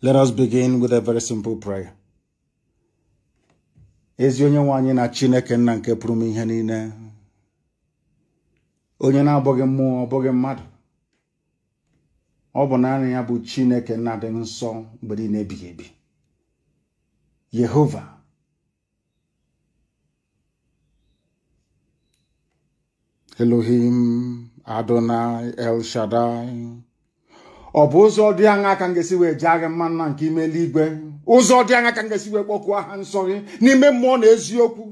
Let us begin with a very simple prayer. ezi onye nwe anyị na chineke nna nke pụrụ m ihe niile onye na-abụghị mmụọ ọ mmadụ ọ bụ naanị ya bụ chineke nna dị nsọ mgbe niile ebighị ebi yehova elohim adonai el shaddai ọ bụ ụzọ dị aṅa ka m ga-esi wee jee agha mma nna nke ime eluigwe ụzọ dị aṅa ka m ga-esi wee kpọkuo aha nsọ gị n'ime mmụọ na eziokwu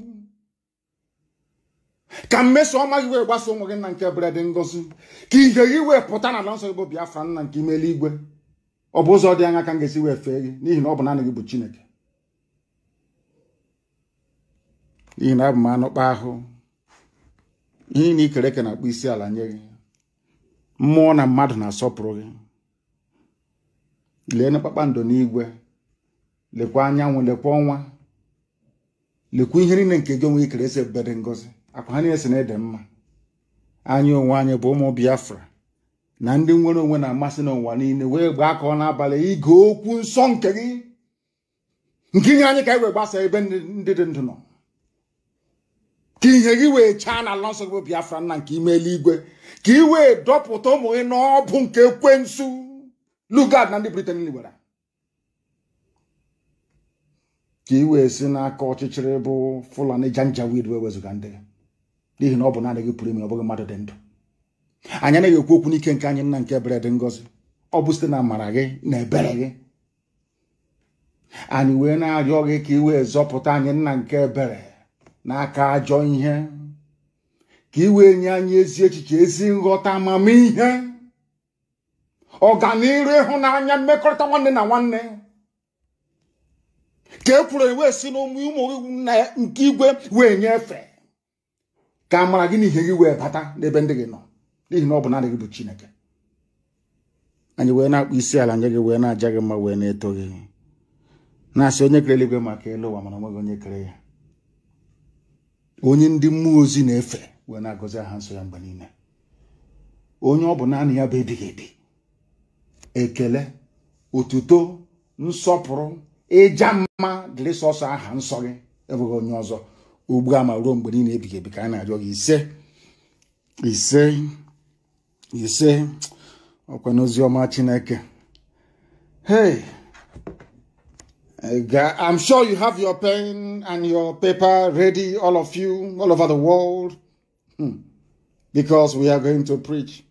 ka mmeso ọma gị wee gbasa onwe gị na nke bredị ngozi ka ihe gị wee pụta na ala nsọ gị bụ Biafra nna nke ime eluigwe ọ bụ ụzọ dị aṅa ka m ga-esi wee fee gị n'ihi na ọ bụ naanị gị bụ Chineke n'ihi na abụ m anụkpa ahụ ihe na ikere eke na akpụ isi ala nye gị mmụọ na mmadụ na-asọpụrụ gị lee kpakpando n'igwe lekwa anyanwụ lekwa ọnwa lekwa ihe niile nke gị onwe ikere esi ebere ngozi akwa ha niile si na ede mma anyị onwe anyị bụ ụmụ biafra na ndị nwere onwe na-amasị n'ụwa niile wee gbaa ka ọ n'abalị ige okwu nsọ nke gị nke ihe anyị ka anyị wee gbasa ebe ndị dị ndụ nọ ka ihe gị wee chaa na ala nsọ bụ biafra nna nke ime eluigwe ka ị wee dọpụta ụmụ gị n'ọbụ nke ekwensu lugard na ndị briten gwara ka ị wee si n'aka ọchịchịrị bụ fulani janjaweed wee wezụga ndị n'ihi na ọ bụ naanị gị pụrụ ime ọ bụghị mmadụ dị ndụ anyị anaghị ekwu okwu n'ike nke anyị nna nke ebere dị ngọzi ọ bụ site na amara gị na ebere gị anyị wee na-arịọ gị ka i wee zọpụta anyị nna nke ebere n'aka ajọ ihe ka i wee nye anyị ezi echiche ezi nghọta amamihe ọganiru ịhụnanya mmekọrịta nwanne na nwanne ka e kwuru wee si n'ụmụ ụmụ na nke igwe wee nyefe ka amara gị n'ihe gị wee bata n'ebe ndị gị nọ n'ihi na ọ bụ naanị gị bụ Chineke anyị wee na akpụ isi ala nye gị wee na-aja gị mma wee na-eto gị na-asị onye kere eluigwe maka elu ụwa mana onweghị onye kere ya onye ndị mmụọ ozi na-efe wee na-agọzi aha nsọ ya mgbe niile onye ọ bụ naanị ya bụ ebighị ebi ekele otuto nsọpụrụ ịja mma dịrị sọsọ aha nsọ gị enweghị onye ọzọ ugbu a ma ruo mgbe niile ebighị ebi ka a na-arịọ gị ise ise ise ọkwa n'ozi ọma chineke hey eh, I'm sure you have your pen and your paper ready, all of you, all over the world, hmm. because we are going to preach.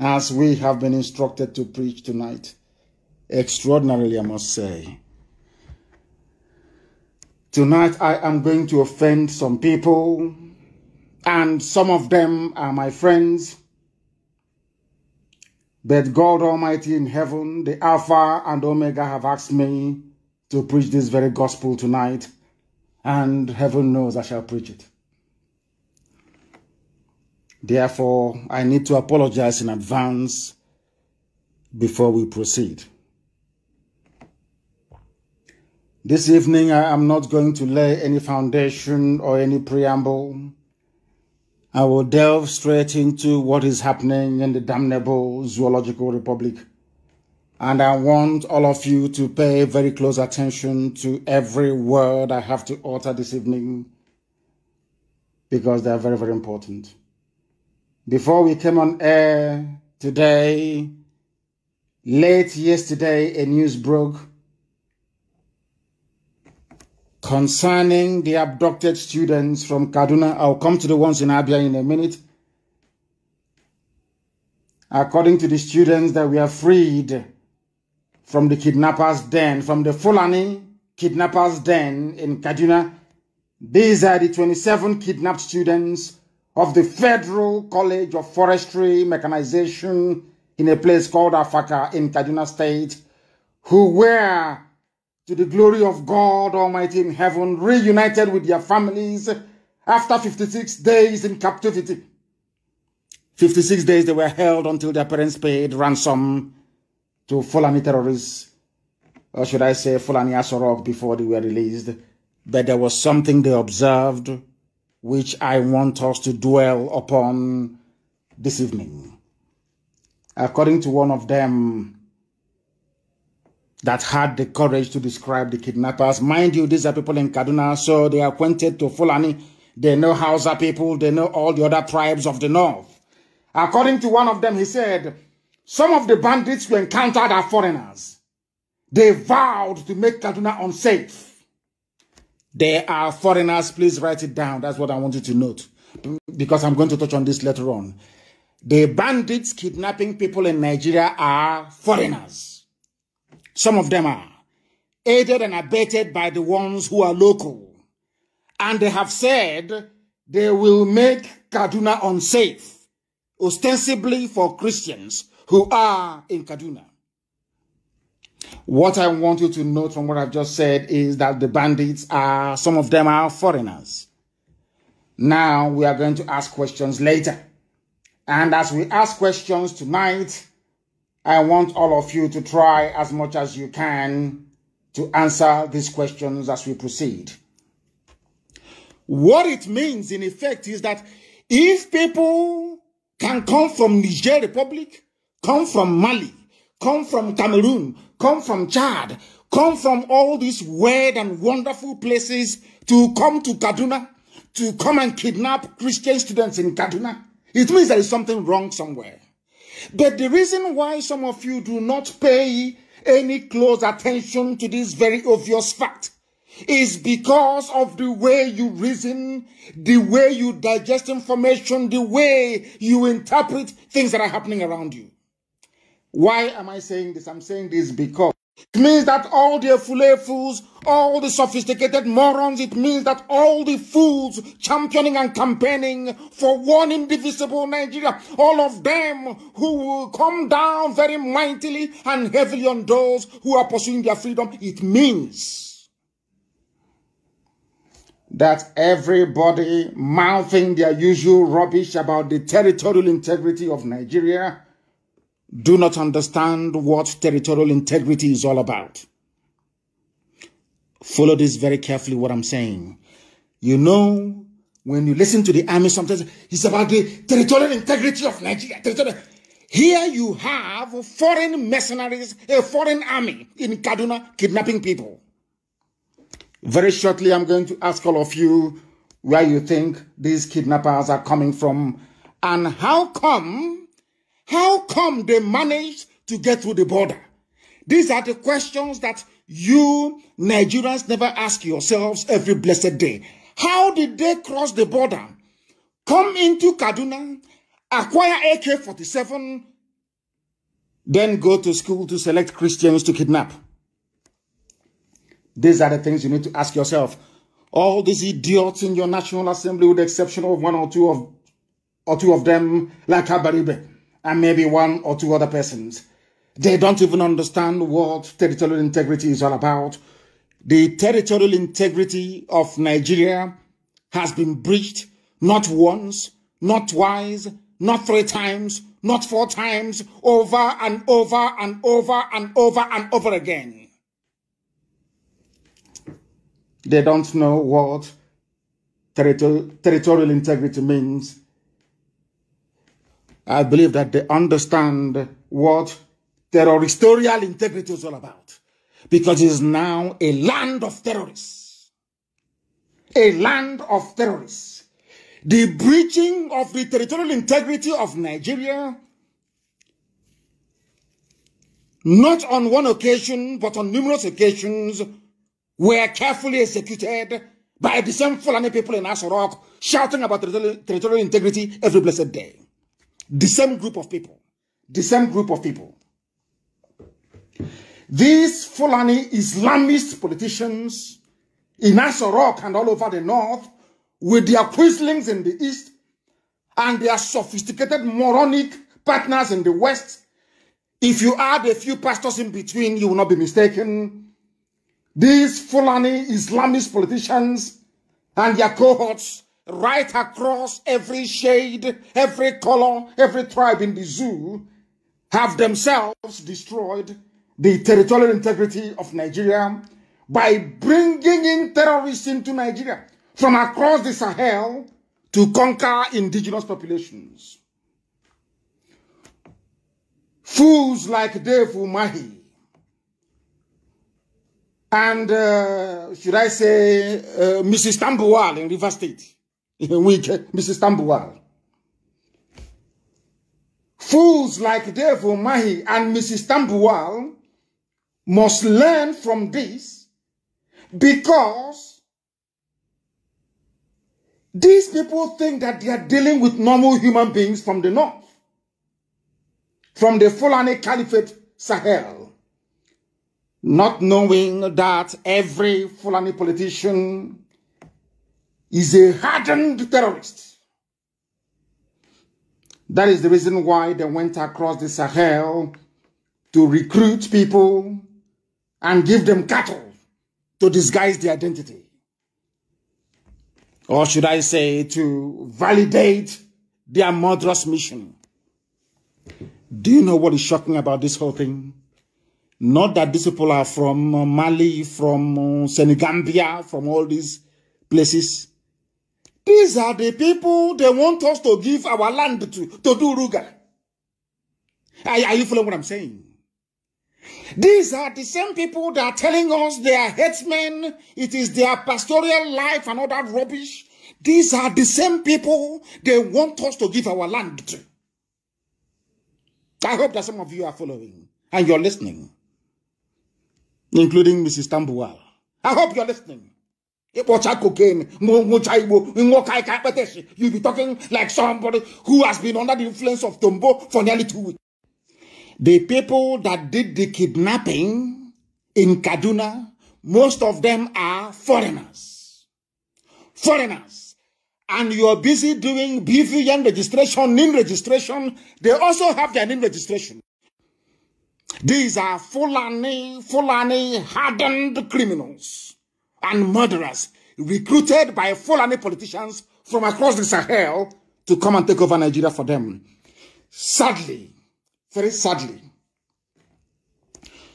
as we have been instructed to preach tonight. Extraordinarily, I must say. Tonight, I am going to offend some people, and some of them are my friends. But God Almighty in heaven, the Alpha and Omega, have asked me to preach this very gospel tonight, and heaven knows I shall preach it. Therefore, I need to apologize in advance before we proceed. This evening, I am not going to lay any foundation or any preamble. I will delve straight into what is happening in the damnable Zoological Republic. And I want all of you to pay very close attention to every word I have to utter this evening because they are very, very important. Before we came on air today, late yesterday, a news broke concerning the abducted students from Kaduna. I'll come to the ones in Abia in a minute. According to the students that we are freed from the kidnappers' den, from the Fulani kidnappers' den in Kaduna, these are the 27 kidnapped students of the Federal College of Forestry Mechanization in a place called Afaka in Kaduna State, who were, to the glory of God Almighty in heaven, reunited with their families after 56 days in captivity. 56 days they were held until their parents paid ransom to Fulani terrorists, or should I say Fulani Asorok before they were released. But there was something they observed which I want us to dwell upon this evening. According to one of them that had the courage to describe the kidnappers, mind you, these are people in Kaduna, so they are acquainted to Fulani. They know Hausa people, they know all the other tribes of the north. According to one of them, he said, some of the bandits we encountered are foreigners. They vowed to make Kaduna unsafe. They are foreigners. Please write it down. That's what I want you to note because I'm going to touch on this later on. The bandits kidnapping people in Nigeria are foreigners. Some of them are aided and abetted by the ones who are local. And they have said they will make Kaduna unsafe, ostensibly for Christians who are in Kaduna. What I want you to note from what I've just said is that the bandits are, some of them are foreigners. Now we are going to ask questions later. And as we ask questions tonight, I want all of you to try as much as you can to answer these questions as we proceed. What it means in effect is that if people can come from Niger Republic, come from Mali, come from Cameroon, come from Chad, come from all these weird and wonderful places to come to Kaduna, to come and kidnap Christian students in Kaduna. It means there is something wrong somewhere. But the reason why some of you do not pay any close attention to this very obvious fact is because of the way you reason, the way you digest information, the way you interpret things that are happening around you. Why am I saying this? I'm saying this because it means that all the fule fools, all the sophisticated morons, it means that all the fools championing and campaigning for one indivisible Nigeria, all of them who will come down very mightily and heavily on those who are pursuing their freedom, it means that everybody mouthing their usual rubbish about the territorial integrity of Nigeria do not understand what territorial integrity is all about. Follow this very carefully, what I'm saying. You know, when you listen to the army, sometimes it's about the territorial integrity of Nigeria. Here you have foreign mercenaries, a foreign army in Kaduna kidnapping people. Very shortly, I'm going to ask all of you where you think these kidnappers are coming from and how come how come they managed to get through the border? These are the questions that you Nigerians never ask yourselves every blessed day. How did they cross the border, come into Kaduna, acquire AK 47, then go to school to select Christians to kidnap? These are the things you need to ask yourself. All these idiots in your National Assembly, with the exception of one or two of, or two of them, like Abaribe and maybe one or two other persons. They don't even understand what territorial integrity is all about. The territorial integrity of Nigeria has been breached not once, not twice, not three times, not four times, over and over and over and over and over again. They don't know what territorial, integrity means. I believe that they understand what territorial integrity is all about. Because it is now a land of terrorists. A land of terrorists. The breaching of the territorial integrity of Nigeria, not on one occasion, but on numerous occasions, were carefully executed by the same Fulani people in Asorok, shouting about territorial integrity every blessed day. The same group of people. The same group of people. These Fulani Islamist politicians in Aso and all over the north with their quislings in the east and their sophisticated moronic partners in the west if you add a few pastors in between, you will not be mistaken. These Fulani Islamist politicians and their cohorts right across every shade, every color, every tribe in the zoo, have themselves destroyed the territorial integrity of Nigeria by bringing in terrorists into Nigeria from across the Sahel to conquer indigenous populations. Fools like Dave Umahi and, uh, should I say, uh, Mrs. Tambuwal in River State Wike, uh, Mrs. Tambuwal. Fools like devil Mahi and Mrs. Tambuwal must learn from this because these people think that they are dealing with normal human beings from the north, from the Fulani Caliphate Sahel, not knowing that every Fulani politician is a hardened terrorist. That is the reason why they went across the Sahel to recruit people and give them cattle to disguise their identity. Or should I say, to validate their murderous mission. Do you know what is shocking about this whole thing? Not that these people are from Mali, from uh, Senegambia, from all these places. These are the people they want us to give our land to, to do Ruga. Are, are you following what I'm saying? These are the same people that are telling us they are headsmen, it is their pastoral life and all that rubbish. These are the same people they want us to give our land to. I hope that some of you are following and you're listening, including Mrs. Tambuwal. I hope you're listening ịkpọcha cocaine you be talking like somebody who has been under the influence of tombo for nearly two weeks the people that did the kidnapping in kaduna most of them are foreigners foreigners and you're busy doing bvn registration nin registration they also have their nin registration these are fulani fulani hardened criminals and murderers recruited by Fulani politicians from across the Sahel to come and take over Nigeria for them. Sadly, very sadly,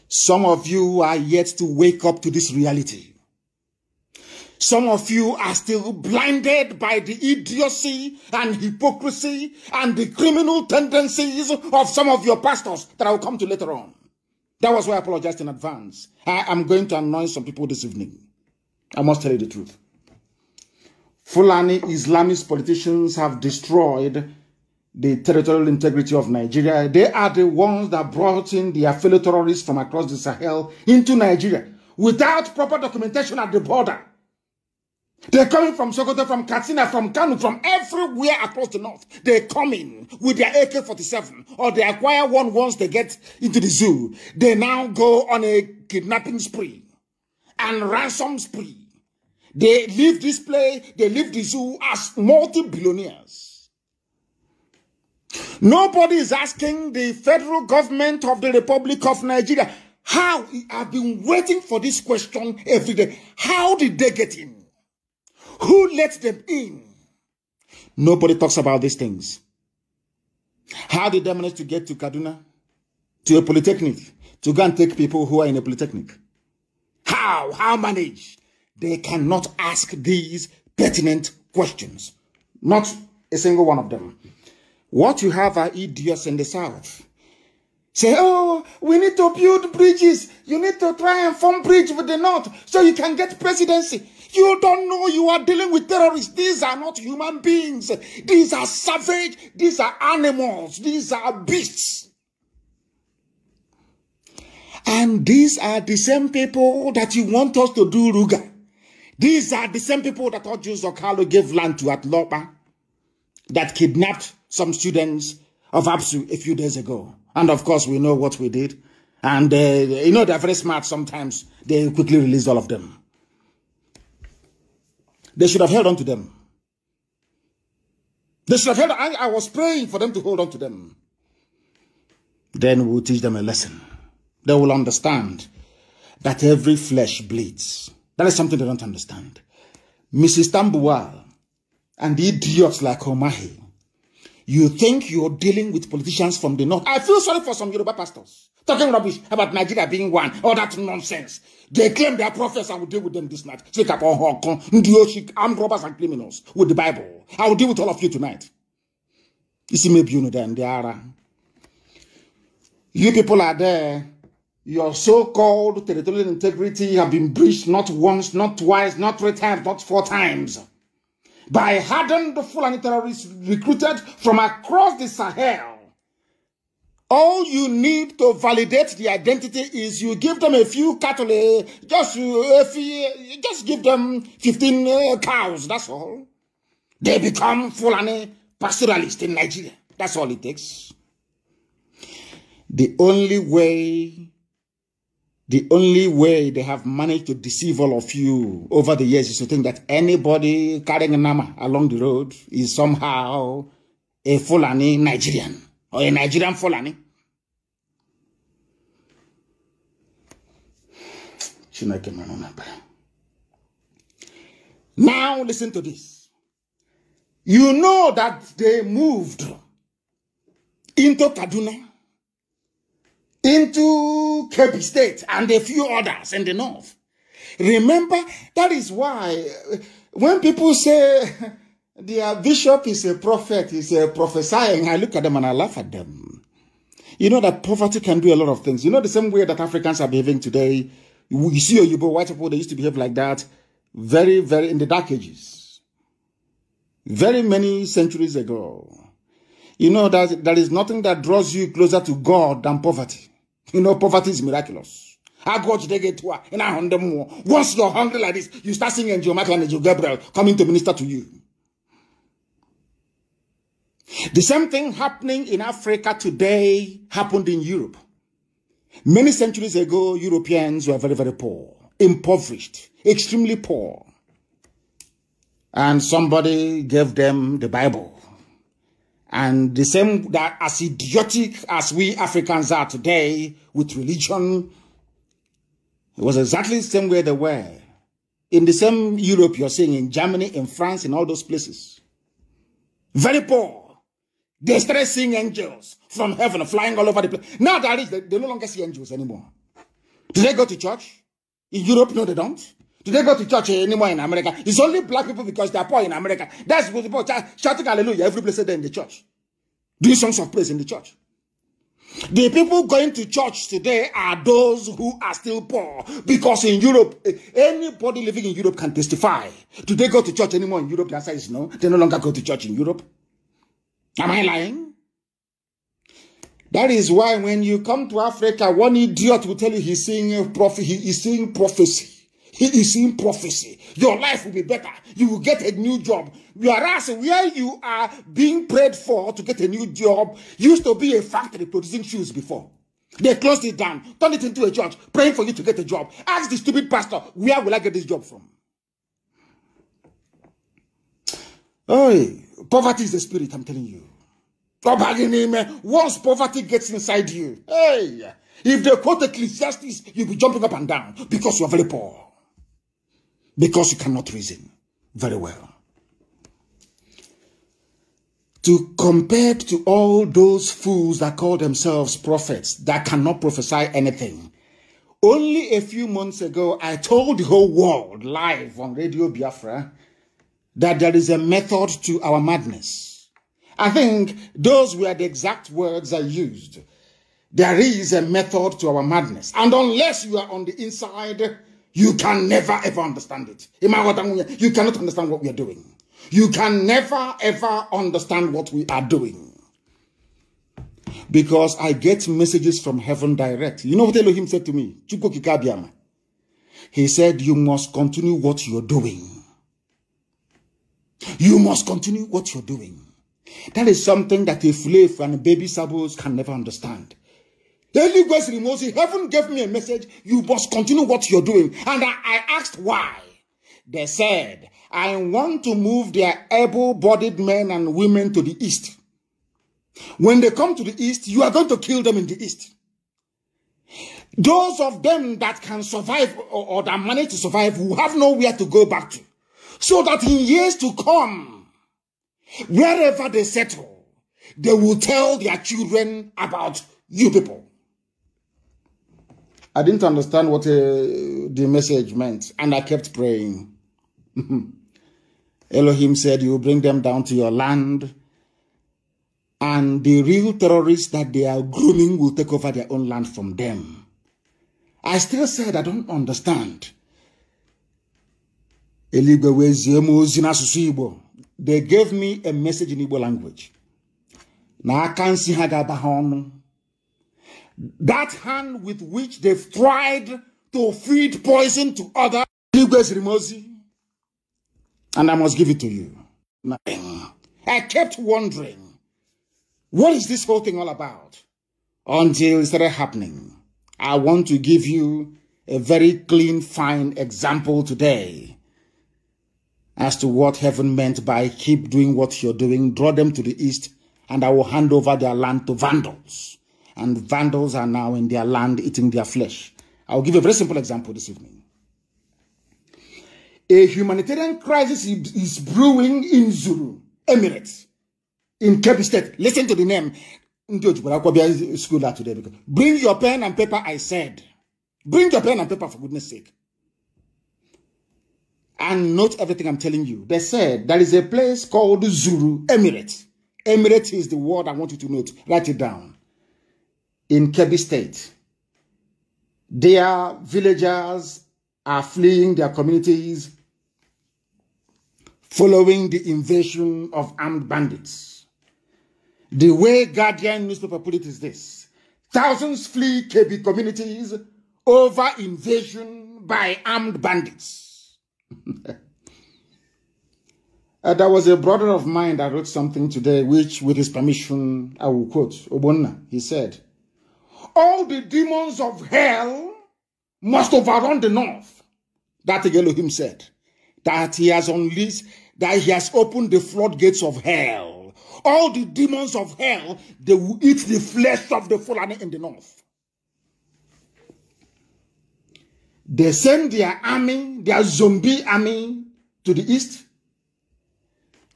some of you are yet to wake up to this reality. Some of you are still blinded by the idiocy and hypocrisy and the criminal tendencies of some of your pastors that I will come to later on. That was why I apologized in advance. I am going to annoy some people this evening. I must tell you the truth. Fulani Islamist politicians have destroyed the territorial integrity of Nigeria. They are the ones that brought in the affiliate terrorists from across the Sahel into Nigeria without proper documentation at the border. They're coming from Sokoto, from Katsina, from Kanu, from everywhere across the north. They come in with their AK-47 or they acquire one once they get into the zoo. They now go on a kidnapping spree and ransom spree. They leave this place, they leave the zoo as multi-billionaires. Nobody is asking the federal government of the Republic of Nigeria how I've been waiting for this question every day. How did they get in? Who let them in? Nobody talks about these things. How did they manage to get to Kaduna? To a polytechnic? To go and take people who are in a polytechnic? How? How manage? They cannot ask these pertinent questions. Not a single one of them. What you have are idiots in the South. Say, oh, we need to build bridges. You need to try and form bridge with the North so you can get presidency. You don't know you are dealing with terrorists. These are not human beings. These are savage. These are animals. These are beasts. And these are the same people that you want us to do Ruga. These are the same people that Ojo Zokalo gave land to at Lopa that kidnapped some students of APSU a few days ago. And of course, we know what we did. And uh, you know, they're very smart sometimes. They quickly release all of them. They should have held on to them. They should have held I, I was praying for them to hold on to them. Then we'll teach them a lesson they will understand that every flesh bleeds. That is something they don't understand. Mrs. Tambuwal and the idiots like Omahi, you think you're dealing with politicians from the north. I feel sorry for some Yoruba pastors talking rubbish about Nigeria being one, all that nonsense. They claim they are prophets. I will deal with them this night. Take up on Hong Kong, i armed robbers and criminals with the Bible. I will deal with all of you tonight. You see, maybe you know them, they are. You people are there your so-called territorial integrity have been breached not once, not twice, not three times, not four times by hardened Fulani terrorists recruited from across the Sahel. All you need to validate the identity is you give them a few cattle, just, just give them 15 uh, cows, that's all. They become Fulani pastoralists in Nigeria. That's all it takes. The only way the only way they have managed to deceive all of you over the years is to think that anybody carrying a nama along the road is somehow a Fulani Nigerian or a Nigerian Fulani. Now listen to this. You know that they moved into Kaduna into Cape State and a few others in the north. Remember, that is why uh, when people say their bishop is a prophet, is a prophesying, I look at them and I laugh at them. You know that poverty can do a lot of things. You know the same way that Africans are behaving today. You see Oyibo, white people, they used to behave like that very, very, in the dark ages. Very many centuries ago. You know that there is nothing that draws you closer to God than poverty. You know, poverty is miraculous. How God they get to in Once you're hungry like this, you start singing your Michael and your Gabriel coming to minister to you. The same thing happening in Africa today happened in Europe. Many centuries ago, Europeans were very, very poor, impoverished, extremely poor. And somebody gave them the Bible. And the same that as idiotic as we Africans are today with religion, it was exactly the same way they were. In the same Europe you're seeing, in Germany, in France, in all those places. Very poor. They started seeing angels from heaven flying all over the place. Now they they, they no longer see angels anymore. Do they go to church? In Europe, no, they don't. Do they go to church anymore in America? It's only black people because they are poor in America. That's what people are shouting hallelujah every blessed day in the church. Doing songs of praise in the church. The people going to church today are those who are still poor because in Europe, eh, anybody living in Europe can testify. Do they go to church anymore in Europe? The answer is no. They no longer go to church in Europe. Am I lying? That is why when you come to Africa, one idiot will tell you he's seeing prophet, he is seeing prophecy. He is in prophecy. Your life will be better. You will get a new job. Whereas where you are being prayed for to get a new job used to be a factory producing shoes before. They closed it down, turned it into a church, praying for you to get a job. Ask the stupid pastor, where will I get this job from? Oh, poverty is the spirit, I'm telling you. Once poverty gets inside you, hey, if they quote Ecclesiastes, you'll be jumping up and down because you're very poor because you cannot reason very well. To compare to all those fools that call themselves prophets that cannot prophesy anything. Only a few months ago, I told the whole world live on Radio Biafra that there is a method to our madness. I think those were the exact words I used. There is a method to our madness. And unless you are on the inside, you can never ever understand it. You cannot understand what we are doing. You can never ever understand what we are doing. Because I get messages from heaven direct. You know what Elohim said to me? He said, You must continue what you're doing. You must continue what you're doing. That is something that a slave and a baby sabos can never understand. The Holy Ghost removes Heaven gave me a message. You must continue what you're doing. And I, I asked why. They said, I want to move their able bodied men and women to the east. When they come to the east, you are going to kill them in the east. Those of them that can survive or, or that manage to survive will have nowhere to go back to. So that in years to come, wherever they settle, they will tell their children about you people. I didn't understand what uh, the message meant, and I kept praying. Elohim said, You bring them down to your land, and the real terrorists that they are grooming will take over their own land from them. I still said, I don't understand. They gave me a message in Igbo language. Now I can't see Hagabahon. That hand with which they've tried to feed poison to others, and I must give it to you. I kept wondering, what is this whole thing all about? Until it started happening. I want to give you a very clean, fine example today as to what heaven meant by keep doing what you're doing, draw them to the east, and I will hand over their land to vandals and vandals are now in their land eating their flesh. I'll give a very simple example this evening. A humanitarian crisis is brewing in Zulu, Emirates, in Kebbi State. Listen to the name. School today because bring your pen and paper, I said. Bring your pen and paper for goodness sake. And note everything I'm telling you. They said there is a place called Zulu Emirates. Emirates is the word I want you to note. Write it down in Kebbi State. Their villagers are fleeing their communities following the invasion of armed bandits. The way Guardian newspaper put it is this. Thousands flee Kebbi communities over invasion by armed bandits. uh, there was a brother of mine that wrote something today, which, with his permission, I will quote Obonna. He said, all the demons of hell must overrun the north. That Elohim said, that he has unleashed, that he has opened the floodgates of hell. All the demons of hell, they will eat the flesh of the fallen in the north. They send their army, their zombie army, to the east,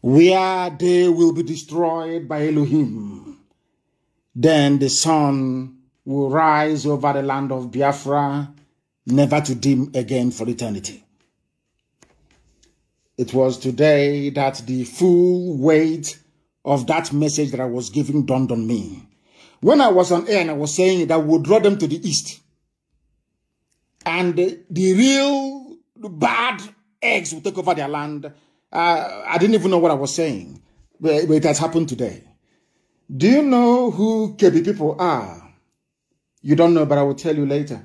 where they will be destroyed by Elohim. Then the sun will rise over the land of Biafra, never to dim again for eternity. It was today that the full weight of that message that I was giving dawned on me. When I was on air and I was saying that would draw them to the east, and the real bad eggs will take over their land. Uh, I didn't even know what I was saying, but it has happened today. Do you know who KB people are? You don't know, but I will tell you later.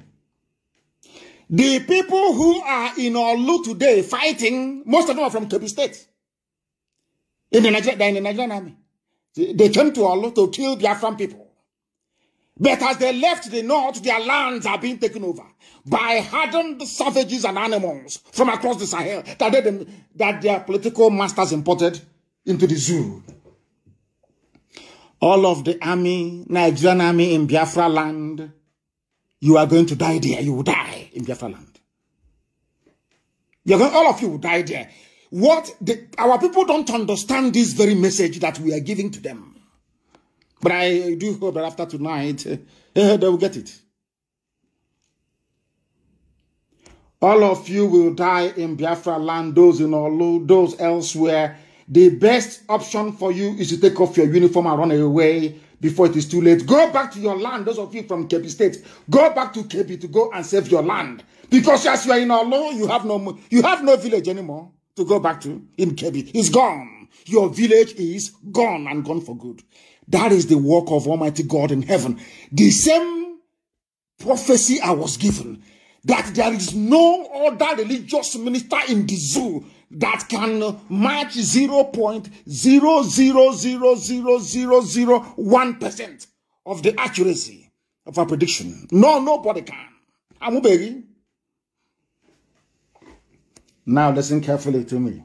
The people who are in Olu today fighting, most of them are from Kebbi State. In the Nigerian, they're in the Nigerian army. They came to Olu to kill Biafran people. But as they left the north, their lands are being taken over by hardened savages and animals from across the Sahel that, they, that their political masters imported into the zoo all of the army, Nigerian army in Biafra land, you are going to die there. You will die in Biafra land. You're going, all of you will die there. What the, our people don't understand this very message that we are giving to them. But I do hope that after tonight, uh, they will get it. All of you will die in Biafra land, those in Olu, those elsewhere, the best option for you is to take off your uniform and run away before it is too late. Go back to your land, those of you from Kebi State. Go back to Kebi to go and save your land. Because as you are in our Olo, you have no you have no village anymore to go back to in Kebi. It's gone. Your village is gone and gone for good. That is the work of Almighty God in heaven. The same prophecy I was given that there is no other religious minister in the zoo that can match zero point zero zero zero zero zero zero one percent of the accuracy of a prediction. No, nobody can. baby. Now listen carefully to me.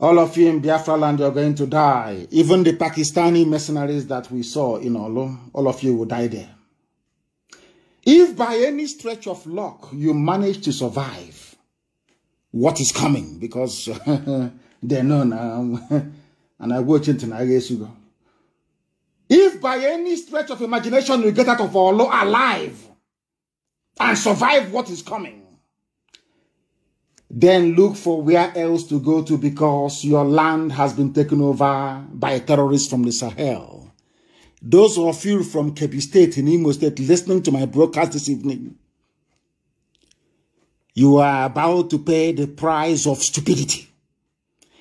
All of you in Biafra land, you're going to die. Even the Pakistani mercenaries that we saw in Olo, all of you will die there. If by any stretch of luck you manage to survive, what is coming because they know now. and I watch it and I guess you go. If by any stretch of imagination we get out of our law alive and survive what is coming, then look for where else to go to because your land has been taken over by terrorists from the Sahel. Those of you from Kebbi State in Imo State listening to my broadcast this evening, you are about to pay the price of stupidity.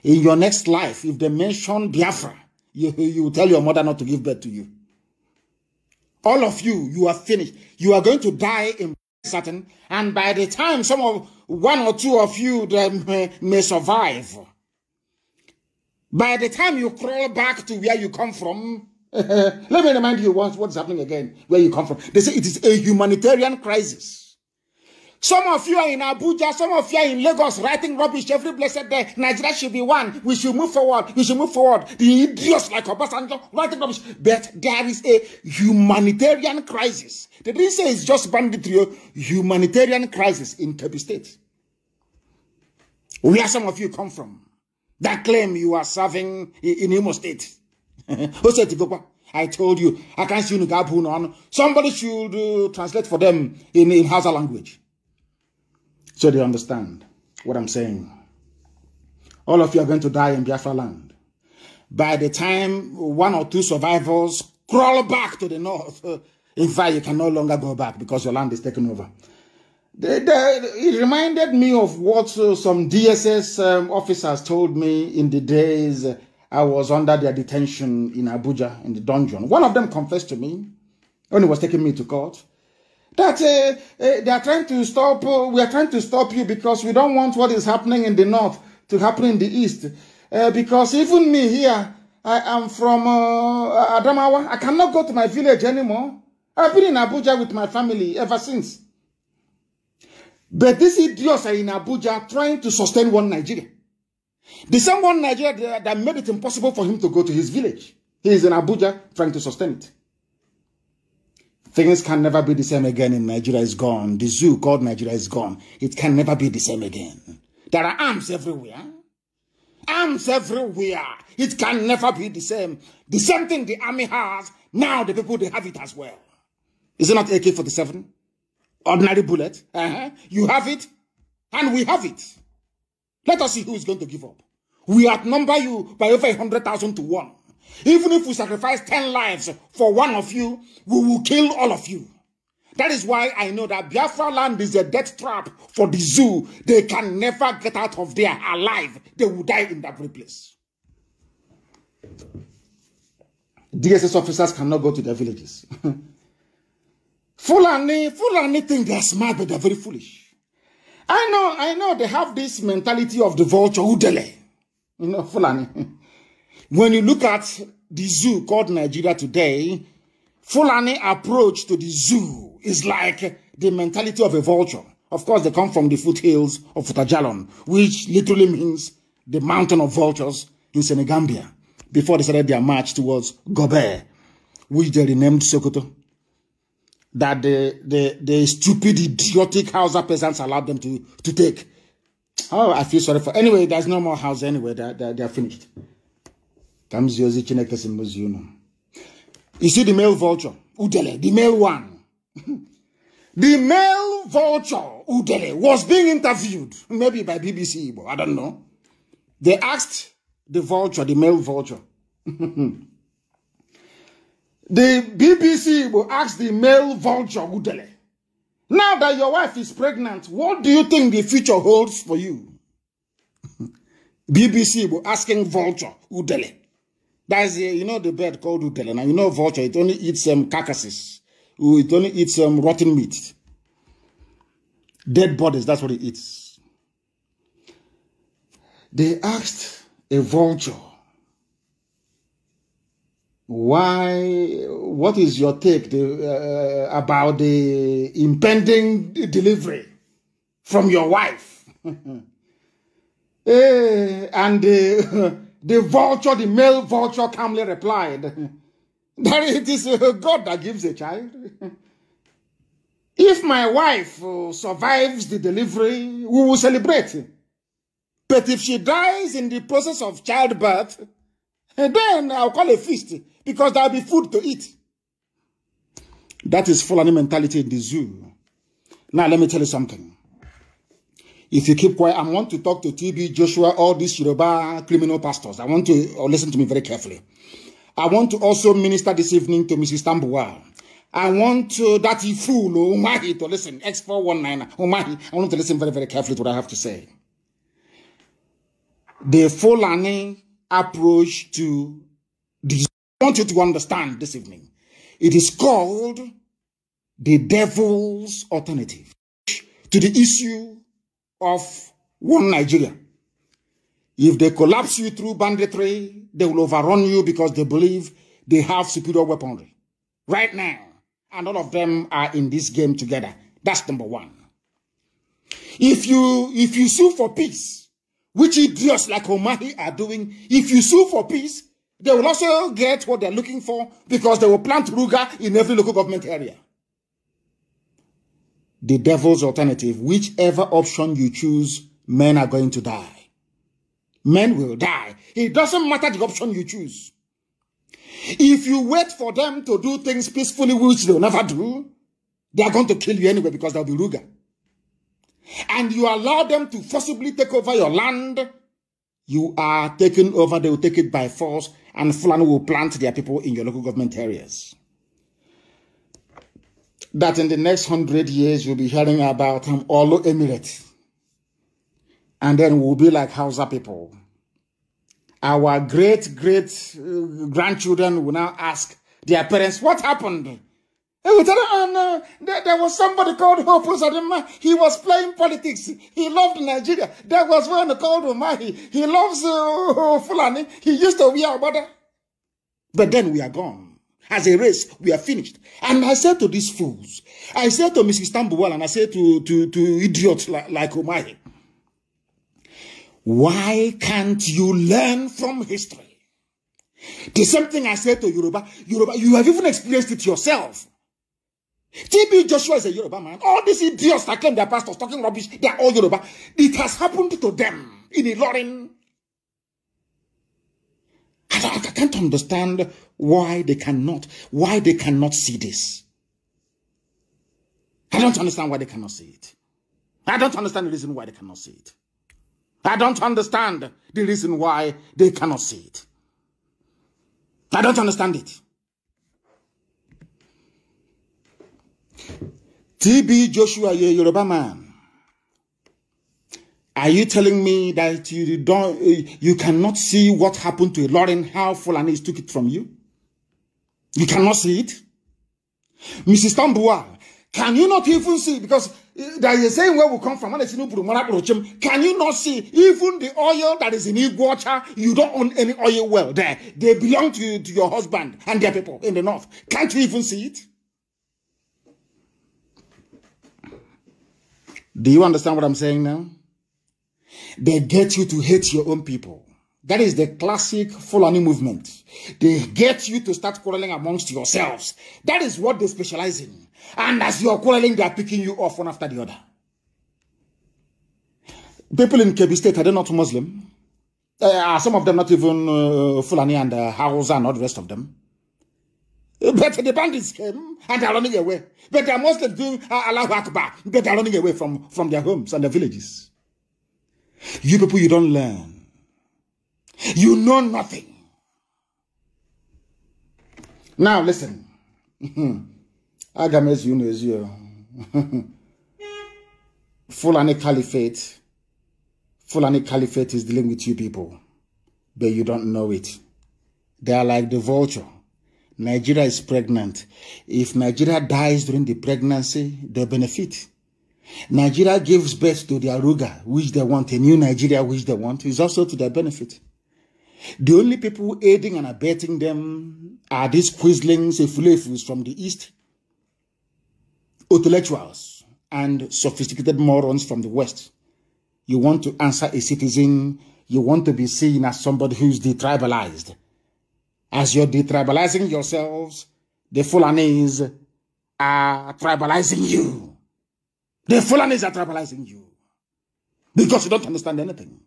In your next life, if they mention Biafra, you, you tell your mother not to give birth to you. All of you, you are finished. You are going to die in certain, and by the time some of one or two of you may, may survive, by the time you crawl back to where you come from, let me remind you what, what's happening again, where you come from. They say it is a humanitarian crisis. Some of you are in Abuja, some of you are in Lagos writing rubbish every blessed day. Nigeria should be one. We should move forward. We should move forward. The idiots like Obasanjo writing rubbish. But there is a humanitarian crisis. They didn't say it's just banditry, oh. humanitarian crisis in Kebbi State. Where some of you come from that claim you are serving in Imo State. I told you, I can't see you. Somebody should uh, translate for them in, in Hausa language. So they understand what I'm saying. All of you are going to die in Biafra land. By the time one or two survivors crawl back to the north, in fact, you can no longer go back because your land is taken over. They, they, it reminded me of what uh, some DSS um, officers told me in the days I was under their detention in Abuja in the dungeon. One of them confessed to me when he was taking me to court that uh, they are trying to stop, uh, we are trying to stop you because we don't want what is happening in the north to happen in the east. Uh, because even me here, I am from uh, Adamawa. I cannot go to my village anymore. I've been in Abuja with my family ever since. But these idiots are in Abuja trying to sustain one Nigeria. The same one Nigeria that made it impossible for him to go to his village. He is in Abuja trying to sustain it. Things can never be the same again in Nigeria is gone. The zoo called Nigeria is gone. It can never be the same again. There are arms everywhere. Arms everywhere. It can never be the same. The same thing the army has, now the people, they have it as well. Is it not AK-47? Ordinary bullet? Uh -huh. You have it, and we have it. Let us see who is going to give up. We outnumber you by over 100,000 to 1. Even if we sacrifice 10 lives for one of you, we will kill all of you. That is why I know that Biafra land is a death trap for the zoo. They can never get out of there alive. They will die in that very place. DSS officers cannot go to their villages. Fulani, Fulani think they are smart, but they are very foolish. I know, I know they have this mentality of the vulture, Udele. You know, Fulani. When you look at the zoo called Nigeria today, Fulani approach to the zoo is like the mentality of a vulture. Of course, they come from the foothills of Futajalon, which literally means the mountain of vultures in Senegambia, before they started their march towards Gobert, which they renamed Sokoto. That the, the, the stupid, idiotic Hausa peasants allowed them to, to take. Oh, I feel sorry for... Anyway, there's no more house anyway. They're, they're, they're finished. Ka m zie ozi Chineke si m the male vulture udele the male one. the male vulture udele was being interviewed maybe by BBC but I don't know. They asked the vulture the male vulture. the BBC will ask the male vulture udele. Now that your wife is pregnant, what do you think the future holds for you? BBC will asking vulture udele. That's a, you know the bird called utelena. You know vulture. It only eats um, carcasses. It only eats um, rotten meat, dead bodies. That's what it eats. They asked a vulture, "Why? What is your take the, uh, about the impending delivery from your wife?" eh, and. Uh, The vulture, the male vulture, calmly replied that it is uh, God that gives a child. If my wife uh, survives the delivery, we will celebrate. But if she dies in the process of childbirth, eh, then I'll call a feast because there'll be food to eat. That is Fulani mentality in the zoo. Now, let me tell you something if you keep quiet, I want to talk to TB, Joshua, all these Yoruba criminal pastors. I want to oh, listen to me very carefully. I want to also minister this evening to Mrs. Tambua. I want to, that fool, Umahi, to listen. X419, Umahi. I want to listen very, very carefully to what I have to say. The Fulani approach to this. I want you to understand this evening. It is called the devil's alternative to the issue of one Nigeria. If they collapse you through banditry, they will overrun you because they believe they have superior weaponry. Right now, and all of them are in this game together. That's number one. If you if you sue for peace, which idiots like Omahi are doing, if you sue for peace, they will also get what they're looking for because they will plant Ruga in every local government area the devil's alternative, whichever option you choose, men are going to die. Men will die. It doesn't matter the option you choose. If you wait for them to do things peacefully, which they'll never do, they are going to kill you anyway because they'll be ruger. And you allow them to forcibly take over your land, you are taken over, they will take it by force, and Fulani will plant their people in your local government areas that in the next hundred years you'll be hearing about um, Olo Emirate. And then we'll be like Hausa people. Our great great uh, grandchildren will now ask their parents, What happened? And we tell them, oh, no, there, there, was somebody called Hope Uzadima. He was playing politics. He loved Nigeria. There was one called Umahi. He loves uh, Fulani. He used to be our brother. But then we are gone. As a race, we are finished. And I said to these fools, I said to Mrs. Tambuwal and I said to, to, to idiots like, like Umahi, why can't you learn from history? The same thing I said to Yoruba, Yoruba, you have even experienced it yourself. TB Joshua is a Yoruba man. All these idiots that claim their pastors talking rubbish, they are all Yoruba. It has happened to them in Ilorin. I, I can't understand why they cannot, why they cannot see this. I don't understand why they cannot see it. I don't understand the reason why they cannot see it. I don't understand the reason why they cannot see it. I don't understand it. TB Joshua, you Yoruba man. Are you telling me that you don't, you cannot see what happened to Lauren, how Fulani took it from you? You cannot see it. Mrs. Tambua, can you not even see? Because eh, they are saying where we come from. Can you not see? Even the oil that is in Iguacha, you don't own any oil well there. They belong to, you, to your husband and their people in the north. Can't you even see it? Do you understand what I'm saying now? They get you to hate your own people. That is the classic Fulani movement. They get you to start quarreling amongst yourselves. That is what they specialize in. And as you're quarreling, they are picking you off one after the other. People in Kebbi State, are they not Muslim? Uh, some of them not even uh, Fulani and uh, Hausa and all the rest of them. But the bandits came um, and they are running away. But they are mostly doing uh, Allahu Akbar. But they are running away from, from their homes and their villages. You people, you don't learn. You know nothing. Now, listen. Agames, you know, is you. Fulani Caliphate. Fulani Caliphate is dealing with you people, but you don't know it. They are like the vulture. Nigeria is pregnant. If Nigeria dies during the pregnancy, they benefit. Nigeria gives birth to the Aruga, which they want, a new Nigeria, which they want, is also to their benefit. The only people aiding and abetting them are these quizzlings, effulefus from the East, intellectuals, and sophisticated morons from the West. You want to answer a citizen, you want to be seen as somebody who's detribalized. As you're detribalizing yourselves, the Fulanis are tribalizing you. The Fulanis are tribalizing you because you don't understand anything.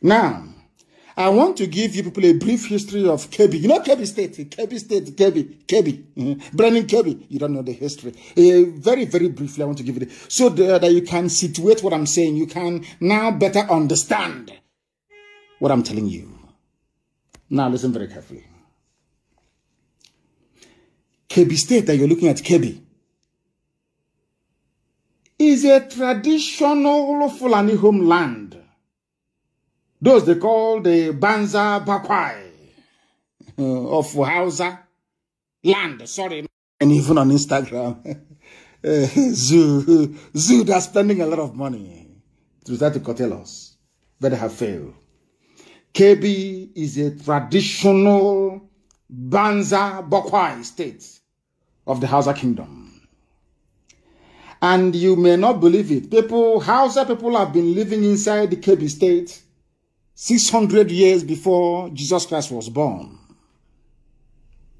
Now, I want to give you people a brief history of Kebi. You know Kebi State, Kebi State, Kebi, Kebi, mm-hmm. You don't know the history. Uh, very, very briefly, I want to give it so that you can situate what I'm saying. You can now better understand what I'm telling you. Now listen very carefully. Kebi State that you're looking at, Kebi, is a traditional Fulani homeland those they call the Banza Bakwai uh, of Hausa land, sorry, and even on Instagram. Eh, zoo, zoo, they're spending a lot of money to try to curtail us, they have failed. KB is a traditional Banza Bakwai state of the Hausa kingdom. And you may not believe it. People, Hausa people have been living inside the KB state 600 years before Jesus Christ was born.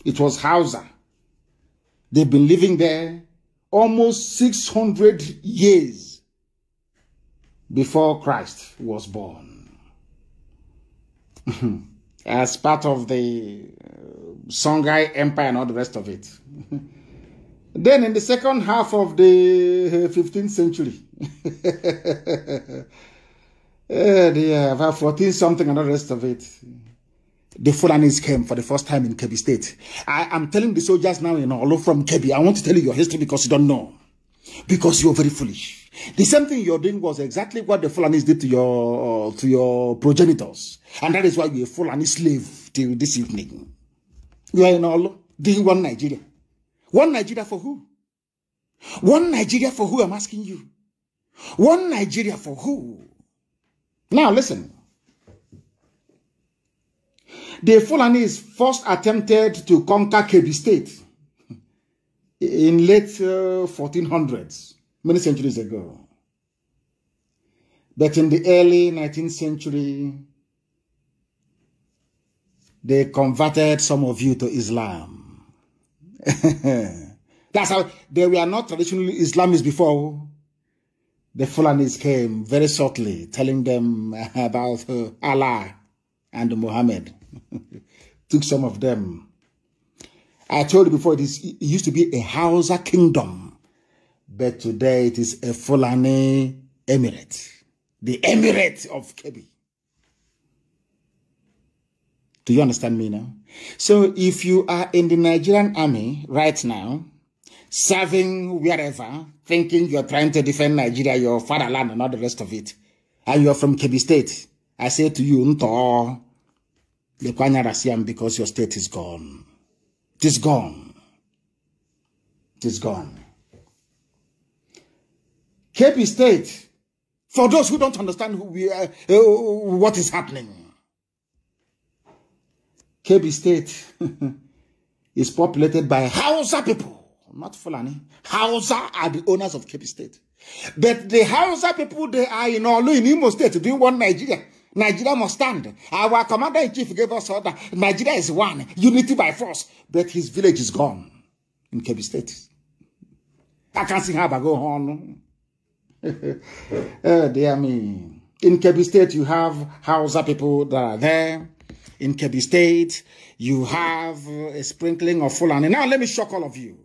It was Hausa. They've been living there almost 600 years before Christ was born. As part of the uh, Songhai Empire and all the rest of it. then in the second half of the 15th uh, century, Uh, they have 14 something and the rest of it. The Fulanis came for the first time in Kebi State. I am telling the soldiers now in Olo from Kebi, I want to tell you your history because you don't know. Because you're very foolish. The same thing you're doing was exactly what the Fulanis did to your, to your progenitors. And that is why you're a Fulani slave till this evening. You are in Olo, doing one Nigeria. One Nigeria for who? One Nigeria for who, I'm asking you. One Nigeria for who? Now listen. The Fulanis first attempted to conquer Kebbi State in late uh, 1400s, many centuries ago. But in the early 19th century, they converted some of you to Islam. That's how they were not traditionally Islamists before the Fulanis came very shortly, telling them about Allah and Muhammad. Took some of them. I told you before, it, is, it used to be a Hausa kingdom, but today it is a Fulani emirate, the emirate of Kebi. Do you understand me now? So if you are in the Nigerian army right now, serving wherever, thinking you're trying to defend Nigeria, your fatherland, and all the rest of it, and you're from Kebi State, I say to you, Nto, Lekwanya because your state is gone. It is gone. It is gone. Kepi State, for those who don't understand who we are, uh, what is happening, Kebi State is populated by Hausa people not Fulani, Hausa are the owners of Cape State. But the Hausa people, they are in Olu, in Imo State, doing one Nigeria. Nigeria must stand. Our commander-in-chief gave us order. Nigeria is one, unity by force. But his village is gone in Kebbi State. I can't see how I go on. oh, dear me. In Kebi State, you have Hausa people that are there. In Kebi State, you have a sprinkling of Fulani. Now, let me shock all of you.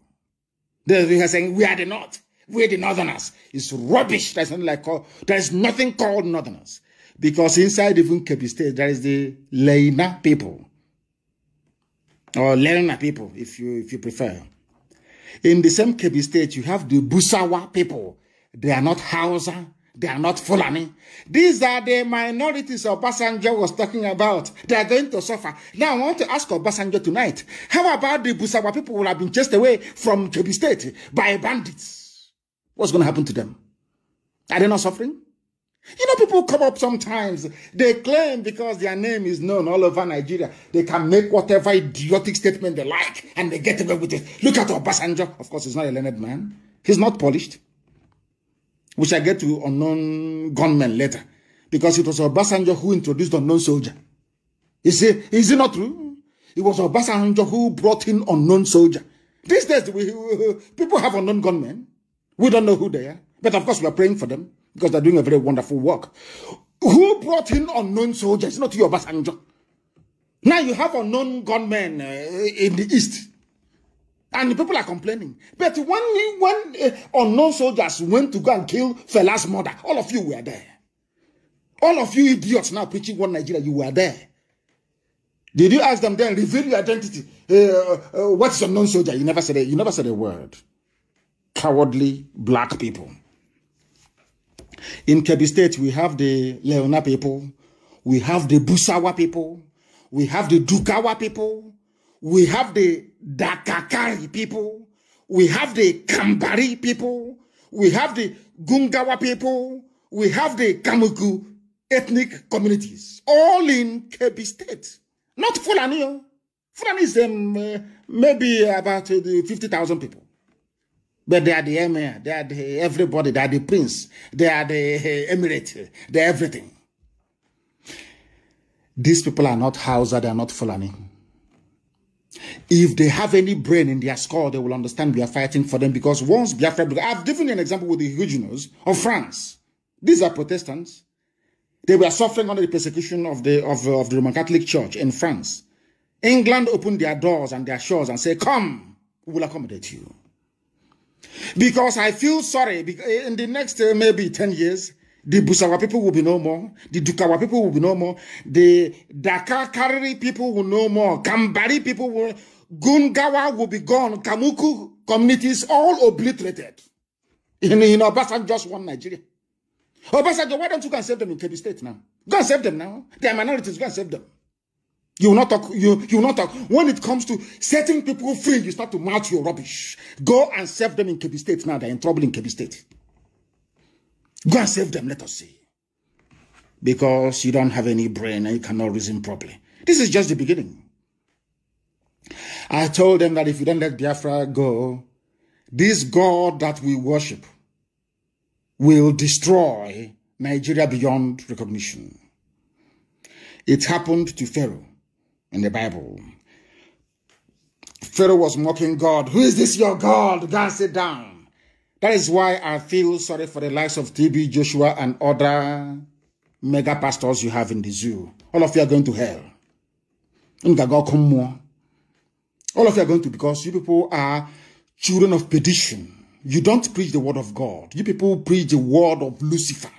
They are saying, we are the North. We are the Northerners. It's rubbish. There's nothing like there's nothing called Northerners. Because inside even Kebbi State, there is the Leina people. Or Leina people, if you if you prefer. In the same Kebbi State, you have the Busawa people. They are not Hausa. They are not Fulani. These are the minorities Obasanjo was talking about. They are going to suffer. Now, I want to ask Obasanjo tonight, how about the Busawa people who have been chased away from Jobi State by bandits? What's going to happen to them? Are they not suffering? You know, people come up sometimes, they claim because their name is known all over Nigeria, they can make whatever idiotic statement they like and they get away with it. Look at Obasanjo. Of course, he's not a learned man. He's not polished. We shall get to unknown gunmen later. Because it was Obasanjo who introduced unknown soldier. Is it, is it not true? It was Obasanjo who brought in unknown soldier. These days, we, people have unknown gunmen. We don't know who they are. But of course, we are praying for them because they're doing a very wonderful work. Who brought in unknown soldiers? Not you, Obasanjo. Now you have unknown gunmen uh, in the East. And the people are complaining. But when he, when uh, unknown soldiers went to go and kill Fela's mother, all of you were there. All of you idiots now preaching one Nigeria, you were there. Did you ask them then, reveal your identity? Uh, uh, uh what's unknown soldier? You never said a, you never said a word. Cowardly black people. In Kebbi State, we have the Leona people. We have the Busawa people. We have the Dukawa people. We have the Kakari people, we have the Kambari people, we have the Gungawa people, we have the Kamuku ethnic communities, all in Kebi State. Not Fulani. Oh. Fulani is um, uh, maybe about uh, 50,000 people. But they are the emir, they are the everybody, they are the prince, they are the uh, emirate, they are everything. These people are not Hausa, they are not Fulani. If they have any brain in their skull, they will understand we are fighting for them because once Biafra, I've given you an example with the Huguenots of France. These are Protestants. They were suffering under the persecution of the, of, of the Roman Catholic Church in France. England opened their doors and their shores and said, come, we will accommodate you. Because I feel sorry, in the next uh, maybe 10 years, the Busawa people will be no more. The Dukawa people will be no more. The Dakakari people will no more. Kambari people will. Gungawa will be gone. Kamuku communities all obliterated. In, in Obasan, just one Nigeria. Obasanjo, why don't you go and save them in Kebbi State now? Go and save them now. They are minorities. Go and save them. You will not talk. You, you will not talk. When it comes to setting people free, you start to mouth your rubbish. Go and save them in Kebbi State now. They're in trouble in Kebbi State. Go and save them, let us see. Because you don't have any brain and you cannot reason properly. This is just the beginning. I told them that if you don't let Biafra go, this God that we worship will destroy Nigeria beyond recognition. It happened to Pharaoh in the Bible. Pharaoh was mocking God. Who is this your God? God, sit down. That is why I feel sorry for the likes of TB Joshua and other mega pastors you have in the zoo. All of you are going to hell. All of you are going to because you people are children of perdition. You don't preach the word of God. You people preach the word of Lucifer.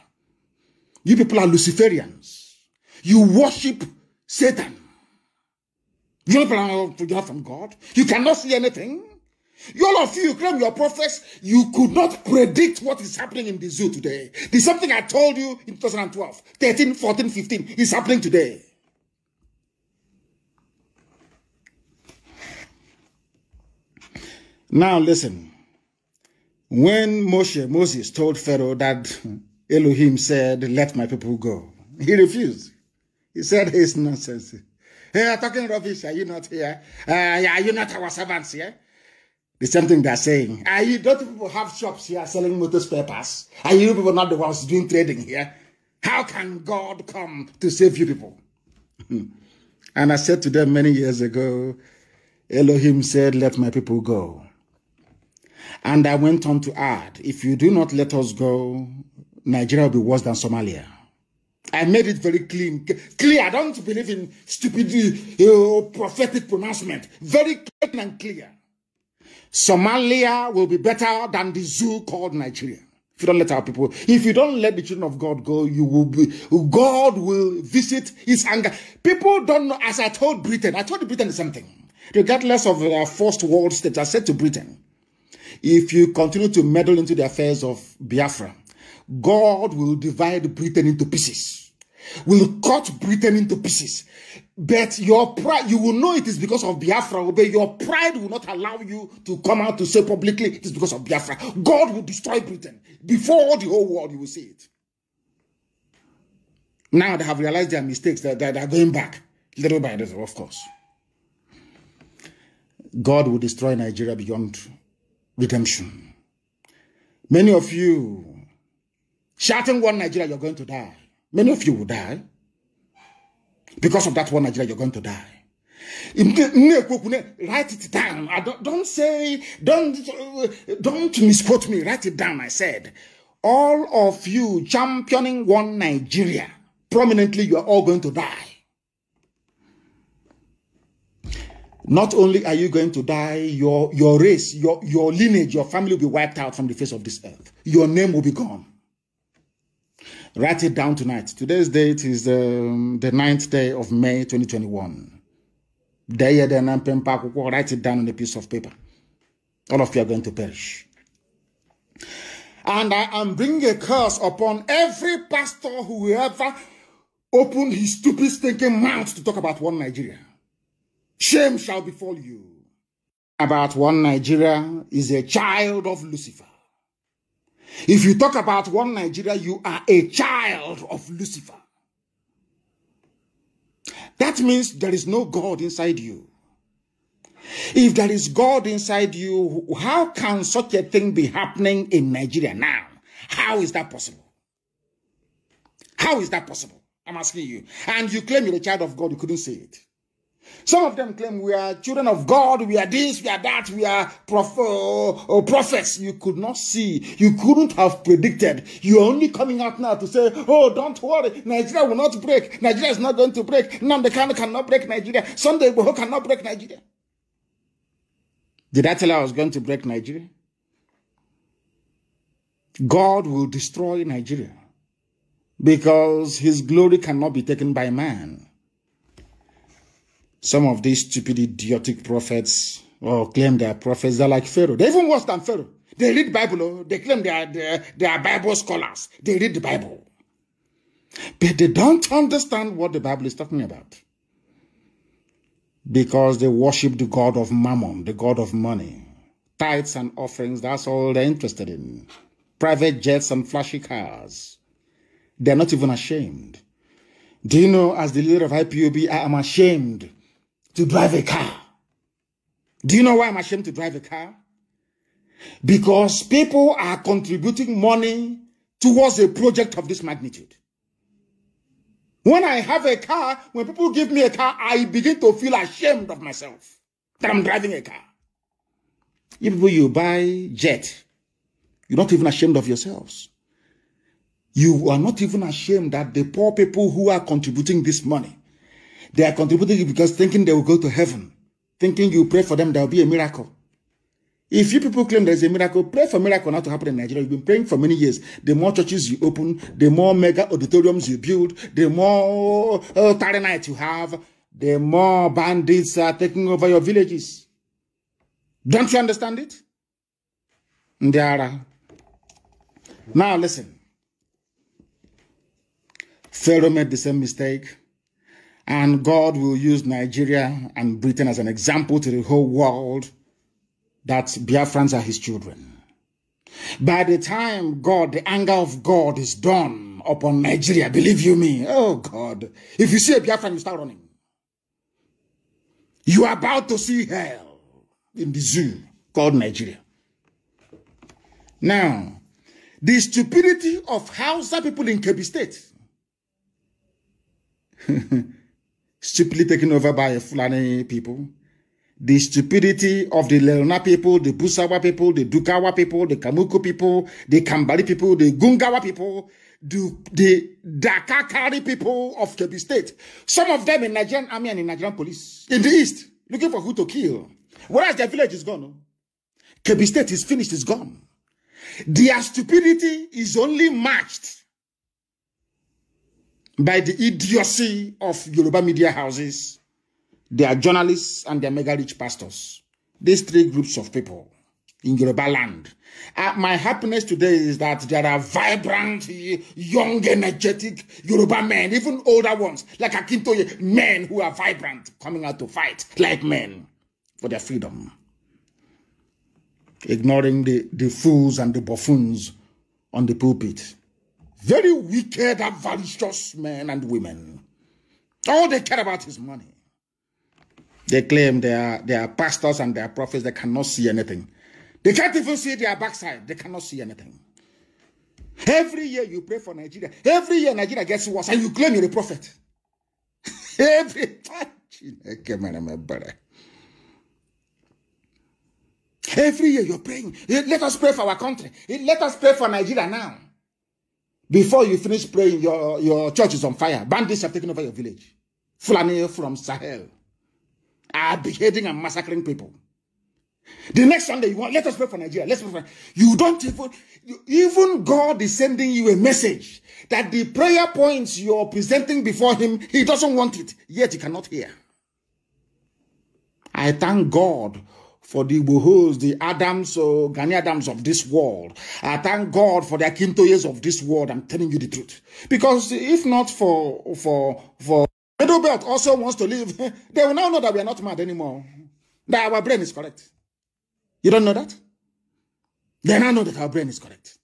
You people are Luciferians. You worship Satan. You don't belong to from God. You cannot see anything. You all of you, claim your prophets, you could not predict what is happening in the zoo today. The something I told you in 2012, 13, 14, 15 is happening today. Now listen. When Moshe, Moses told Pharaoh that Elohim said, let my people go, he refused. He said, it's nonsense. Hey, are talking rubbish. Are you not here? Uh, are you not our servants here? Yeah? The same thing they're saying. Are you, don't people have shops here selling motor spare parts? Are you people not the ones doing trading here? How can God come to save you people? and I said to them many years ago, Elohim said, let my people go. And I went on to add, if you do not let us go, Nigeria will be worse than Somalia. I made it very clean, clear. I don't believe in stupid prophetic pronouncement. Very clear and clear. Somalia will be better than the zoo called Nigeria. If you don't let our people, if you don't let the children of God go, you will be, God will visit his anger. People don't know, as I told Britain, I told Britain the same thing. Regardless of their uh, first world states, I said to Britain, if you continue to meddle into the affairs of Biafra, God will divide Britain into pieces, will cut Britain into pieces. But your pride, you will know it is because of Biafra, but your pride will not allow you to come out to say publicly it is because of Biafra. God will destroy Britain before the whole world. You will see it. Now they have realized their mistakes, that they, they are going back little by little, of course. God will destroy Nigeria beyond redemption. Many of you shouting one Nigeria, you're going to die. Many of you will die. Because of that one Nigeria, you're going to die. Write it down. I don't, don't say, don't, don't misquote me. Write it down. I said, all of you championing one Nigeria, prominently, you are all going to die. Not only are you going to die, your, your race, your, your lineage, your family will be wiped out from the face of this earth. Your name will be gone. Write it down tonight. Today's date is um, the ninth day of May 2021. Day Write it down on a piece of paper. All of you are going to perish. And I am bringing a curse upon every pastor who ever opened his stupid stinking mouth to talk about one Nigeria. Shame shall befall you. About one Nigeria is a child of Lucifer. If you talk about one Nigeria, you are a child of Lucifer. That means there is no God inside you. If there is God inside you, how can such a thing be happening in Nigeria now? How is that possible? How is that possible? I'm asking you. And you claim you're a child of God, you couldn't say it. Some of them claim we are children of God, we are this, we are that, we are prof uh, oh, oh, prophets. You could not see, you couldn't have predicted. You're only coming out now to say, oh, don't worry, Nigeria will not break. Nigeria is not going to break. Namdekano cannot break Nigeria. Sunday Boho cannot break Nigeria. Did I tell you I was going to break Nigeria? God will destroy Nigeria because his glory cannot be taken by man. Some of these stupid, idiotic prophets or claim they are prophets. They're like Pharaoh. They're even worse than Pharaoh. They read Bible. Oh. They claim they are, they are, Bible scholars. They read the Bible. But they don't understand what the Bible is talking about. Because they worship the God of mammon, the God of money. Tithes and offerings, that's all they're interested in. Private jets and flashy cars. They're not even ashamed. Do you know, as the leader of IPUB, I am ashamed to drive a car. Do you know why I'm ashamed to drive a car? Because people are contributing money towards a project of this magnitude. When I have a car, when people give me a car, I begin to feel ashamed of myself that I'm driving a car. Even people, you buy jet, you're not even ashamed of yourselves. You are not even ashamed that the poor people who are contributing this money they are contributing because thinking they will go to heaven, thinking you pray for them, there will be a miracle. If you people claim there's a miracle, pray for miracle not to happen in Nigeria. You've been praying for many years. The more churches you open, the more mega auditoriums you build, the more uh, tarry nights you have, the more bandits are taking over your villages. Don't you understand it? Ndiara. Now listen. Pharaoh made the same mistake. And God will use Nigeria and Britain as an example to the whole world that Biafrans are his children. By the time God, the anger of God is done upon Nigeria, believe you me, oh God, if you see a Biafran, you start running. You are about to see hell in the zoo called Nigeria. Now, the stupidity of Hausa people in Kebbi State stupidly taken over by Fulani people. The stupidity of the Lerona people, the Busawa people, the Dukawa people, the Kamuku people, the Kambali people, the Gungawa people, the, the Dakakari people of Kebbi State. Some of them in Nigerian army and in Nigerian police. In the east, looking for who to kill. Whereas their village is gone. No? Oh. Kebbi State is finished, It's gone. Their stupidity is only matched by the idiocy of Yoruba media houses, their journalists, and their mega rich pastors. These three groups of people in Yoruba land. Uh, my happiness today is that there are vibrant, young, energetic Yoruba men, even older ones, like Akintoye, men who are vibrant, coming out to fight like men for their freedom. Ignoring the, the fools and the buffoons on the pulpit very wicked, avaricious men and women. All they care about is money. They claim they are, they are pastors and they are prophets. They cannot see anything. They can't even see their backside. They cannot see anything. Every year you pray for Nigeria. Every year Nigeria gets worse and you claim you're a prophet. Every time. Every year you're praying. Let us pray for our country. Let us pray for Nigeria now. Before you finish praying, your, your church is on fire. Bandits have taken over your village. Fulani from Sahel are beheading and massacring people. The next Sunday, you want, let us pray for Nigeria. Let's pray for You don't even, you, even God is sending you a message that the prayer points you're presenting before Him, He doesn't want it, yet He cannot hear. I thank God for the Igbohos, the Adams, uh, Ghani Adams of this world. I thank God for the Akintoyes of this world. I'm telling you the truth. Because if not for, for, for Middle also wants to leave, they will now know that we are not mad anymore. That our brain is correct. You don't know that? They now know that our brain is correct.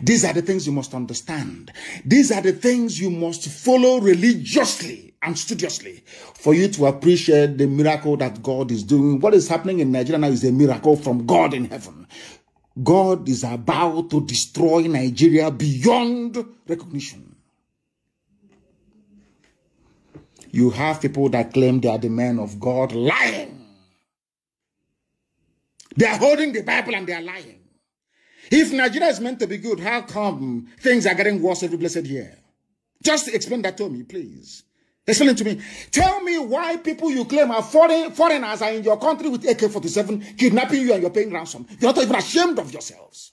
These are the things you must understand. These are the things you must follow religiously and studiously for you to appreciate the miracle that God is doing. What is happening in Nigeria now is a miracle from God in heaven. God is about to destroy Nigeria beyond recognition. You have people that claim they are the men of God lying. They are holding the Bible and they are lying. If Nigeria is meant to be good, how come things are getting worse every blessed year? Just explain that to me, please. Explain it to me. Tell me why people you claim are foreign, foreigners are in your country with AK-47 kidnapping you and you're paying ransom. You're not even ashamed of yourselves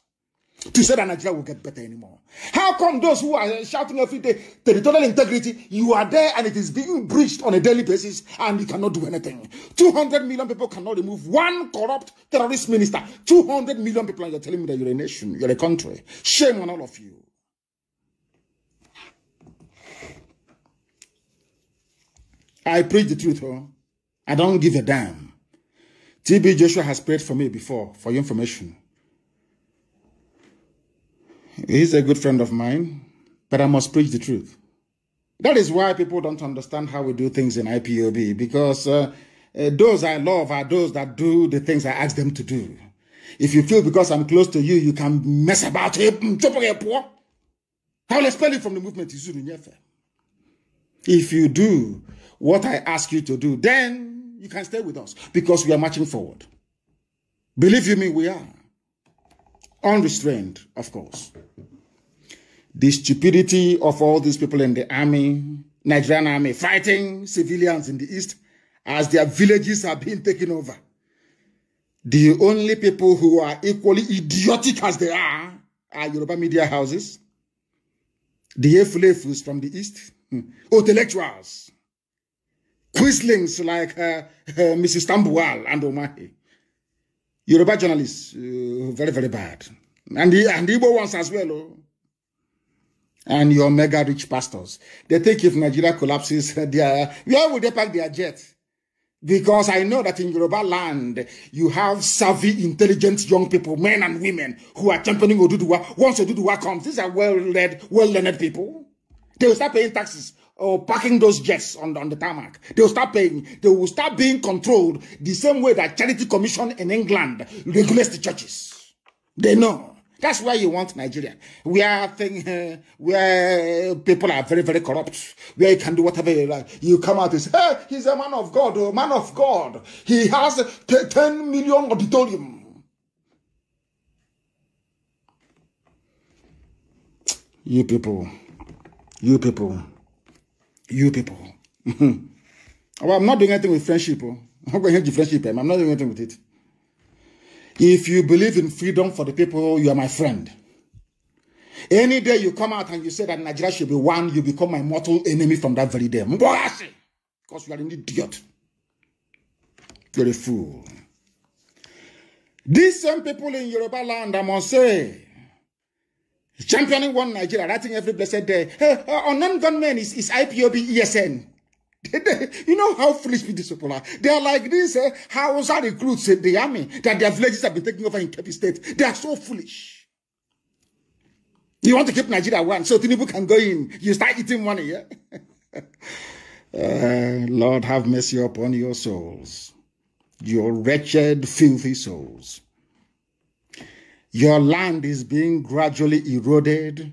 to say that Nigeria will get better anymore. How come those who are shouting every day territorial integrity, you are there and it is being breached on a daily basis and you cannot do anything? 200 million people cannot remove one corrupt terrorist minister. 200 million people and you're telling me that you're a nation, you're a country. Shame on all of you. I preach the truth, huh? I don't give a damn. TB Joshua has prayed for me before, for your information. He's a good friend of mine, but I must preach the truth. That is why people don't understand how we do things in IPOB because uh, uh, those I love are those that do the things I ask them to do. If you feel because I'm close to you, you can mess about. Mm, I will expel you from the movement. If you do what I ask you to do, then you can stay with us because we are marching forward. Believe you me, we are unrestrained, of course. The stupidity of all these people in the army, Nigerian army, fighting civilians in the east as their villages are being taken over. The only people who are equally idiotic as they are are Yoruba media houses, the Efulefus from the east, hmm, intellectuals, quislings like uh, uh, Mrs. Tambuwal and Omahe Yoruba journalists, uh, very, very bad. And the, and the Igbo ones as well. Oh. And your mega rich pastors. They think if Nigeria collapses, they are, where would they pack their jet? Because I know that in Yoruba land, you have savvy, intelligent young people, men and women, who are championing Oduduwa. Once Oduduwa comes, these are well-led, well-learned people. They will start paying taxes or oh, parking those jets on, on the tarmac. They will start paying. They will start being controlled the same way that Charity Commission in England regulates the churches. They know. That's why you want Nigeria, are thing, uh, where people are very, very corrupt, where you can do whatever you like. You come out and say, hey, he's a man of God, a oh, man of God. He has 10 million auditorium. You people, you people. you people. Hmm. well, I'm not doing anything with friendship. Oh. I'm going to friendship. Eh, I'm not doing anything with it. If you believe in freedom for the people, you are my friend. Any day you come out and you say that Nigeria should be one, you become my mortal enemy from that very day. Because you are an idiot. You're a fool. These same people in Yoruba land, I must say, championing one Nigeria, writing every blessed day. Hey, uh, non-gunmen is, is IPOB ESN. you know how foolish people are. They are like this uh, Hausa recruits in eh, the army that their villages have been taken over in Kebbi State. They are so foolish. You want to keep Nigeria one so Tinubu can go in. You start eating money, yeah? uh, Lord, have mercy upon your souls, your wretched, filthy souls. Your land is being gradually eroded,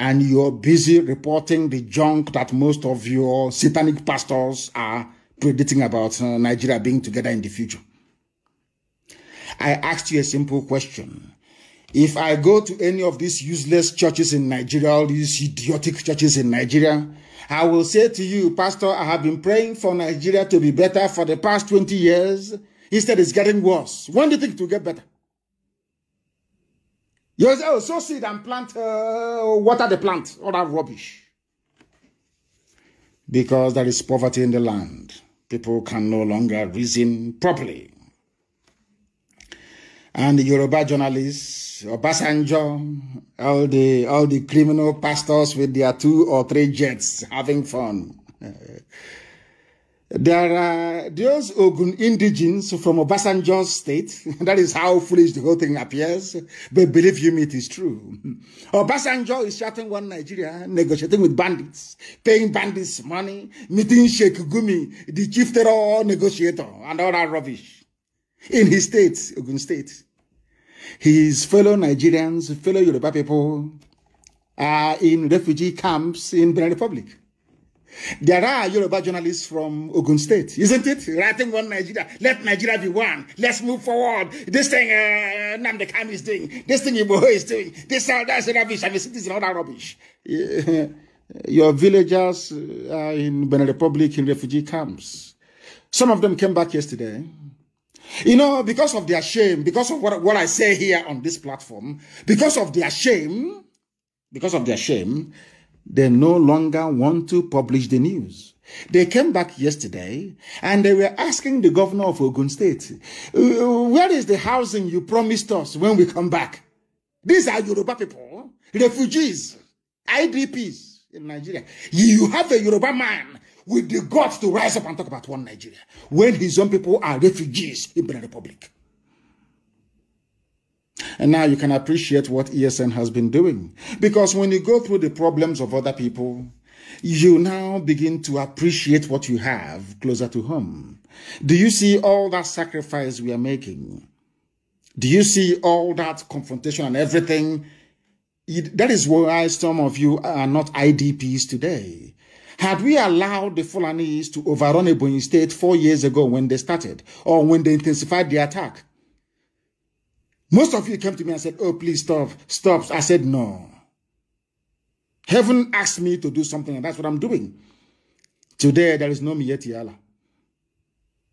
and you're busy reporting the junk that most of your satanic pastors are predicting about uh, Nigeria being together in the future. I asked you a simple question. If I go to any of these useless churches in Nigeria, all these idiotic churches in Nigeria, I will say to you, Pastor, I have been praying for Nigeria to be better for the past 20 years. Instead, it's getting worse. When do you think it will get better? You oh, sow seed and plant, uh, water the plant, all that rubbish. Because there is poverty in the land. People can no longer reason properly. And the Yoruba journalists, Obasanjo, all the, all the criminal pastors with their two or three jets having fun. There are those Ogun indigenes from Obasanjo's state. that is how foolish the whole thing appears. But believe you me, it is true. Obasanjo is chatting one Nigeria, negotiating with bandits, paying bandits money, meeting Sheikh Gumi, the chief terror negotiator, and all that rubbish. In his state, Ogun state, his fellow Nigerians, fellow Yoruba people are in refugee camps in Benin Republic. There are Yoruba journalists from Ogun State, isn't it? Writing one Nigeria. Let Nigeria be one. Let's move forward. This thing uh, Namdekam is doing. This thing Iboho is doing. This all uh, that's rubbish. I'm a citizen, all that rubbish. Your villagers are uh, in Benin Republic in refugee camps. Some of them came back yesterday. You know, because of their shame, because of what, what I say here on this platform, because of their shame, because of their shame, they no longer want to publish the news. They came back yesterday and they were asking the governor of Ogun State, uh, where is the housing you promised us when we come back? These are Yoruba people, refugees, IDPs in Nigeria. You have a Yoruba man with the guts to rise up and talk about one Nigeria when his own people are refugees in the Republic. And now you can appreciate what ESN has been doing. Because when you go through the problems of other people, you now begin to appreciate what you have closer to home. Do you see all that sacrifice we are making? Do you see all that confrontation and everything? That is why some of you are not IDPs today. Had we allowed the Fulanis to overrun Ebony State four years ago when they started or when they intensified the attack, most of you came to me and said, oh, please stop, stop. I said, no. Heaven asked me to do something, and that's what I'm doing. Today, there is no Mieti Allah.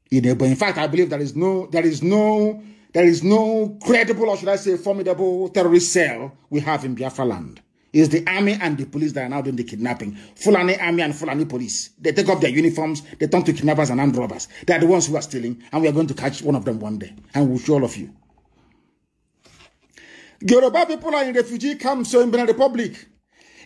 In fact, I believe there is no, there is no, there is no credible, or should I say, formidable terrorist cell we have in Biafra land. It's the army and the police that are now doing the kidnapping. Fulani army and Fulani police. They take off their uniforms, they turn to kidnappers and armed robbers. They are the ones who are stealing, and we are going to catch one of them one day. And we'll show all of you. Yoruba people are in refugee camps in Benin Republic.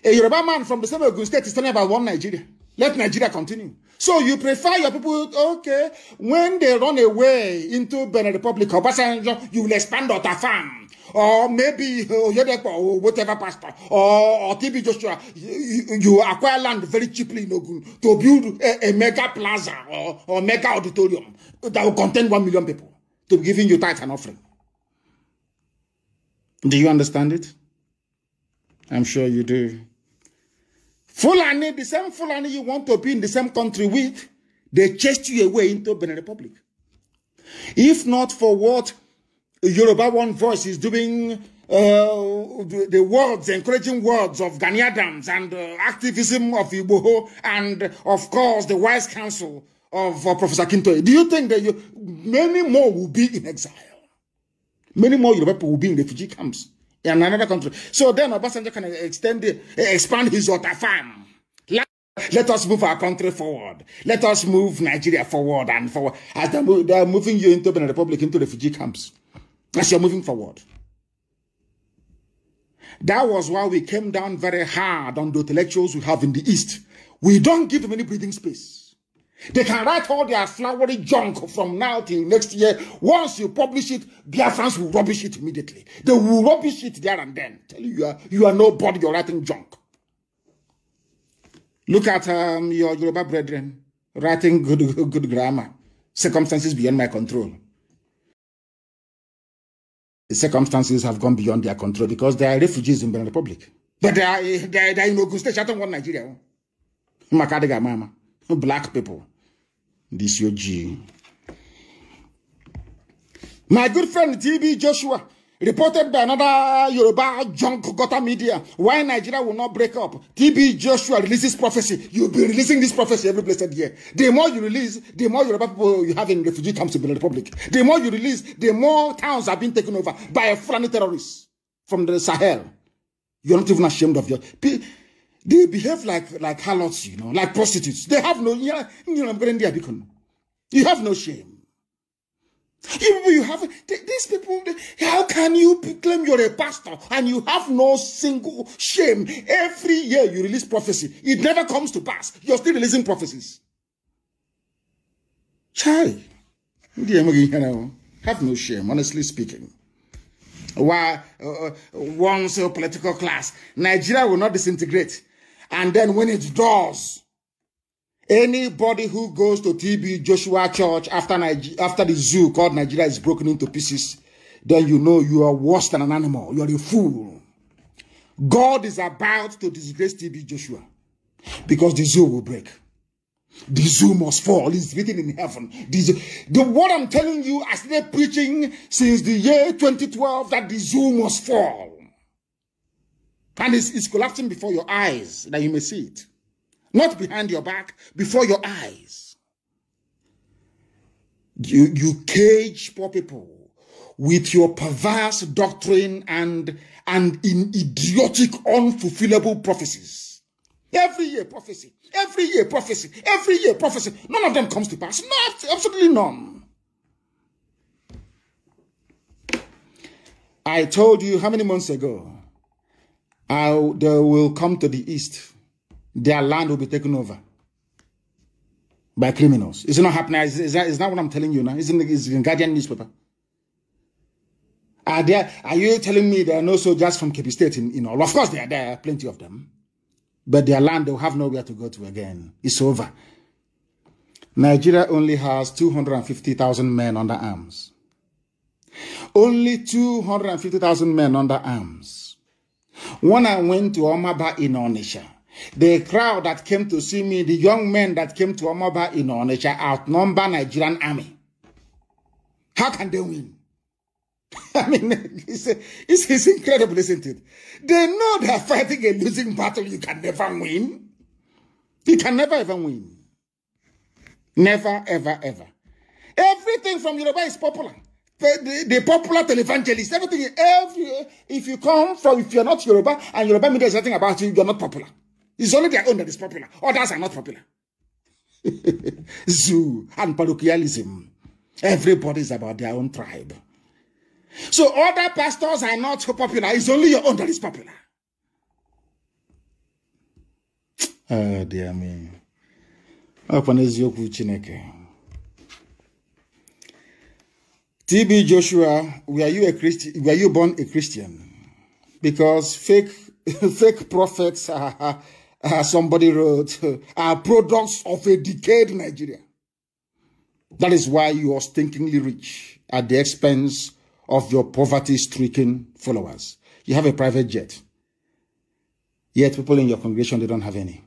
A Yoruba man from the same Ogun state is telling about one Nigeria. Let Nigeria continue. So you prefer your people, okay, when they run away into Benin Republic or Basanjo, you will expand Ota farm. Or maybe Oyedepo oh, uh, oh, or whatever pastor. Or, or TB Joshua. You, you acquire land very cheaply in Ogun to build a, a mega plaza or, or mega auditorium that will contain one million people to be giving you tithe and offering. Do you understand it? I'm sure you do. Fulani, the same Fulani you want to be in the same country with, they chased you away into Benin Republic. If not for what Yoruba One Voice is doing, uh, the, words, encouraging words of Gani and uh, activism of Igboho and, of course, the wise counsel of uh, Professor Kintoye, do you think that you, many more will be in exile? Many more Yoruba people will be in refugee camps in another country. So then Obasanjo can extend, expand his water farm. Let, us move our country forward. Let us move Nigeria forward and forward. As they they are moving you into the Republic, into refugee camps. As you're moving forward. That was why we came down very hard on the intellectuals we have in the East. We don't give them any breathing space. They can write all their flowery junk from now till next year. Once you publish it, their fans will rubbish it immediately. They will rubbish it there and then. Tell you, you are, you are nobody, you're writing junk. Look at um, your Yoruba brethren writing good, good grammar. Circumstances beyond my control. The circumstances have gone beyond their control because they are refugees in Benin Republic. But they are, they are, they are in Ogun State, Chatham, Nigeria. Nigeria. mama, black people. This your G. My good friend TB Joshua, reported by another Yoruba junk gutter media, why Nigeria will not break up. TB Joshua releases prophecy. You'll be releasing this prophecy every blessed year. The more you release, the more Yoruba people you have in refugee camps in the Republic. The more you release, the more towns are being taken over by a Fulani terrorist from the Sahel. You're not even ashamed of your... They behave like like harlots, you know, like prostitutes. They have no, you know, I'm going there, You have no shame. You, you have these people. How can you claim you're a pastor and you have no single shame? Every year you release prophecy, it never comes to pass. You're still releasing prophecies. Chai, have no shame. Honestly speaking, Why uh, uh, once a political class, Nigeria will not disintegrate and then when it does, anybody who goes to TB Joshua Church after, Niger after the zoo called Nigeria is broken into pieces, then you know you are worse than an animal. You are a fool. God is about to disgrace TB Joshua because the zoo will break. The zoo must fall. It's written in heaven. The, the what I'm telling you, I been preaching since the year 2012 that the zoo must fall. And it's, it's collapsing before your eyes that you may see it. Not behind your back, before your eyes. You, you cage poor people with your perverse doctrine and, and in idiotic, unfulfillable prophecies. Every year prophecy, every year prophecy, every year prophecy. None of them comes to pass. Not, absolutely none. I told you how many months ago how they will come to the east. Their land will be taken over by criminals. it not happening. Is that what I'm telling you now. Is in, the, it's in Guardian newspaper. Are there? Are you telling me there are no soldiers from Kepi State in, in all? Of course, there are, there are plenty of them, but their land they will have nowhere to go to again. It's over. Nigeria only has 250,000 men under arms. Only 250,000 men under arms. When I went to Omaba in Onisha, the crowd that came to see me, the young men that came to Omaba in Onisha outnumber Nigerian army. How can they win? I mean, it's, it's, it's incredible, isn't it? They know they're fighting a losing battle you can never win. You can never ever win. Never, ever, ever. Everything from Yoruba is popular the, the popular televangelist, everything. Every, if you come from, if you're not Yoruba and Yoruba media is nothing about you, you're not popular. It's only their own that is popular. Others are not popular. Zoo and parochialism. Everybody's about their own tribe. So other pastors are not popular. It's only your own that is popular. Oh, dear me. Open is your chineke. TB Joshua, were you a Christian? Were you born a Christian? Because fake fake prophets somebody wrote are products of a decayed Nigeria. That is why you are stinkingly rich at the expense of your poverty-stricken followers. You have a private jet. Yet people in your congregation, they don't have any.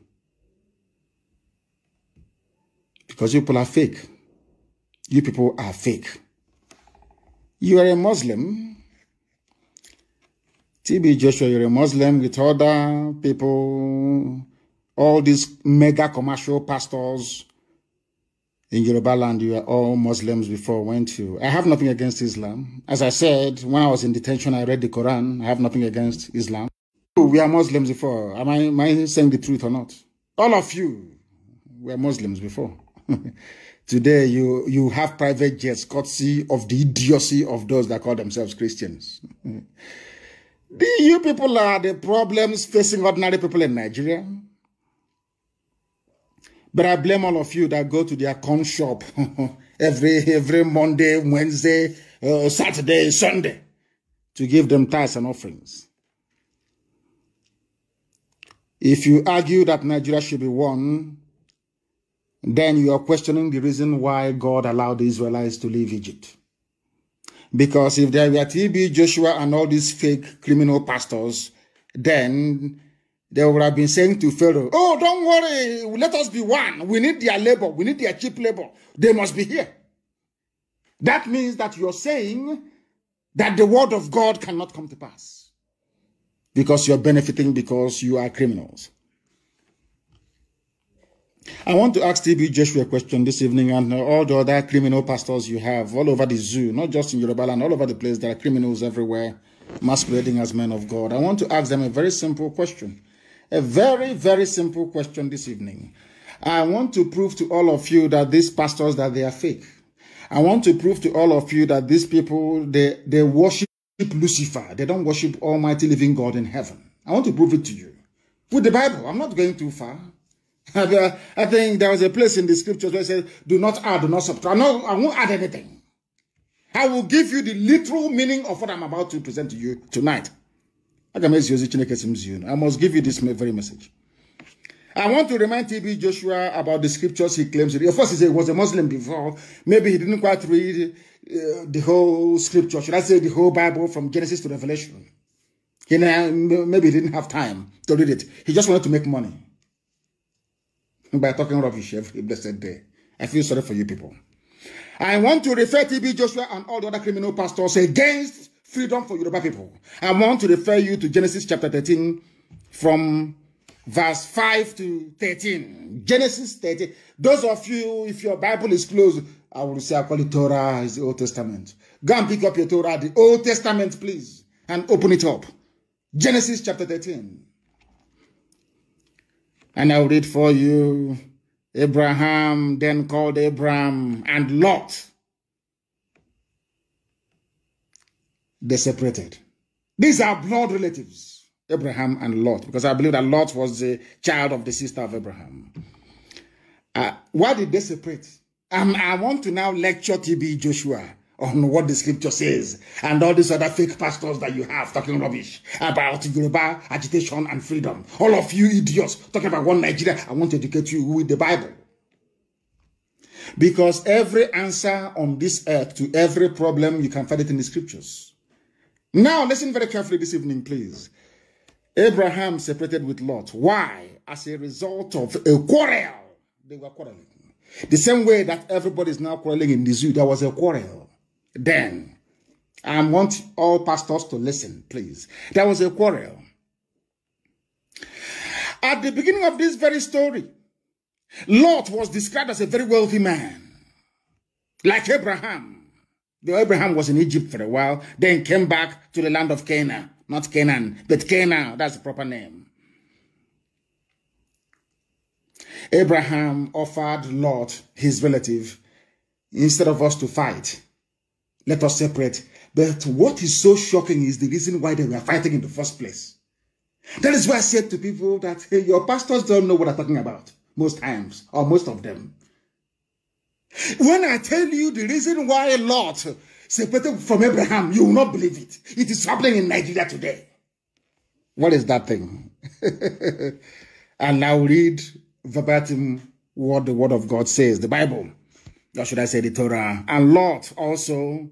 Because you people are fake. You people are fake. You are a Muslim. TB Joshua, you're a Muslim with other people, all these mega commercial pastors in Yoruba land, you are all Muslims before I went to. I have nothing against Islam. As I said, when I was in detention, I read the Quran. I have nothing against Islam. We are Muslims before. Am I, am I saying the truth or not? All of you were Muslims before. Today, you, you have private jets courtesy of the idiocy of those that call themselves Christians. the, you people are the problems facing ordinary people in Nigeria. But I blame all of you that go to their con shop every, every Monday, Wednesday, uh, Saturday, Sunday to give them tithes and offerings. If you argue that Nigeria should be one, then you are questioning the reason why God allowed the Israelites to leave Egypt. Because if there were TB, Joshua, and all these fake criminal pastors, then they would have been saying to Pharaoh, Oh, don't worry, let us be one. We need their labor, we need their cheap labor. They must be here. That means that you're saying that the word of God cannot come to pass because you're benefiting because you are criminals. I want to ask TB Joshua a question this evening and all the other criminal pastors you have all over the zoo, not just in Yoruba and all over the place. There are criminals everywhere masquerading as men of God. I want to ask them a very simple question. A very, very simple question this evening. I want to prove to all of you that these pastors, that they are fake. I want to prove to all of you that these people, they, they worship Lucifer. They don't worship Almighty Living God in heaven. I want to prove it to you. With the Bible, I'm not going too far. Uh, I think there was a place in the scriptures where it says, do not add, do not subtract. No, I won't add anything. I will give you the literal meaning of what I'm about to present to you tonight. I must give you this very message. I want to remind TB Joshua about the scriptures he claims. Of course, he was a Muslim before. Maybe he didn't quite read uh, the whole scripture. Should I say the whole Bible from Genesis to Revelation? He, maybe he didn't have time to read it. He just wanted to make money by talking rubbish every blessed day. I feel sorry for you people. I want to refer T.B. Joshua and all the other criminal pastors against freedom for Yoruba people. I want to refer you to Genesis chapter 13 from verse 5 to 13. Genesis 13. Those of you, if your Bible is closed, I will say I call it Torah, is the Old Testament. Go and pick up your Torah, the Old Testament, please, and open it up. Genesis chapter 13. And I'll read for you. Abraham then called Abram and Lot. They separated. These are blood relatives, Abraham and Lot, because I believe that Lot was the child of the sister of Abraham. Uh, why did they separate? Um, I want to now lecture TB Joshua on what the scripture says and all these other fake pastors that you have talking rubbish about Yoruba agitation and freedom. All of you idiots talking about one Nigeria. I want to educate you with the Bible. Because every answer on this earth to every problem, you can find it in the scriptures. Now, listen very carefully this evening, please. Abraham separated with Lot. Why? As a result of a quarrel. They were quarreling. The same way that everybody is now quarreling in the zoo, there was a quarrel then. I want all pastors to listen, please. There was a quarrel. At the beginning of this very story, Lot was described as a very wealthy man, like Abraham. Though Abraham was in Egypt for a while, then came back to the land of Canaan. Not Canaan, but Canaan, that's the proper name. Abraham offered Lot, his relative, instead of us to fight, let us separate. But what is so shocking is the reason why they were fighting in the first place. That is why I said to people that hey, your pastors don't know what I'm talking about most times, or most of them. When I tell you the reason why Lot separated from Abraham, you will not believe it. It is happening in Nigeria today. What is that thing? and now read verbatim what the Word of God says, the Bible, or should I say the Torah. And Lot also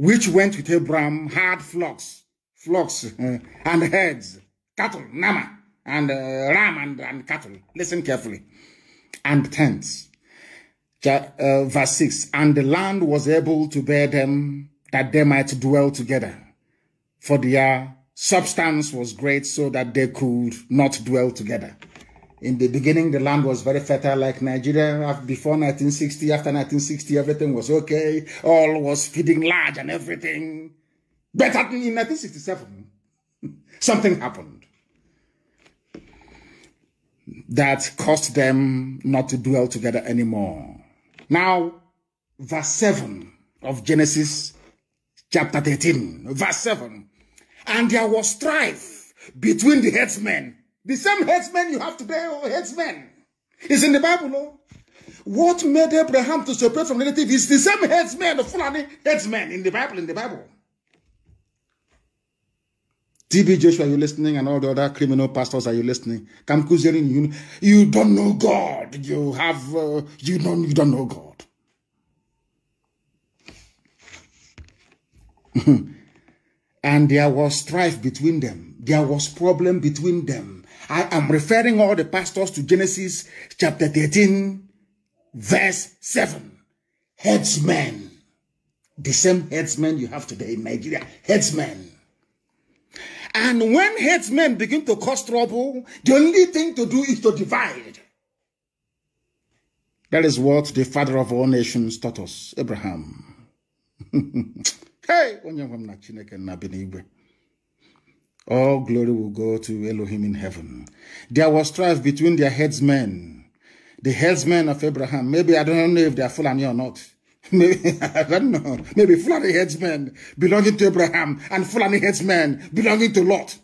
which went with Abraham, had flocks, flocks and herds, cattle, nama, and uh, ram and, and cattle. Listen carefully. And tents. Uh, verse 6. And the land was able to bear them that they might dwell together. For their substance was great so that they could not dwell together in the beginning, the land was very fertile, like Nigeria before 1960. After 1960, everything was okay. All was feeding large and everything. But in 1967, something happened that caused them not to dwell together anymore. Now, verse 7 of Genesis chapter 13, verse 7. And there was strife between the headsmen the same headsman you have today, or oh, headsman, is in the Bible, no? What made Abraham to separate from relative is the same headsman, the Fulani headsman in the Bible, in the Bible. TB Joshua, are you listening? And all the other criminal pastors, are you listening? Kam you, you don't know God. You have, uh, you, don't, you don't know God. and there was strife between them. There was problem between them. I am referring all the pastors to Genesis chapter 13, verse 7. Headsmen. The same headsmen you have today in Nigeria. Headsmen. And when headsmen begin to cause trouble, the only thing to do is to divide. That is what the father of all nations taught us, Abraham. hey, all glory will go to Elohim in heaven. There was strife between their headsmen, the headsmen of Abraham. Maybe I don't know if they are Fulani or not. Maybe, I don't know. Maybe Fulani headsmen belonging to Abraham and Fulani headsmen belonging to Lot.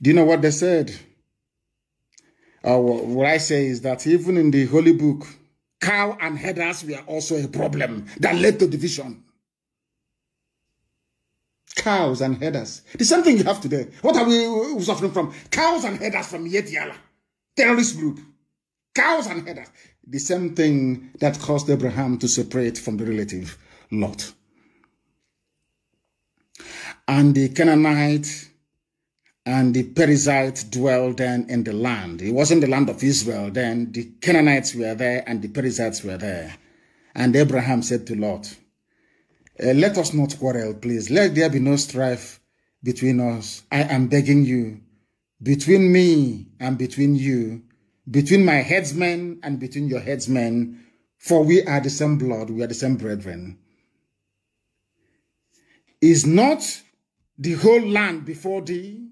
Do you know what they said? Uh, what I say is that even in the Holy Book, cow and headers were also a problem that led to division. Cows and headers. The same thing you have today. What are we suffering from? Cows and headers from Yetiala. Terrorist group. Cows and headers. The same thing that caused Abraham to separate from the relative Lot. And the Canaanite and the Perizzite dwelled then in the land. It wasn't the land of Israel then. The Canaanites were there and the Perizzites were there. And Abraham said to Lot, uh, let us not quarrel, please. Let there be no strife between us. I am begging you, between me and between you, between my headsmen and between your headsmen, for we are the same blood, we are the same brethren. Is not the whole land before thee?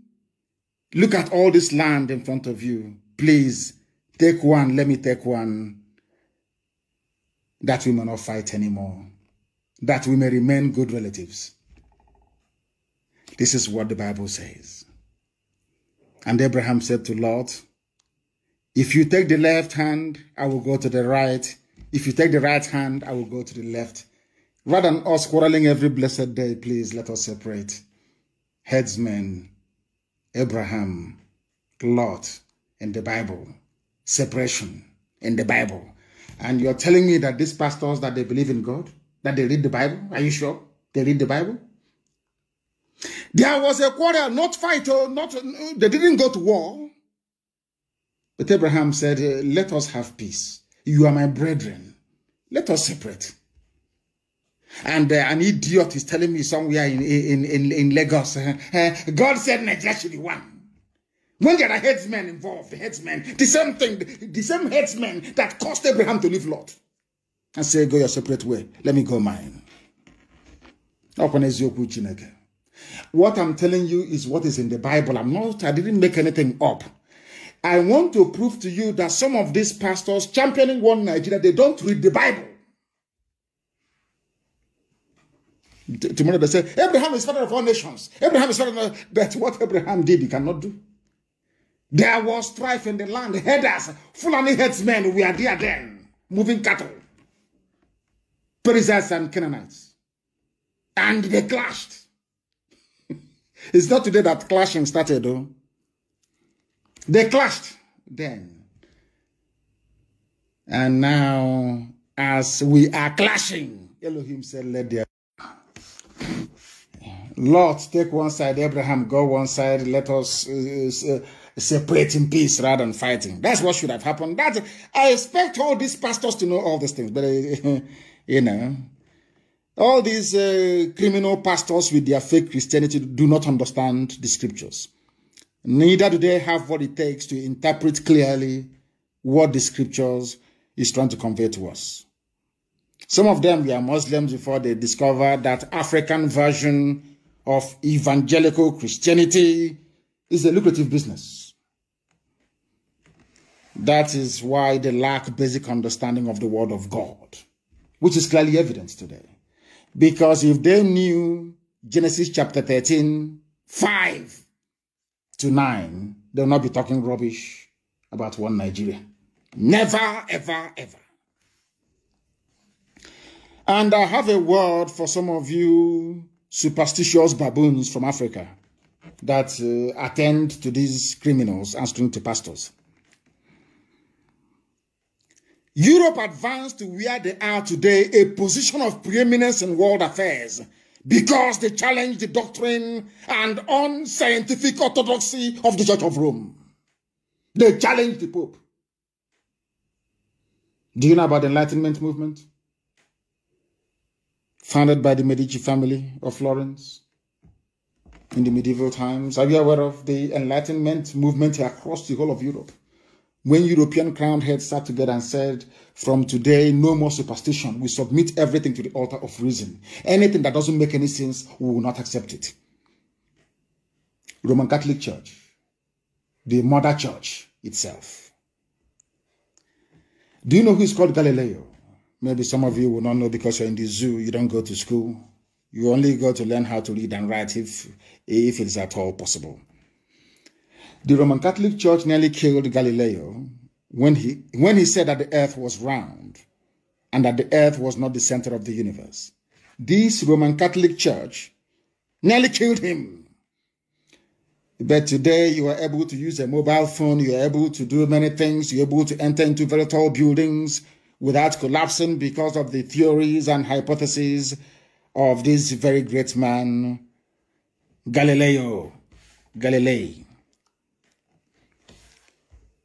Look at all this land in front of you. Please take one, let me take one, that we may not fight anymore that we may remain good relatives. This is what the Bible says. And Abraham said to Lot, If you take the left hand, I will go to the right. If you take the right hand, I will go to the left. Rather than us quarreling every blessed day, please let us separate. Headsmen, Abraham, Lot, and the Bible. Separation in the Bible. And you're telling me that these pastors that they believe in God? that they read the Bible? Are you sure they read the Bible? There was a quarrel, not fight, or oh, not. They didn't go to war. But Abraham said, eh, "Let us have peace. You are my brethren. Let us separate." And uh, an idiot is telling me somewhere in in in, in Lagos, uh, uh, God said Nigeria should be one. When there are headsmen involved, headsmen, the same thing, the, the same headsmen that caused Abraham to leave Lot. I say, go your separate way. Let me go mine. What I'm telling you is what is in the Bible. I'm not, I didn't make anything up. I want to prove to you that some of these pastors championing one Nigeria, they don't read the Bible. Tomorrow they say, Abraham is father of all nations. Abraham is father of but what Abraham did, he cannot do. There was strife in the land. Headers, Fulani headsmen, we are there then, moving cattle. Perizzites and Canaanites. And they clashed. it's not today that clashing started, though. They clashed then. And now, as we are clashing, Elohim said, let there Lord, take one side, Abraham, go one side, let us uh, uh, separate in peace rather than fighting. That's what should have happened. That I expect all these pastors to know all these things, but uh, You know, all these uh, criminal pastors with their fake Christianity do not understand the scriptures. Neither do they have what it takes to interpret clearly what the scriptures is trying to convey to us. Some of them were Muslims before they discovered that African version of evangelical Christianity is a lucrative business. That is why they lack basic understanding of the word of God which is clearly evident today. Because if they knew Genesis chapter 13, 5 to 9, they'll not be talking rubbish about one Nigeria. Never, ever, ever. And I have a word for some of you superstitious baboons from Africa that uh, attend to these criminals answering to pastors. Europe advanced to where they are today, a position of preeminence in world affairs, because they challenged the doctrine and unscientific orthodoxy of the Church of Rome. They challenged the Pope. Do you know about the Enlightenment movement? Founded by the Medici family of Florence in the medieval times. Are you aware of the Enlightenment movement across the whole of Europe? when European crowned heads sat together and said, from today, no more superstition. We submit everything to the altar of reason. Anything that doesn't make any sense, we will not accept it. Roman Catholic Church, the mother church itself. Do you know who is called Galileo? Maybe some of you will not know because you're in the zoo, you don't go to school. You only go to learn how to read and write if, if it's at all possible. The Roman Catholic Church nearly killed Galileo when he, when he said that the earth was round and that the earth was not the center of the universe. This Roman Catholic Church nearly killed him. But today you are able to use a mobile phone, you are able to do many things, you're able to enter into very tall buildings without collapsing because of the theories and hypotheses of this very great man, Galileo Galilei.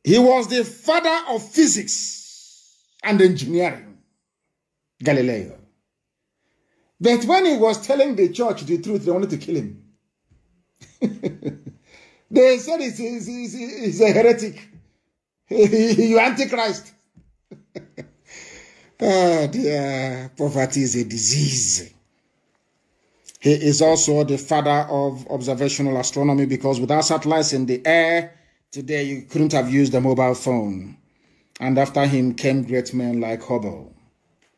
He was the father of physics and engineering, Galileo. But when he was telling the church the truth, they wanted to kill him. they said he's, he's, he's, he's a heretic. you antichrist. oh dear, poverty is a disease. He is also the father of observational astronomy because without satellites in the air, Today you couldn't have used a mobile phone. And after him came great men like Hubble.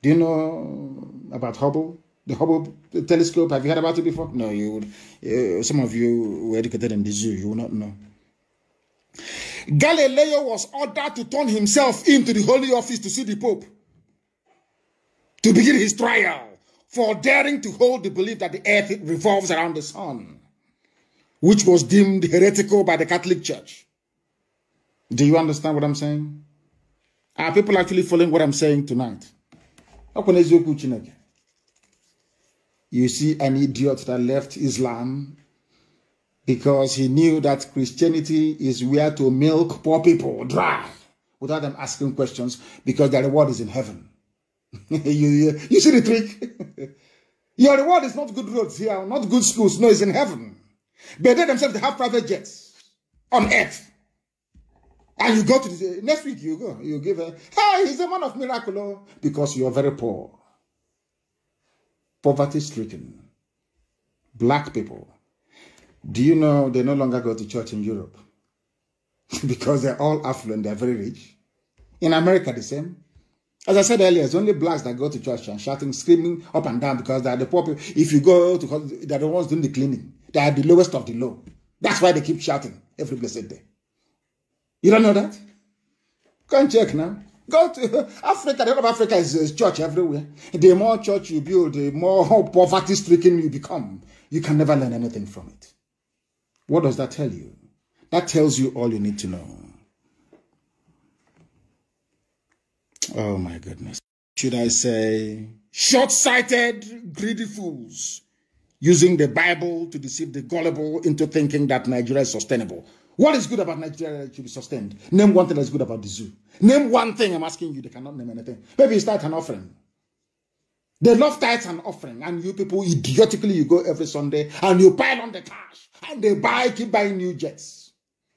Do you know about Hubble? The Hubble telescope, have you heard about it before? No, you would. Uh, some of you were educated in the zoo, you will not know. Galileo was ordered to turn himself into the Holy Office to see the Pope to begin his trial for daring to hold the belief that the earth revolves around the sun, which was deemed heretical by the Catholic Church. Do you understand what I'm saying? Are people actually following what I'm saying tonight? You see an idiot that left Islam because he knew that Christianity is where to milk poor people dry without them asking questions because their reward is in heaven. you, you, you see the trick? Your reward is not good roads here, not good schools. No, it's in heaven. But they themselves they have private jets on earth. And you go to the next week, you go, you give her, hey, he's a man of miracle, oh, because you're very poor, poverty stricken, black people. Do you know they no longer go to church in Europe? because they're all affluent, they're very rich. In America, the same. As I said earlier, it's only blacks that go to church and shouting, screaming up and down because they are the poor people. If you go to, they're the ones doing the cleaning. They are the lowest of the low. That's why they keep shouting every blessed day. You don't know that? Go and check now. Go to Africa. The whole of Africa is, a church everywhere. The more church you build, the more poverty stricken you become. You can never learn anything from it. What does that tell you? That tells you all you need to know. Oh my goodness. Should I say short sighted, greedy fools using the Bible to deceive the gullible into thinking that Nigeria is sustainable? What is good about Nigeria that should be sustained? Name one thing that's good about the zoo. Name one thing I'm asking you. They cannot name anything. Maybe it's tithe and offering. They love tithes and offering. And you people, idiotically, you go every Sunday and you pile on the cash. And they buy, keep buying new jets.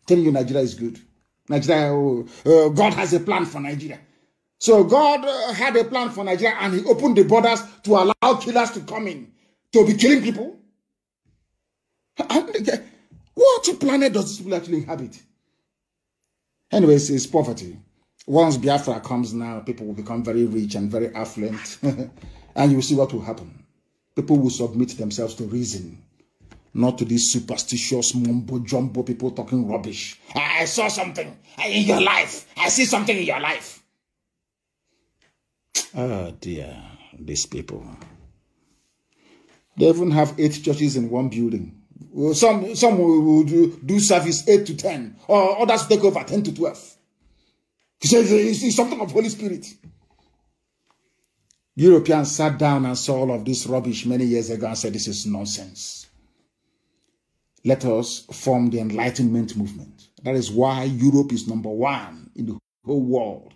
Telling you Nigeria is good. Nigeria, uh, God has a plan for Nigeria. So God uh, had a plan for Nigeria and he opened the borders to allow killers to come in. To be killing people. And, what planet does this people actually inhabit? Anyways, it's poverty. Once Biafra comes now, people will become very rich and very affluent. and you will see what will happen. People will submit themselves to reason, not to these superstitious mumbo-jumbo people talking rubbish. I saw something in your life. I see something in your life. Oh, dear, these people. They even have eight churches in one building. Some, some will do, do service 8 to 10, or others take over 10 to 12. He says it's something of Holy Spirit. Europeans sat down and saw all of this rubbish many years ago and said, This is nonsense. Let us form the Enlightenment movement. That is why Europe is number one in the whole world.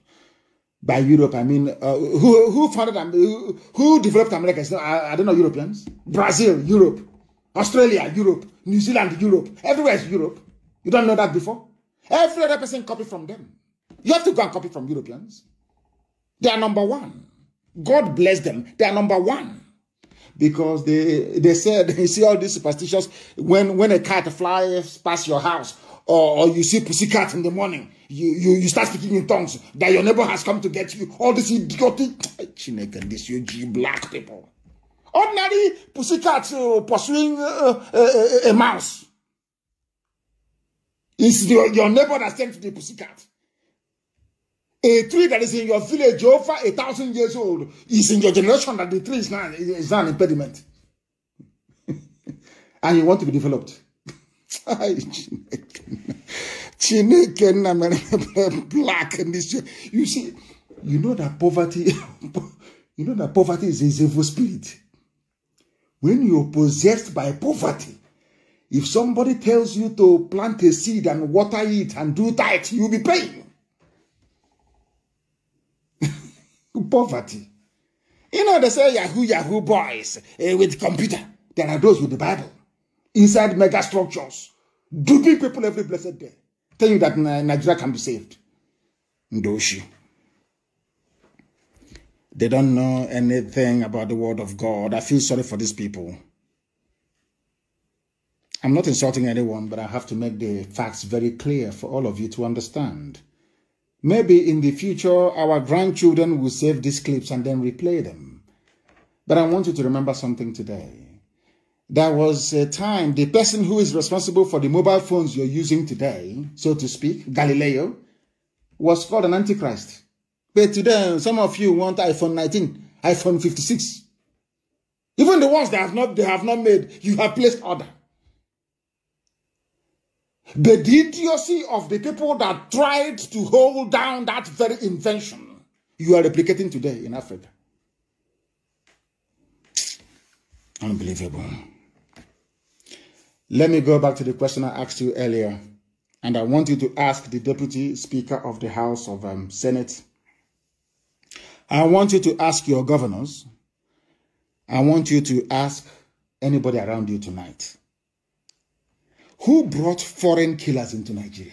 By Europe, I mean, uh, who, who founded, who, who developed America? I, I don't know, Europeans. Brazil, Europe. Australia, Europe, New Zealand, Europe. Everywhere is Europe. You don't know that before? Every other person copy from them. You have to go and copy from Europeans. They are number one. God bless them. They are number one. Because they they said you see all these superstitions when when a cat flies past your house or, or you see pussy cat in the morning, you, you you start speaking in tongues that your neighbor has come to get you. All this idiotic this you black people. Ordinary pussycat uh, pursuing uh, a, uh, a, uh, a, mouse. It's the, your neighbor that sent the pussycat. A tree that is in your village over a thousand years old is in your generation that the tree is not, is not an impediment. and you want to be developed. black in this. You see, you know that poverty, you know that poverty is, is evil spirit. when you're possessed by poverty, if somebody tells you to plant a seed and water it and do that, you'll be paying. poverty. You know, they say Yahoo, Yahoo boys eh, with computer. There are those with the Bible inside mega structures, duping people every blessed day, Tell you that Nigeria can be saved. Ndoshi. They don't know anything about the word of God. I feel sorry for these people. I'm not insulting anyone, but I have to make the facts very clear for all of you to understand. Maybe in the future, our grandchildren will save these clips and then replay them. But I want you to remember something today. There was a time the person who is responsible for the mobile phones you're using today, so to speak, Galileo, was called an antichrist. But today, some of you want iPhone 19, iPhone 56. Even the ones that have not, they have not made, you have placed order. But the idiocy of the people that tried to hold down that very invention, you are replicating today in Africa. Unbelievable. Let me go back to the question I asked you earlier. And I want you to ask the Deputy Speaker of the House of um, Senate I want you to ask your governors. I want you to ask anybody around you tonight. Who brought foreign killers into Nigeria?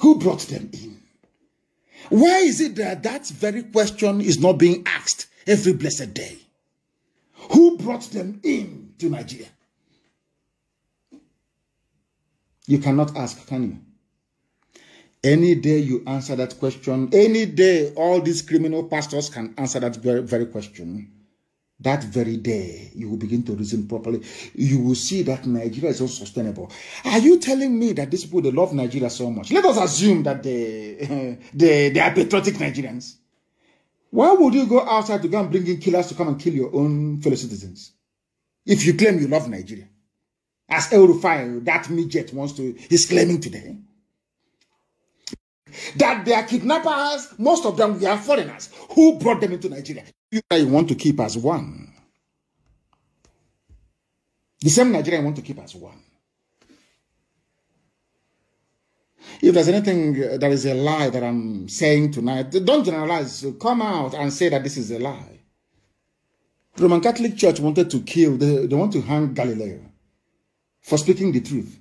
Who brought them in? Why is it that that very question is not being asked every blessed day? Who brought them in to Nigeria? You cannot ask, can you? Any day you answer that question, any day all these criminal pastors can answer that very, very question. That very day, you will begin to reason properly. You will see that Nigeria is unsustainable. Are you telling me that these people they love Nigeria so much? Let us assume that they they, they are patriotic Nigerians. Why would you go outside to go and bring in killers to come and kill your own fellow citizens? If you claim you love Nigeria, as El Rufai, that midget wants to, he's claiming today that their kidnappers, most of them were foreigners who brought them into Nigeria. You, want to keep as one. The same Nigeria want to keep as one. If there's anything uh, that is a lie that I'm saying tonight, don't generalize. Come out and say that this is a lie. Roman Catholic Church wanted to kill, they, they want to hang Galileo for speaking the truth.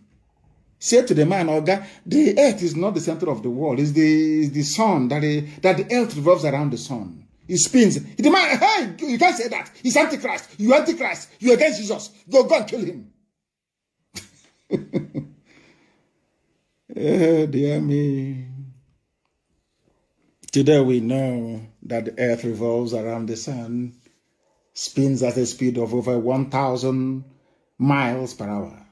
Say to the man, Oga, the earth is not the center of the world. It's the, it's the sun, that, the, that the earth revolves around the sun. It spins. The man, hey, you can't say that. He's antichrist. You antichrist. You against Jesus. Go, go and kill him. oh, dear me. Today we know that the earth revolves around the sun, spins at a speed of over 1,000 miles per hour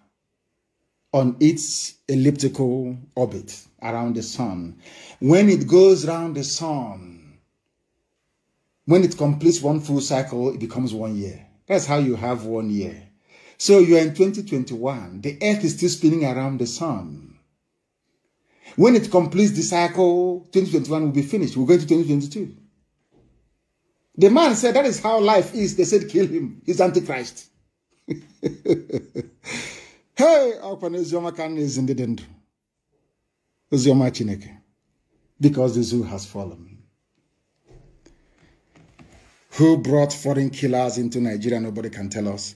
on its elliptical orbit around the sun. When it goes round the sun, when it completes one full cycle, it becomes one year. That's how you have one year. So you are in 2021. The earth is still spinning around the sun. When it completes the cycle, 2021 will be finished. We'll go to 2022. The man said, That is how life is. They said, Kill him. He's Antichrist. hey ọkwa na eziọma ka na-ezi ndị dị ndụ oziọma chineke because the zoo has fallen who brought foreign killers into nigeria nobody can tell us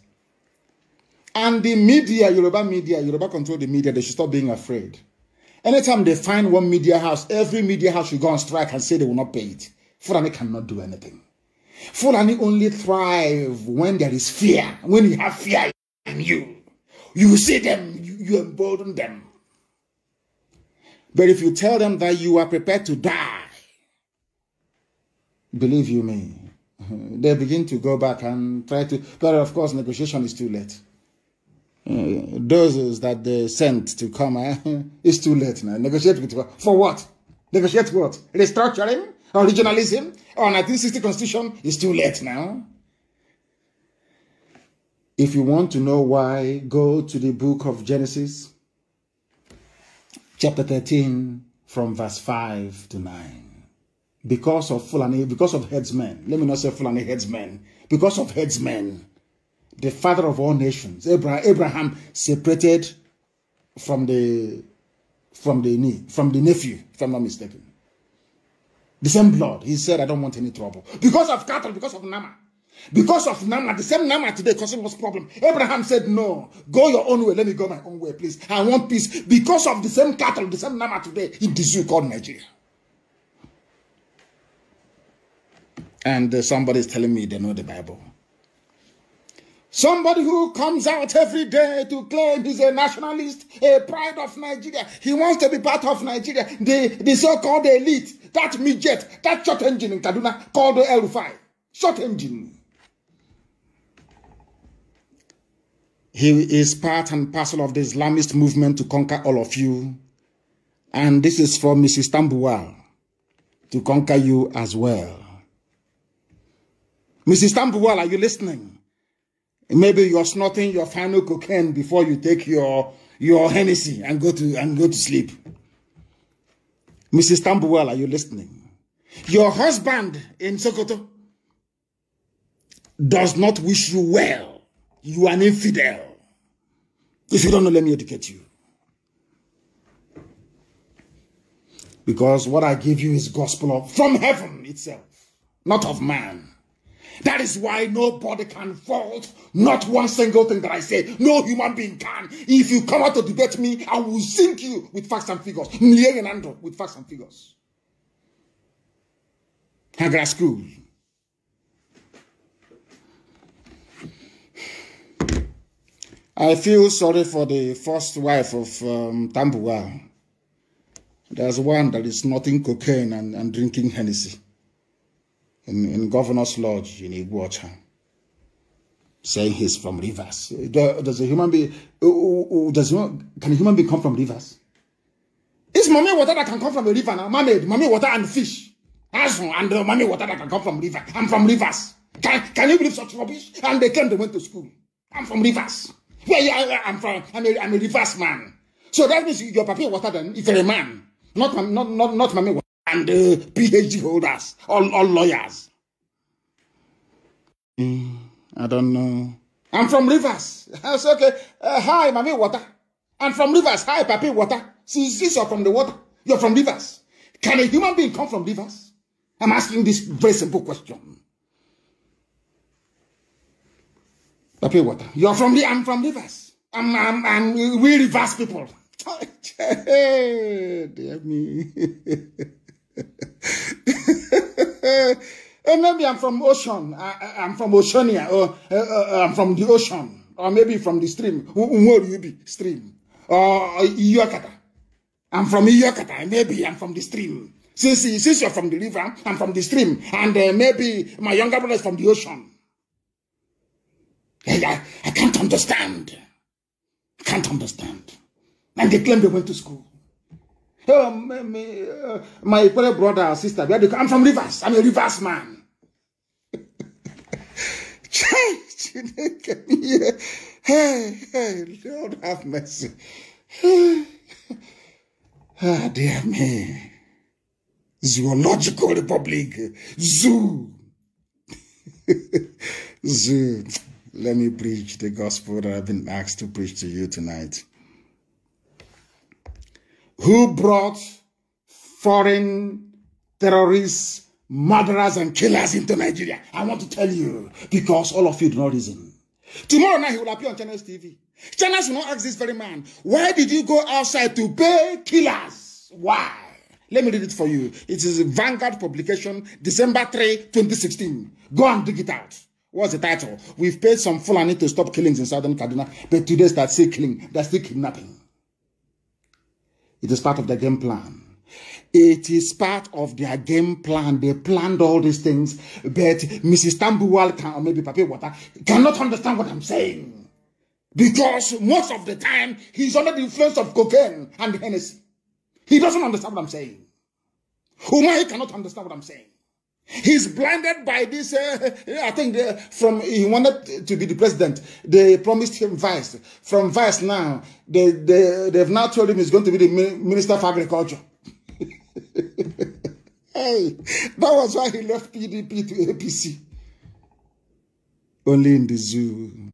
and the media yoruba media yoruba control the media they should stop being afraid anytime they find one media house every media house should go on strike and say they will not pay it fulani cannot do anything fulani only thrive when there is fear when you have fear in you you see them, you, you embolden them. But if you tell them that you are prepared to die, believe you me, they begin to go back and try to. But of course, negotiation is too late. Uh, those that they sent to come, eh? it's too late now. Negotiate with what? For what? Negotiate what? Restructuring? Originalism? Or 1960 constitution? It's too late now. If you want to know why, go to the book of Genesis, chapter 13, from verse 5 to 9. Because of Fulani, because of headsmen, let me not say Fulani headsmen, because of headsmen, the father of all nations, Abraham, Abraham separated from the from the knee, from the nephew, if I'm not mistaken. The same blood. He said, I don't want any trouble. Because of cattle, because of Nama. Because of Nama, the same Nama today causing us problem. Abraham said, No, go your own way. Let me go my own way, please. I want peace. Because of the same cattle, the same Nama today in this zoo called Nigeria. And uh, somebody is telling me they know the Bible. Somebody who comes out every day to claim he's a nationalist, a pride of Nigeria. He wants to be part of Nigeria. The, the so-called elite, that midget, that short engine in Kaduna called L five, Short engine. He is part and parcel of the Islamist movement to conquer all of you. And this is for Mrs. Tambuwal to conquer you as well. Mrs. Tambuwal, are you listening? Maybe you're snorting your final cocaine before you take your, your Hennessy and go to, and go to sleep. Mrs. Tambuwal, are you listening? Your husband in Sokoto does not wish you well. You are an infidel. If you don't know, let me educate you. Because what I give you is gospel of, from heaven itself, not of man. That is why nobody can fault not one single thing that I say. No human being can. If you come out to debate me, I will sink you with facts and figures. With facts and figures. Hagra school. I feel sorry for the first wife of um, Tambua. There's one that is snorting cocaine and, and drinking Hennessy in, in Governor's Lodge in Iguacha, saying he's from Rivers. Does a human being, does, can a human being come from Rivers? It's mommy water that can come from a river now. Mermaid, mommy water and fish. and uh, mommy water that can come from river. I'm from Rivers. Can, can you believe such rubbish? And they came, they went to school. I'm from Rivers. Where I, am from, I'm a, I'm a reverse man. So that means your papi water then is a man, not um, not not not mommy and uh, PhD holders, all all lawyers. Mm, I don't know. I'm from Rivers. That's okay. Uh, hi, mommy water. I'm from Rivers. Hi, papi water. Since this you're from the water, you're from Rivers. Can a human being come from Rivers? I'm asking this very simple question. I water. You're from the, I'm from Rivers. I'm, I'm, I'm, we reverse people. Eh, dear me. Hey, eh, maybe I'm from ocean. I, am from Oceania, or uh, uh, I'm from the ocean, or maybe from the stream. Where you be? Stream. Or uh, Iyokata. I'm from Iyokata. Maybe I'm from the stream. Since, since you're from the river, I'm from the stream. And maybe my younger brother is from the ocean. I, I can't understand. I can't understand. And they claim they went to school. Oh, uh, my, poor uh, my brother or sister, I'm from Rivers. I'm a Rivers man. Church, you know, me. Eh. Hey, hey, Lord have mercy. Ah, oh, dear me. Zoological Republic. Zoo. Zoo. Let me preach the gospel that I've been asked to preach to you tonight. Who brought foreign terrorists, murderers, and killers into Nigeria? I want to tell you because all of you do not reason. Tomorrow night he will appear on Channels TV. Channels will not ask this very man, why did you go outside to pay killers? Why? Let me read it for you. It is Vanguard publication, December 3, 2016. Go and dig it out. What's the title? We've paid some Fulani to stop killings in southern Kaduna, but today they still killing, they're still kidnapping. It is part of the game plan. It is part of their game plan. They planned all these things, but Mrs. Tambuwal can, or maybe Papi Water cannot understand what I'm saying. Because most of the time, he's under the influence of cocaine and Hennessy. He doesn't understand what I'm saying. Umahi cannot understand what I'm saying. He's blinded by this. Uh, I think the, from he wanted to be the president. They promised him vice. From vice now, they, they, they've now told him he's going to be the minister of agriculture. hey, that was why he left PDP to APC. Only in the zoo.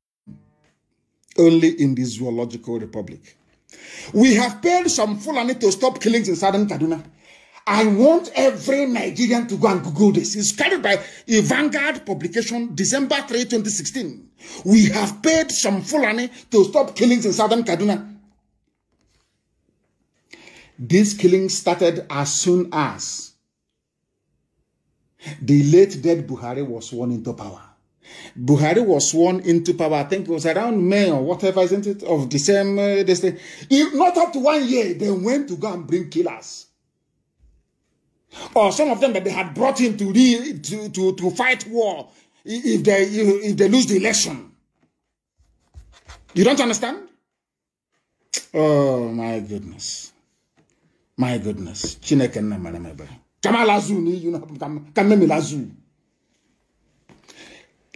Only in the zoological republic. We have paid some Fulani to stop killings in southern Kaduna. I want every Nigerian to go and Google this. It's carried by a Vanguard publication, December 3, 2016. We have paid some Fulani to stop killings in southern Kaduna. These killings started as soon as the late dead Buhari was sworn into power. Buhari was sworn into power, I think it was around May or whatever, isn't it, of the same uh, If not up to one year, they went to go and bring killers Or some of them that they had brought in to, re, to, to, to fight war if they, if they lose the election. You don't understand? Oh, my goodness. My goodness. Chineke na manamebe. Kama lazu you know, kama mimi lazu.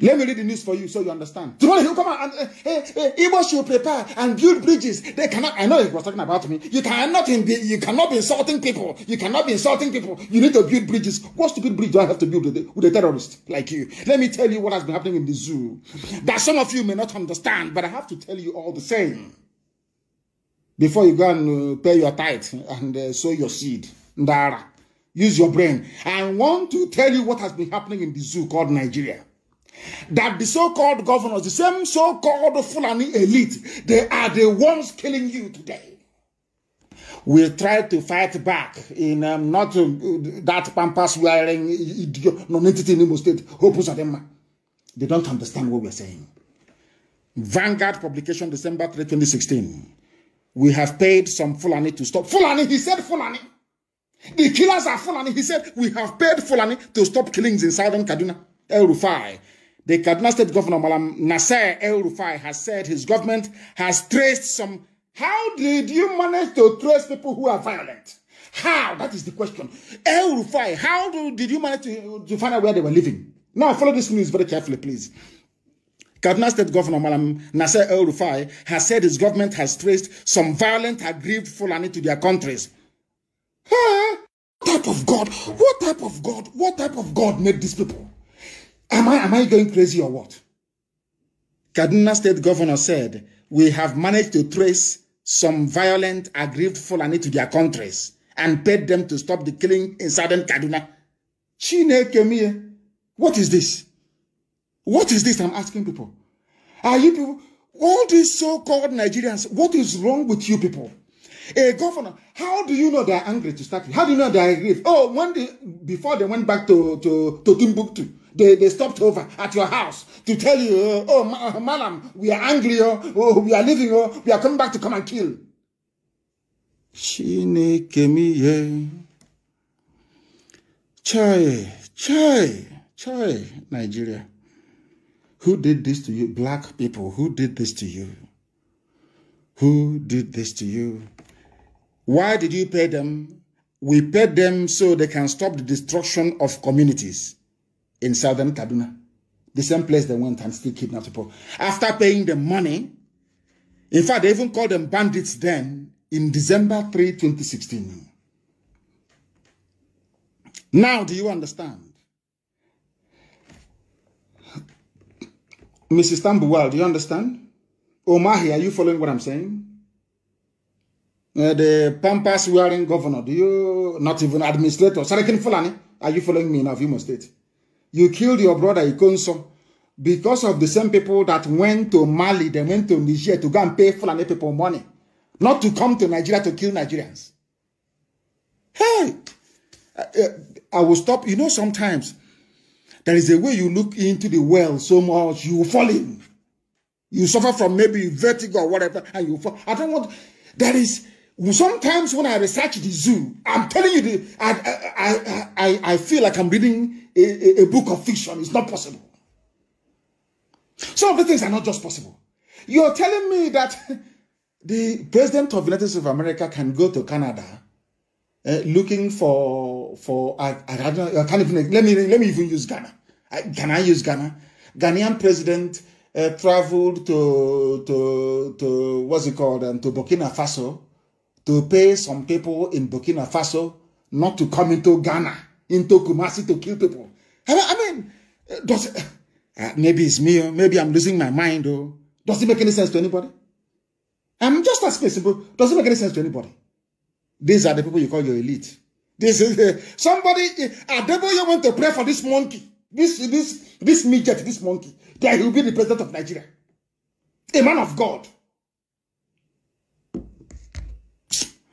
Let me read the news for you so you understand. Tomorrow he'll come and, he hey, hey, should prepare and build bridges. They cannot, I know he was talking about me. You cannot, be, you cannot be insulting people. You cannot be insulting people. You need to build bridges. What stupid bridge do I have to build with a, with a terrorist like you? Let me tell you what has been happening in the zoo that some of you may not understand, but I have to tell you all the same. Before you go and uh, pay your tithe and uh, sow your seed, Ndara, use your brain. I want to tell you what has been happening in the zoo called Nigeria. that the so-called governors, the same so-called Fulani elite, they are the ones killing you today. We try to fight back in um, not uh, that pampas wearing non-entity in Imo State, Hopus Adema. They don't understand what we're saying. Vanguard publication, December 3, 2016. We have paid some Fulani to stop. Fulani, he said Fulani. The killers are Fulani. He said, we have paid Fulani to stop killings in southern Kaduna. El Rufai, The Kaduna State Governor, Malam Nasser El Rufai, has said his government has traced some. How did you manage to trace people who are violent? How? That is the question. El Rufai, how do, did you manage to, to find out where they were living? Now, follow this news very carefully, please. Kaduna State Governor Malam Nasser El Rufai has said his government has traced some violent, aggrieved Fulani to their countries. Huh? What type of God? What type of God? What type of God made these people? Am I, am I going crazy or what? Kaduna State Governor said, we have managed to trace some violent, aggrieved Fulani to their countries and paid them to stop the killing in southern Kaduna. Chinekemie, what is this? What is this I'm asking people? Are you people, all these so-called Nigerians, what is wrong with you people? A governor, how do you know they're angry to start with? How do you know they're aggrieved? Oh, when they, before they went back to, to, to Timbuktu, they, they stopped over at your house to tell you, oh, ma madam, we are angry, oh, oh, we are leaving, oh, we are coming back to come and kill. Chineke miye. Chai, chai, chai, Nigeria. Who did this to you? Black people, who did this to you? Who did this to you? Why did you pay them? We paid them so they can stop the destruction of communities in southern Kaduna. The same place they went and still kidnapped people. After paying the money, in fact, they even called them bandits then in December 3, 2016. Now, do you understand? Mrs. Tambuwal, do you understand? Omahi, are you following what I'm saying? Uh, the pampas wearing governor, do you not even administrator? Fulani, are you following me now? You must state. You killed your brother Ikonso because of the same people that went to Mali, they went to Niger to go and pay Fulani people money, not to come to Nigeria to kill Nigerians. Hey, I, uh, uh, I will stop. You know, sometimes there is a way you look into the well so much, you fall in. You suffer from maybe vertigo or whatever, and you fall. I don't want. There is sometimes when I research the zoo, I'm telling you, the, I, I, I, I feel like I'm reading a, a, a book of fiction. It's not possible. Some of the things are not just possible. You're telling me that the president of the United States of America can go to Canada uh, looking for for I, I, don't I can't even let me let me even use Ghana. I, can I use Ghana? Ghanaian president uh, traveled to to to what's it called and um, to Burkina Faso to pay some people in Burkina Faso not to come into Ghana, into Kumasi to kill people. I mean, does it, uh, maybe it's me, oh, maybe I'm losing my mind, or oh. does it make any sense to anybody? I'm just asking simple, does it make any sense to anybody? These are the people you call your elite. This is uh, somebody, uh, You want to pray for this monkey, this, this, this midget, this monkey, that he will be the president of Nigeria. A man of God.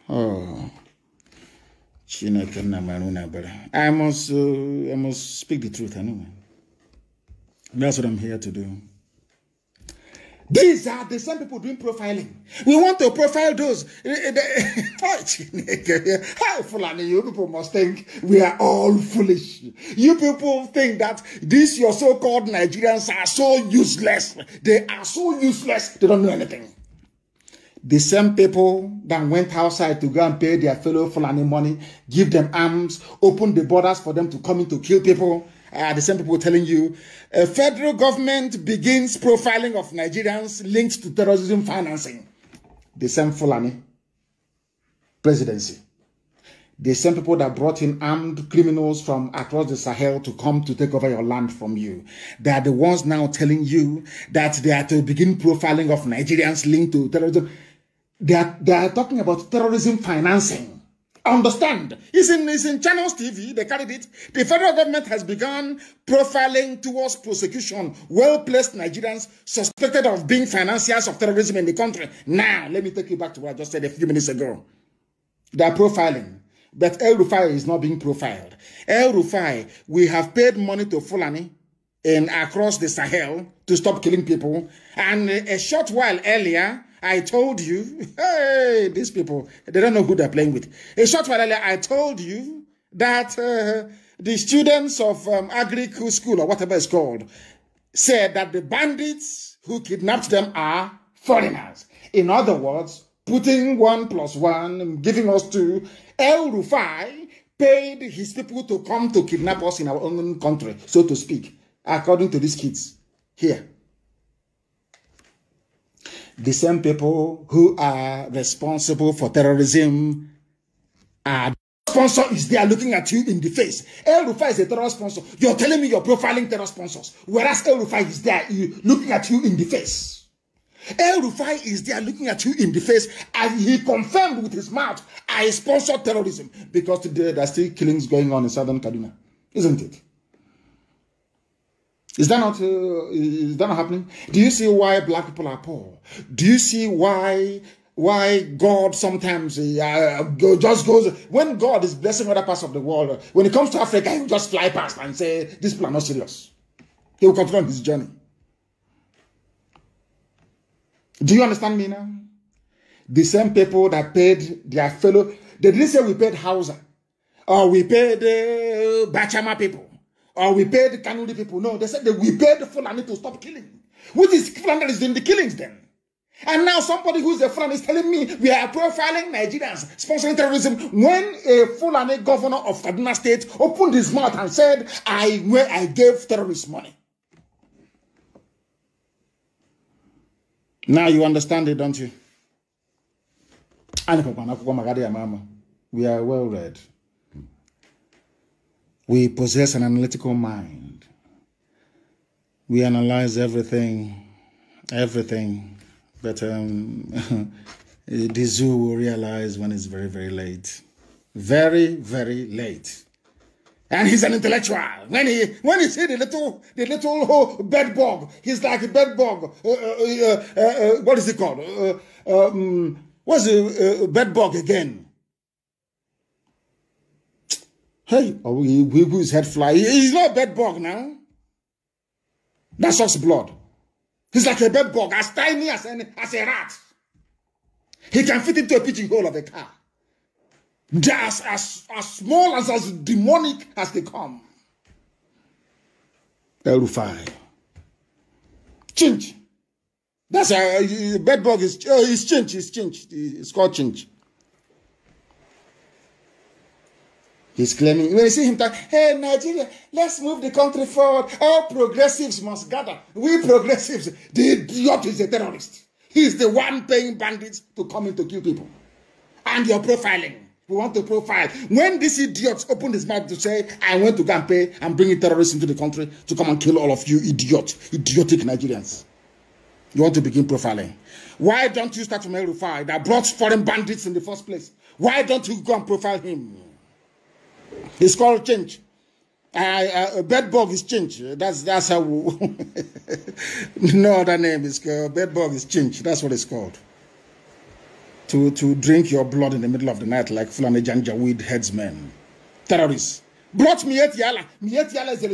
Chineke nna mara I must, uh, I must speak the truth anyway. That's what I'm here to do. These are the same people doing profiling. We want to profile those. Eh, eh, oh, How Fulani, you people must think we are all foolish. You people think that these your so-called Nigerians are so useless. They are so useless. They don't know anything the same people that went outside to go and pay their fellow Fulani money, give them arms, open the borders for them to come in to kill people, are the same people telling you a federal government begins profiling of Nigerians linked to terrorism financing. The same Fulani presidency. The same people that brought in armed criminals from across the Sahel to come to take over your land from you. They are the ones now telling you that they are to begin profiling of Nigerians linked to terrorism. They are, they are talking about terrorism financing. Understand? It's in, it's in Channels TV. They carried it. The federal government has begun profiling towards prosecution well placed Nigerians suspected of being financiers of terrorism in the country. Now, let me take you back to what I just said a few minutes ago. They are profiling. But El Rufai is not being profiled. El Rufai, we have paid money to Fulani in across the Sahel to stop killing people. And a short while earlier, I told you. Hey, these people, they don't know who they're playing with. A short while earlier, I told you that uh, the students of um, Agri School or whatever it's called said that the bandits who kidnapped them are foreigners. In other words, putting one plus one, giving us two. El Rufai paid his people to come to kidnap us in our own country, so to speak, according to these kids here the same people who are responsible for terrorism are sponsor is there looking at you in the face. El Rufai is a terror sponsor. You're telling me you're profiling terror sponsors, whereas El Rufai is there looking at you in the face. El Rufai is there looking at you in the face, and he confirmed with his mouth, "I sponsor terrorism," because today there are still killings going on in southern Kaduna, isn't it? Is that not uh, is that not happening? Do you see why black people are poor? Do you see why why God sometimes uh, uh just goes when God is blessing other parts of the world? Uh, when it comes to Africa, he will just fly past and say, "This people are not serious." He will continue on his journey. Do you understand me now? The same people that paid their fellow, they didn't say we paid Hausa or we paid uh, Bachama people. Or we paid the Kanuri people. No, they said that we paid the Fulani to stop killing. Which is Fulani that is doing the killings then? And now somebody who's a Fulani is telling me we are profiling Nigerians, sponsoring terrorism. When a Fulani governor of Kaduna State opened his mouth and said, I, well, I gave terrorists money. Now you understand it, don't you? We are well read. We possess an analytical mind. We analyze everything, everything. But um, the zoo will realize when it's very, very late. Very, very late. And he's an intellectual. When he when he see the little the little bedbug, he's like a bedbug. Uh, uh, uh, uh, uh what is it called? Uh, um, what's a bedbug again? Hey, oh, he, he who is head fly. He, he's not a bed bug now. That sucks blood. He's like a bed bug, as tiny as, any, as a rat. He can fit into a pigeon hole of a car. They're as, as, as small as as demonic as they come. El Rufai. Chinch. That's a, a bed bug is, uh, oh, is change? is change? It's called change. He's claiming, when you see him talk, hey, Nigeria, let's move the country forward. All progressives must gather. We progressives, the idiot is a terrorist. He's the one paying bandits to come in to kill people. And you're profiling. We want to profile. When this idiot opened his mouth to say, I went to go and pay and bring terrorists into the country to come and kill all of you idiot, idiotic Nigerians. You want to begin profiling. Why don't you start from El Rufai that brought foreign bandits in the first place? Why don't you go and profile him? It's called change. Uh, uh, bed bug is change. That's that's how. no other name is called bed bug is change. That's what it's called. To to drink your blood in the middle of the night like Fulani Janjaweed headsmen, terrorists. Brought Miet Yala. Yala is a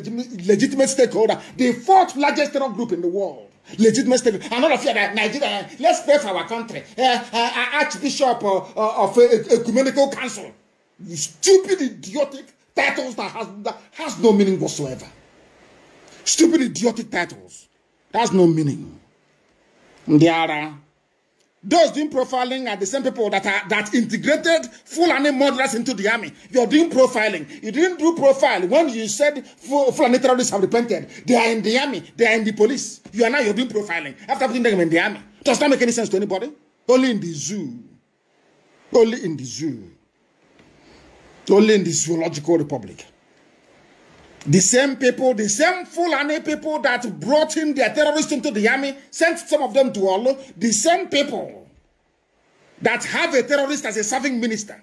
legitimate stakeholder, the fourth largest terror group in the world. Legitimate stakeholder. And all of you that Nigeria, let's pray for our country. Uh, uh, Archbishop of Ecumenical Council stupid, idiotic titles that has, that has no meaning whatsoever. Stupid, idiotic titles. that has no meaning. There those doing profiling are the same people that are that integrated Fulani murderers into the army. You're doing profiling. You didn't do profile when you said Fulani terrorists have repented. They are in the army. They are in the police. You are now you're doing profiling after putting them in the army. Does not make any sense to anybody. Only in the zoo. Only in the zoo. only in the zoological republic. The same people, the same Fulani people that brought in their terrorists into the army, sent some of them to Olo, the same people that have a terrorist as a serving minister,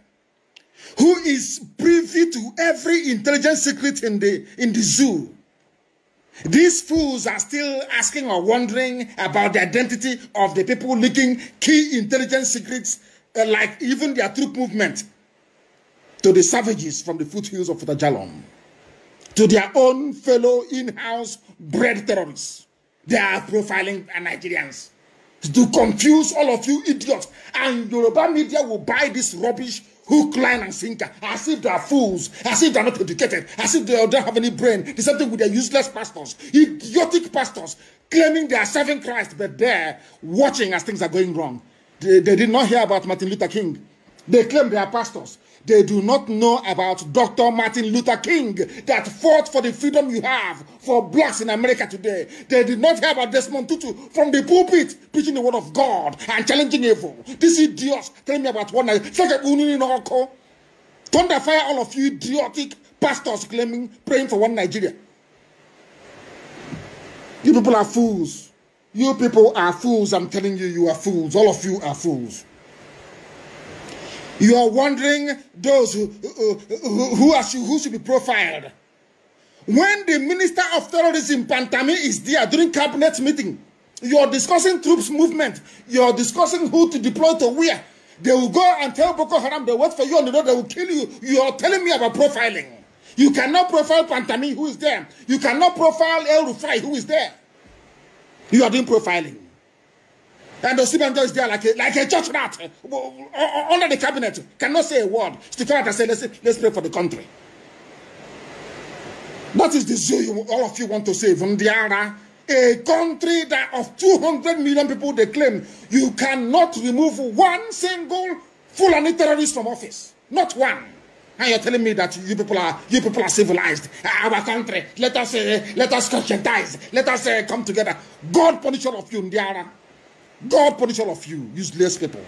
who is privy to every intelligence secret in the, in the zoo. These fools are still asking or wondering about the identity of the people leaking key intelligence secrets, uh, like even their troop movement to the savages from the foothills of Futajalom, to their own fellow in-house bred terrorists. They are profiling Nigerians to confuse all of you idiots. And Yoruba media will buy this rubbish hook, line, and sinker as if they are fools, as if they are not educated, as if they don't have any brain. The same thing with their useless pastors, idiotic pastors claiming they are serving Christ, but they're watching as things are going wrong. They, they did not hear about Martin Luther King. They claim they are pastors. They do not know about Dr. Martin Luther King that fought for the freedom you have for blacks in America today. They did not hear about Desmond Tutu from the pulpit preaching the word of God and challenging evil. This idiot telling me about one night. Thunder fire all of you idiotic pastors claiming, praying for one Nigeria. You people are fools. You people are fools. I'm telling you, you are fools. All of you are fools. You are wondering those who, who, who, who should be profiled. When the Minister of Terrorism, Pantami, is there during cabinet meeting, you are discussing troops movement. You are discussing who to deploy to where. They will go and tell Boko Haram they wait for you on the road, they will kill you. You are telling me about profiling. You cannot profile Pantami, who is there. You cannot profile El Rufai, who is there. You are doing profiling. And Osibanjo is there like a, like a church rat under the cabinet, cannot say a word. Stick out and say, let's, let's pray for the country. That is the zoo you, all of you want to save. Ndiara, a country that of 200 million people they claim, you cannot remove one single Fulani terrorist from office. Not one. And you're telling me that you people are you people are civilized. Our country, let us uh, let us conscientize, let us uh, come together. God punish all of you, Ndiara. God punish all of you, useless people.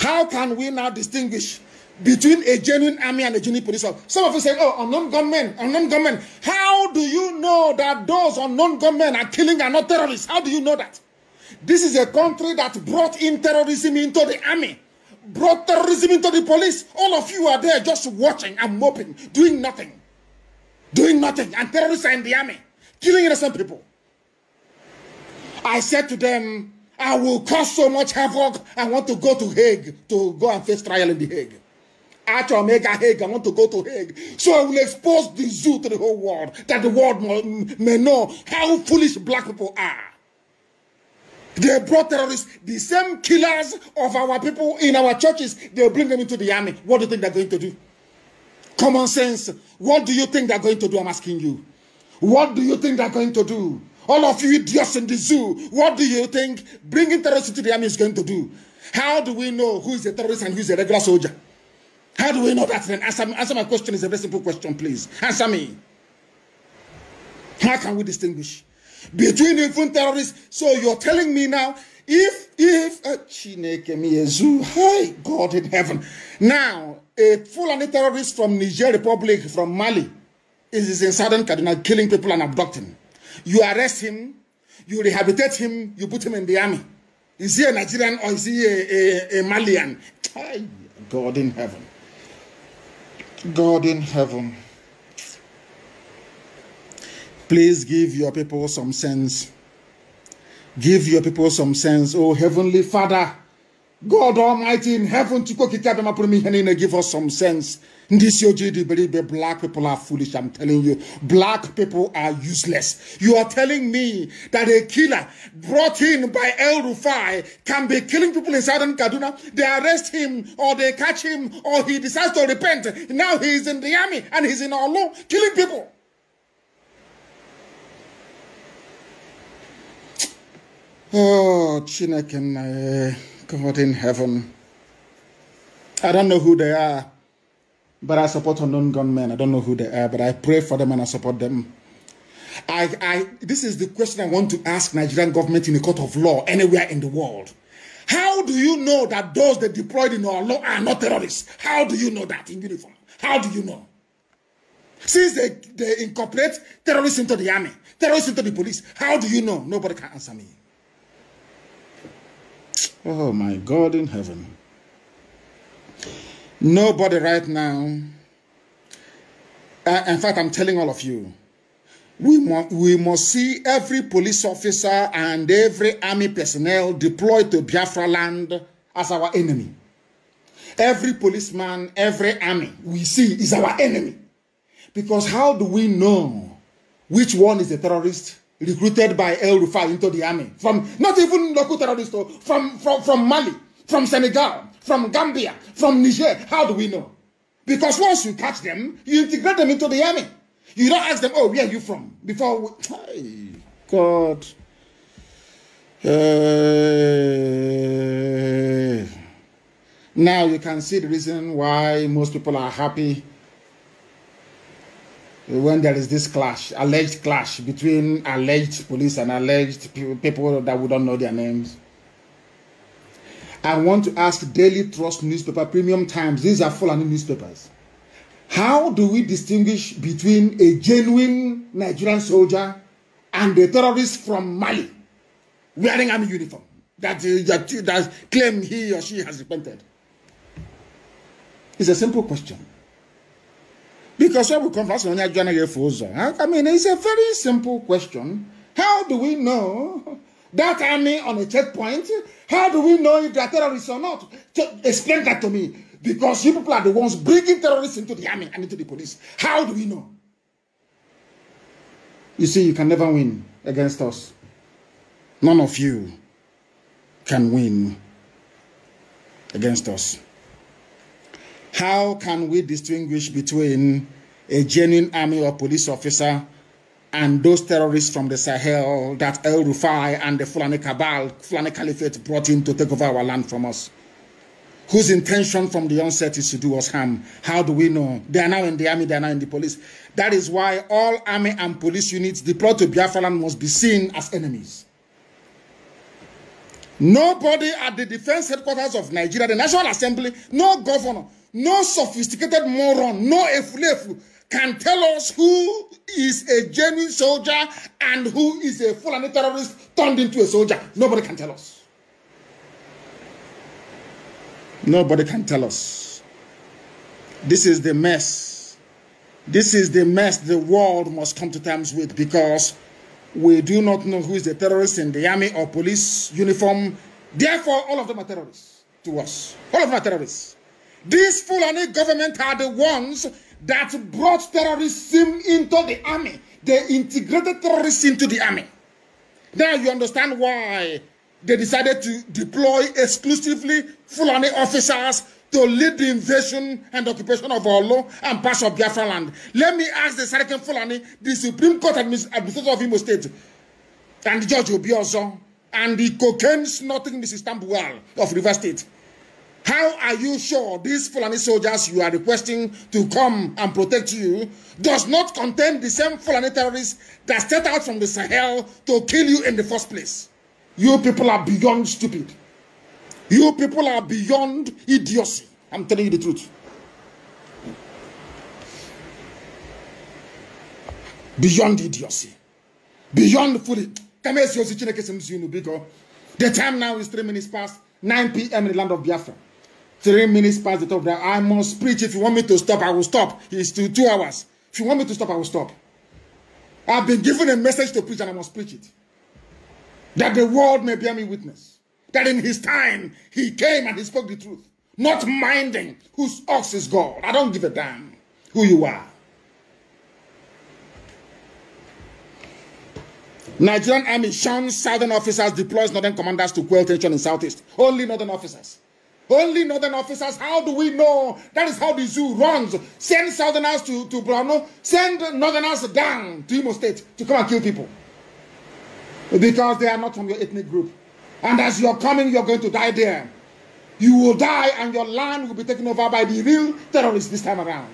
How can we now distinguish between a genuine army and a genuine police officer? Some of you say, oh, unknown gunmen, unknown gunmen. How do you know that those unknown gunmen are killing and not terrorists? How do you know that? This is a country that brought in terrorism into the army, brought terrorism into the police. All of you are there just watching and moping, doing nothing. Doing nothing. And terrorists are in the army, killing innocent people. I said to them, I will cause so much havoc. I want to go to Hague to go and face trial in the Hague. Actual mega Hague, I want to go to Hague. So I will expose the zoo to the whole world, that the world may know how foolish black people are. They brought terrorists, the same killers of our people in our churches, they bring them into the army. What do you think they're going to do? Common sense. What do you think they're going to do? I'm asking you. What do you think they're going to do? All of you idiots in the zoo, what do you think bringing terrorists into the army is going to do? How do we know who is a terrorist and who is a regular soldier? How do we know that then? Answer, answer my question. It's a very simple question, please. Answer me. How can we distinguish between even terrorists? So you're telling me now, if, if, uh, Chineke hi, God in heaven. Now, a full Fulani terrorist from Niger Republic, from Mali, is in southern Kaduna killing people and abducting. You arrest him, you rehabilitate him, you put him in the army. Is he a Nigerian or is he a, a, a Malian? God in heaven. God in heaven. Please give your people some sense. Give your people some sense. Oh, Heavenly Father. God Almighty in heaven, to give us some sense. This that black people are foolish. I'm telling you, black people are useless. You are telling me that a killer brought in by El Rufai can be killing people in southern Kaduna. They arrest him or they catch him or he decides to repent. Now he is in the army and he's in Olu killing people. Oh, Chineke. God in heaven. I don't know who they are, but I support unknown gunmen. I don't know who they are, but I pray for them and I support them. I, I, this is the question I want to ask Nigerian government in a court of law anywhere in the world. How do you know that those that deployed in our law are not terrorists? How do you know that in uniform? How do you know? Since they, they incorporate terrorists into the army, terrorists into the police, how do you know? Nobody can answer me. Oh my God in heaven. Nobody right now. Uh, in fact, I'm telling all of you, we, mu- we must see every police officer and every army personnel deployed to Biafra land as our enemy. Every policeman, every army we see is our enemy. Because how do we know which one is a terrorist recruited by El Rufai into the army from not even local terrorists, oh, from, from, from Mali, from Senegal, from Gambia, from Niger. How do we know? Because once you catch them, you integrate them into the army. You don't ask them, oh, where are you from? Before we... Hey, God. Hey. Eh. Now you can see the reason why most people are happy when there is this clash, alleged clash between alleged police and alleged people that we don't know their names. I want to ask Daily Trust newspaper, Premium Times, these are full of newspapers. How do we distinguish between a genuine Nigerian soldier and a terrorist from Mali wearing army uniform that, uh, that, that claim he or she has repented? It's a simple question. Because when we come converse on I mean, it's a very simple question. How do we know that army on a checkpoint? How do we know if they are terrorists or not? Explain that to me. Because you people are the ones bringing terrorists into the army and into the police. How do we know? You see, you can never win against us. None of you can win against us. How can we distinguish between a genuine army or police officer and those terrorists from the Sahel that El Rufai and the Fulani Cabal, Fulani Caliphate brought in to take over our land from us? Whose intention from the onset is to do us harm? How do we know? They are now in the army, they are now in the police. That is why all army and police units deployed to Biafra land must be seen as enemies. Nobody at the defense headquarters of Nigeria, the National Assembly, no governor, No sophisticated moron, no efulefu can tell us who is a genuine soldier and who is a Fulani terrorist turned into a soldier. Nobody can tell us. Nobody can tell us. This is the mess. This is the mess the world must come to terms with because we do not know who is a terrorist in the army or police uniform. Therefore, all of them are terrorists to us. All of them are terrorists. These Fulani government are the ones that brought terrorism into the army. They integrated terrorists into the army. Now you understand why they decided to deploy exclusively Fulani officers to lead the invasion and occupation of Olo and parts of Biafra land. Let me ask the Sarkin Fulani, the Supreme Court Administ Administrator of Imo State, and Judge Obiozo, and the cocaine snorting Mrs. Tambuwal of River State. How are you sure these Fulani soldiers you are requesting to come and protect you does not contain the same Fulani terrorists that set out from the Sahel to kill you in the first place? You people are beyond stupid. You people are beyond idiocy. I'm telling you the truth. Beyond idiocy. Beyond foolish. The time now is three minutes past 9 p.m. in the land of Biafra. Three minutes past the top. Now I must preach. If you want me to stop, I will stop. It's two two hours. If you want me to stop, I will stop. I've been given a message to preach and I must preach it. That the world may bear me witness. That in his time, he came and he spoke the truth. Not minding whose ox is God. I don't give a damn who you are. Nigerian army shuns southern officers, deploys northern commanders to quell tension in southeast. Only northern officers. Only northern officers. How do we know? That is how the zoo runs. Send southerners to, to Brano. Send northerners down to Imo State to come and kill people. Because they are not from your ethnic group. And as you're coming, you're going to die there. You will die and your land will be taken over by the real terrorists this time around.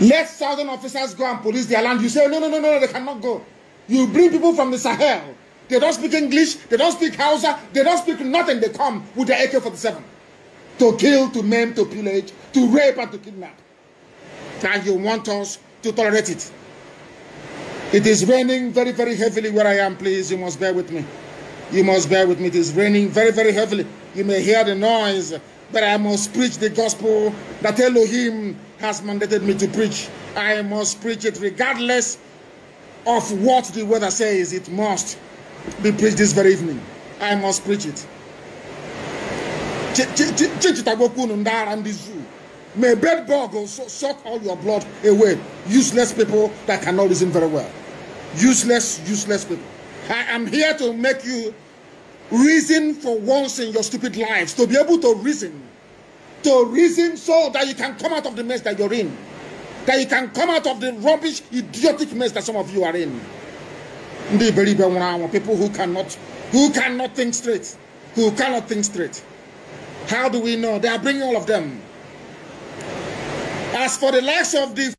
Let southern officers go and police their land. You say, no, no, no, no, they cannot go. You bring people from the Sahel they don't speak English. They don't speak Hausa. They don't speak nothing. They come with the AK-47 to kill, to maim, to pillage, to rape, and to kidnap. Now you want us to tolerate it. It is raining very, very heavily where I am. Please, you must bear with me. You must bear with me. It is raining very, very heavily. You may hear the noise, but I must preach the gospel that Elohim has mandated me to preach. I must preach it regardless of what the weather says. It must be preached this very evening. I must preach it. Chichitagokun Ndara and the zoo. May bed suck all your blood away. Useless people that cannot reason very well. Useless, useless people. I am here to make you reason for once in your stupid lives, to be able to reason. To reason so that you can come out of the mess that you're in. That you can come out of the rubbish, idiotic mess that some of you are in ndị iberibe nwụrụ anwụ people who cannot who cannot think straight who cannot think straight how do we know they are bringing all of them as for the likes of the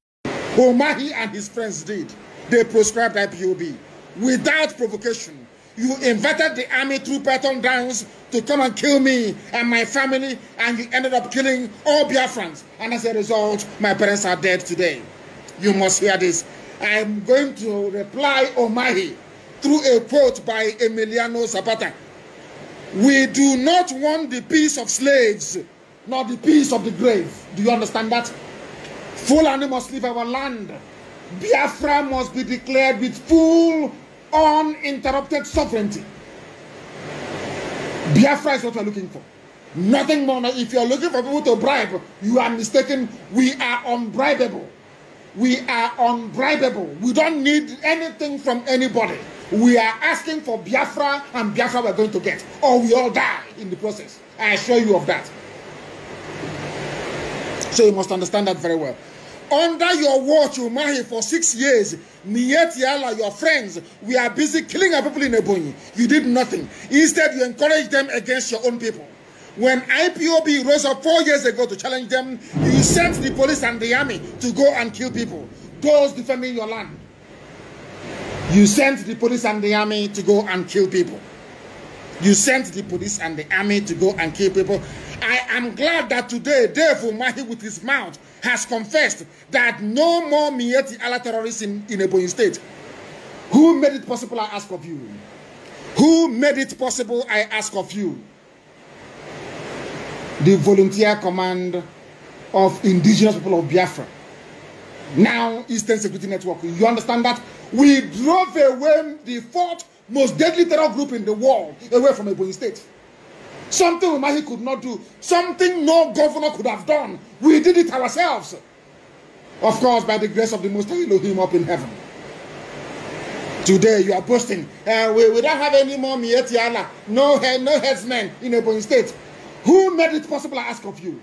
Omahi and his friends did they proscribed IPOB without provocation you invited the army through Patton Downs to come and kill me and my family, and you ended up killing all Biafrans. And as a result, my parents are dead today. You must hear this. I'm going to reply, Omahi, through a quote by Emiliano Zapata. We do not want the peace of slaves, nor the peace of the grave. Do you understand that? Fulani must leave our land. Biafra must be declared with full, uninterrupted sovereignty. Biafra is what we're looking for. Nothing more. If you're looking for people to bribe, you are mistaken. We are unbribable. We are unbribable. We don't need anything from anybody. we are asking for Biafra and Biafra are going to get, or we all die in the process. I assure you of that. So you must understand that very well. Under your watch, Umahi, for six years, Niet your friends, we are busy killing our people in Ebonyi. You did nothing. Instead, you encouraged them against your own people. When IPOB rose up four years ago to challenge them, you sent the police and the army to go and kill people, those defending your land. You sent the police and the army to go and kill people. You sent the police and the army to go and kill people. I am glad that today Dave Mahi, with his mouth has confessed that no more Mieti Allah terrorists in, in Ebonyi State. Who made it possible, I ask of you? Who made it possible, I ask of you? The volunteer command of indigenous people of Biafra. now Eastern Security Network. You understand that? We drove away the fourth most deadly terror group in the world away from Ebony State. Something Umahi could not do, something no governor could have done. We did it ourselves. Of course, by the grace of the Most High Elohim up in heaven. Today you are boasting. Uh, we, we don't have any more Mietiala, no, no headsmen in Ebony State. Who made it possible, I ask of you?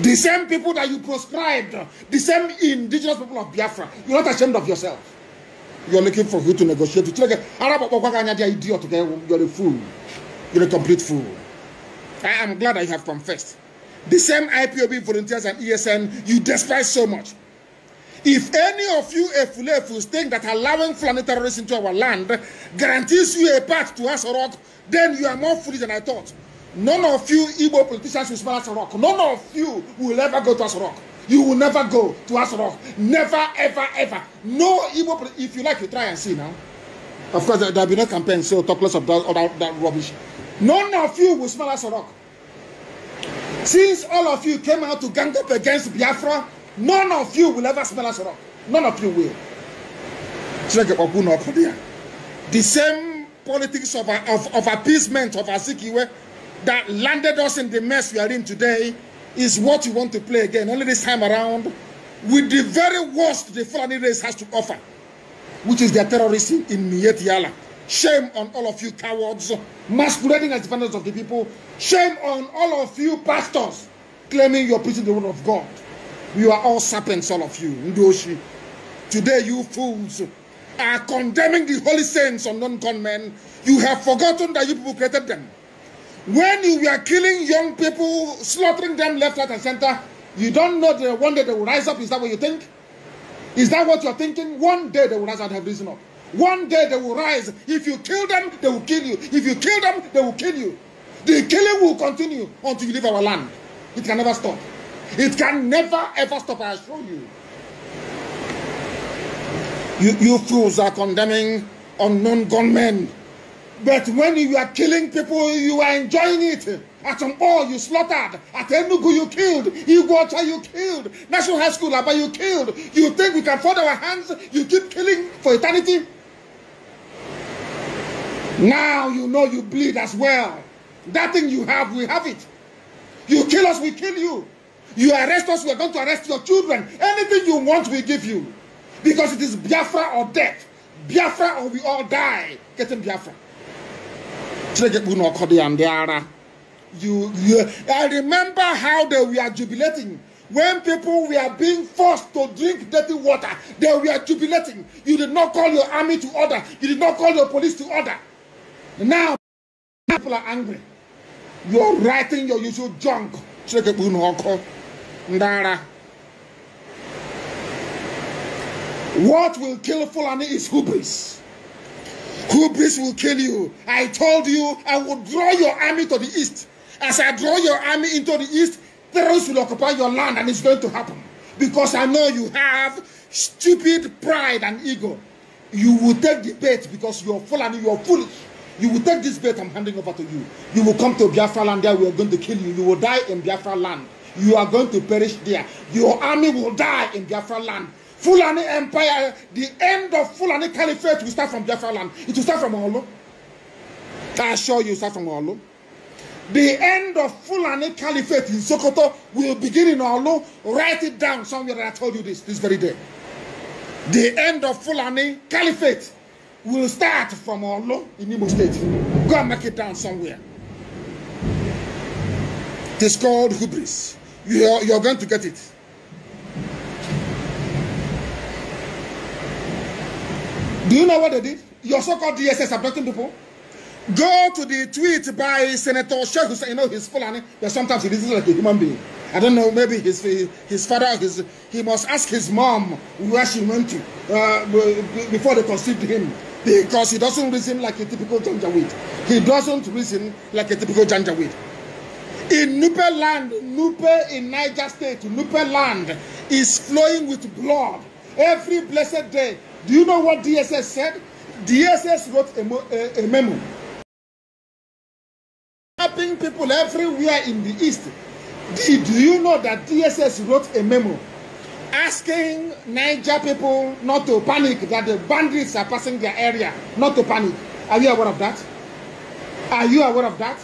The same people that you proscribed, the same indigenous people of Biafra, you're not ashamed of yourself. You're looking for who to negotiate with. You're a fool. You're a complete fool. I am glad I have confessed. The same IPOB volunteers and ESN you despise so much. If any of you Efulefus think that allowing Fulani terrorists into our land guarantees you a path to Asorok, then you are more foolish than I thought. None of you Igbo politicians will smell Aso Rock. None of you will ever go to Aso You will never go to Aso Never, ever, ever. No Igbo. If you like, you try and see now. Of course, there will be no campaign, so talk less of that, all that, that rubbish. None of you will smell Aso Rock. Since all of you came out to gang up against Biafra, none of you will ever smell Aso Rock. None of you will. The same politics of, of, of appeasement of Azikiwe that landed us in the mess we are in today is what you want to play again. Only this time around, with the very worst the Fulani race has to offer, which is their terrorism in Mietiala. Shame on all of you cowards masquerading as defenders of the people. Shame on all of you pastors claiming you're preaching the word of God. You are all serpents, all of you. Ndoshi. Today, you fools are condemning the holy saints on non-con men. You have forgotten that you people created them. When you are killing young people, slaughtering them left, right, and center, you don't know that one day they will rise up. Is that what you think? Is that what you're thinking? One day they will rise and have risen up. One day they will rise. If you kill them, they will kill you. If you kill them, they will kill you. The killing will continue until you leave our land. It can never stop. It can never ever stop, I assure you. You, you fools are condemning unknown gunmen. But when you are killing people, you are enjoying it. At Mpo, you slaughtered. At Enugu, you killed. Iguacha, you killed. National High School, Abba, you killed. You think we can fold our hands? You keep killing for eternity? Now you know you bleed as well. That thing you have, we have it. You kill us, we kill you. You arrest us, we are going to arrest your children. Anything you want, we give you. Because it is Biafra or death. Biafra or we all die. Get in Biafra. You, you, I remember how they were jubilating when people were being forced to drink dirty water. They were jubilating. You did not call your army to order. You did not call your police to order. Now, people are angry. You're writing your usual junk. What will kill Fulani is hubris. Hubris will kill you. I told you I would draw your army to the east. As I draw your army into the east, terrorists will occupy your land and it's going to happen. Because I know you have stupid pride and ego. You will take the bait because you are full and you are foolish. You will take this bait I'm handing over to you. You will come to Biafra land there. We are going to kill you. You will die in Biafra land. You are going to perish there. Your army will die in Biafra land. Fulani Empire, the end of Fulani Caliphate will start from Jaffa land. It will start from Olo. I assure you, start from Olo. The end of Fulani Caliphate in Sokoto will begin in Olo. Write it down somewhere that I told you this, this very day. The end of Fulani Caliphate will start from Olo in Imo State. Go and make it down somewhere. It is called hubris. You are, you are going to get it. Do you know what they did? Your so-called DSS abducting people. Go to the tweet by Senator Sheikh Hussein. You know he's full name, but sometimes he listens like a human being. I don't know. Maybe his his father. His he must ask his mom where she went to uh, before they conceived him because he doesn't reason like a typical Janjaweed. He doesn't reason like a typical Janjaweed. In Nupe land, Nupe in Niger State, Nupe land is flowing with blood. Every blessed day, Do you know what DSS said? DSS wrote a, a, a memo. helping people everywhere in the East. Do, do you know that DSS wrote a memo asking Niger people not to panic, that the bandits are passing their area, not to panic? Are you aware of that? Are you aware of that?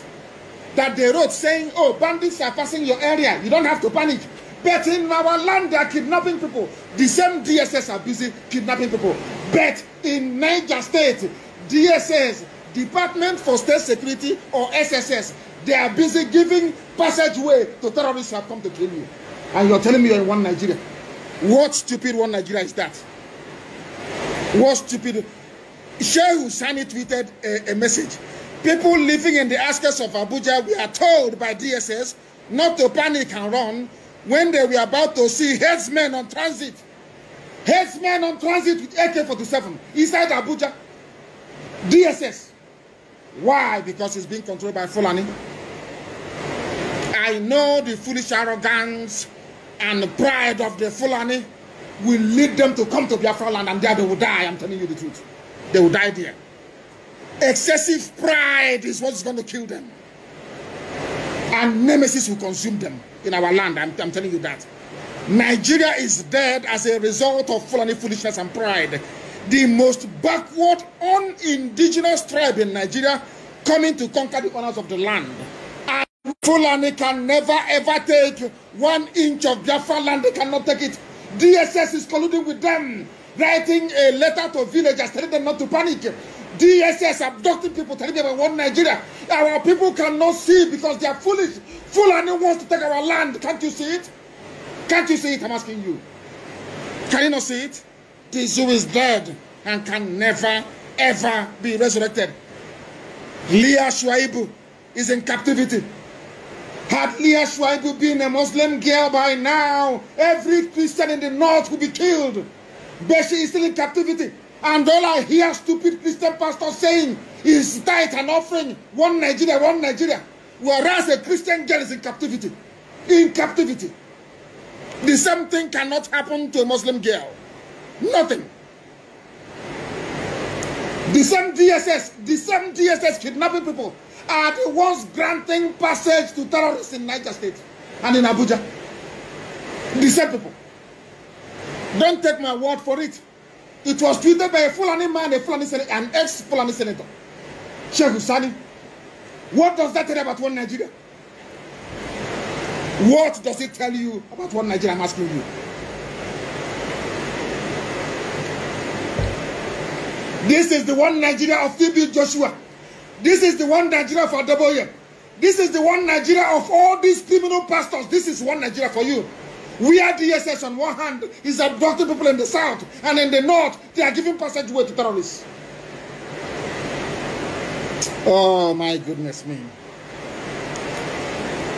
That they wrote saying, oh, bandits are passing your area, you don't have to panic. But in our land, they are kidnapping people. The same DSS are busy kidnapping people. But in Niger State, DSS, Department for State Security or SSS, they are busy giving passageway to terrorists who have come to kill you. And you're telling me you're in one Nigeria. What stupid one Nigeria is that? What stupid? Sheikh Husani tweeted a, a message. People living in the outskirts of Abuja, we are told by DSS not to panic and run when they were about to see headsmen on transit, headsmen on transit with AK-47 inside Abuja, DSS. Why? Because it's being controlled by Fulani. I know the foolish arrogance and pride of the Fulani will lead them to come to Biafra land and there they will die. I'm telling you the truth. They will die there. Excessive pride is what's going to kill them. And nemesis will consume them in our land. I'm, I'm telling you that. Nigeria is dead as a result of Fulani foolishness and pride. The most backward, unindigenous tribe in Nigeria coming to conquer the honors of the land. And Fulani can never ever take one inch of Biafra land. They cannot take it. DSS is colluding with them, writing a letter to villagers telling them not to panic. DSS abducting people, telling them we want Nigeria. Our people cannot see because they are foolish. Fulani wants to take our land. Can't you see it? Can't you see it? I'm asking you. Can you not see it? The zoo is dead and can never, ever be resurrected. Leah Shuaibu is in captivity. Had Leah Shuaibu been a Muslim girl by now, every Christian in the north would be killed. But she is still in captivity. And then I hear stupid Christian pastor saying, is tithe an offering? One Nigeria, one Nigeria. Whereas a Christian girl is in captivity. In captivity. The same thing cannot happen to a Muslim girl. Nothing. The same DSS, the same DSS kidnapping people are the ones granting passage to terrorists in Niger State and in Abuja. The same people. Don't take my word for it. It was tweeted by a Fulani man, a Fulani senator, an ex-Fulani senator, Sheikh Husani. What does that tell you about one Nigeria? What does it tell you about one Nigeria? I'm asking you. This is the one Nigeria of TB Joshua. This is the one Nigeria of Adeboye. This is the one Nigeria of all these criminal pastors. This is one Nigeria for you. We are DSS on one hand is abducting people in the south and in the north, they are giving passageway to terrorists. Oh my goodness me.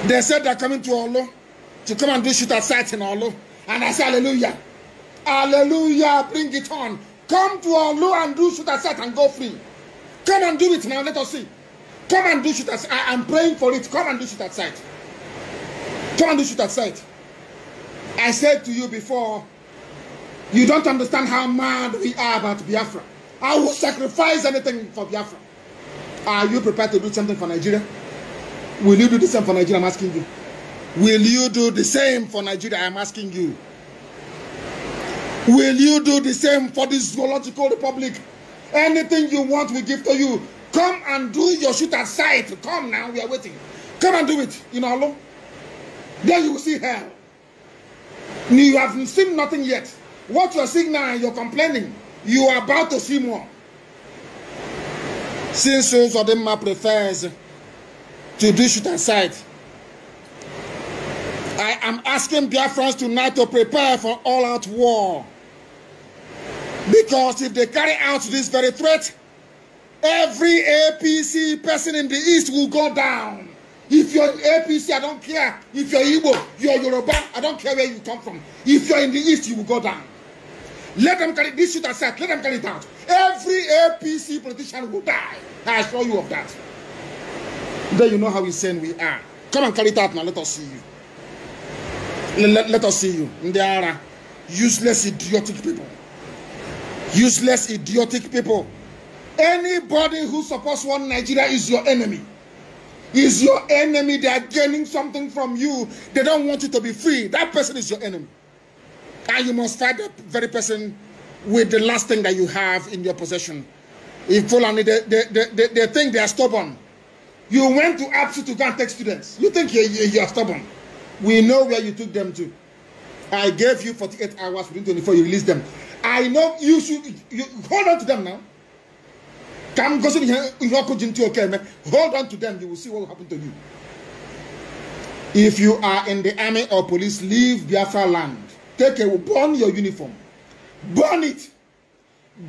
They said they're coming to Olo to come and do at sight in Olo. And I say, Hallelujah. Hallelujah. Bring it on. Come to Olo and do shooter site and go free. Come and do it now. Let us see. Come and do at sight. I am praying for it. Come and do at sight. Come and do at sight. I said to you before, you don't understand how mad we are about Biafra. I will sacrifice anything for Biafra. Are you prepared to do something for Nigeria? Will you do the same for Nigeria? I'm asking you. Will you do the same for Nigeria? I'm asking you. Will you do the same for this zoological republic? Anything you want, we give to you. Come and do your shoot at sight. Come now, we are waiting. Come and do it in Olo. Then you will see hell. You have seen nothing yet. What you are seeing now and you're complaining, you are about to see more. Since Odema prefers to do shoot aside, I am asking Biafrans tonight to prepare for all out war. Because if they carry out this very threat, every APC person in the East will go down. If you're APC, I don't care. If you're Igbo, you're Yoruba, I don't care where you come from. If you're in the East, you will go down. Let them carry this shit aside. Let them carry it out. Every APC politician will die. I assure you of that. Then you know how insane we are. Come and carry it out now. Let us see you. Let, let us see you. They are useless, idiotic people. Useless, idiotic people. Anybody who supports one Nigeria is your enemy. Is your enemy. They are gaining something from you. They don't want you to be free. That person is your enemy. And you must fight that very person with the last thing that you have in your possession. If Fulani, they, they, they, they think they are stubborn. You went to APSU to go and take students. You think you, you, you are stubborn. We know where you took them to. I gave you 48 hours within 24, you release them. I know you should you, hold on to them now. Come go see you walk into okay, man. Hold on to them, you will see what will happen to you. If you are in the army or police, leave Biafra land. Take a burn your uniform. Burn it.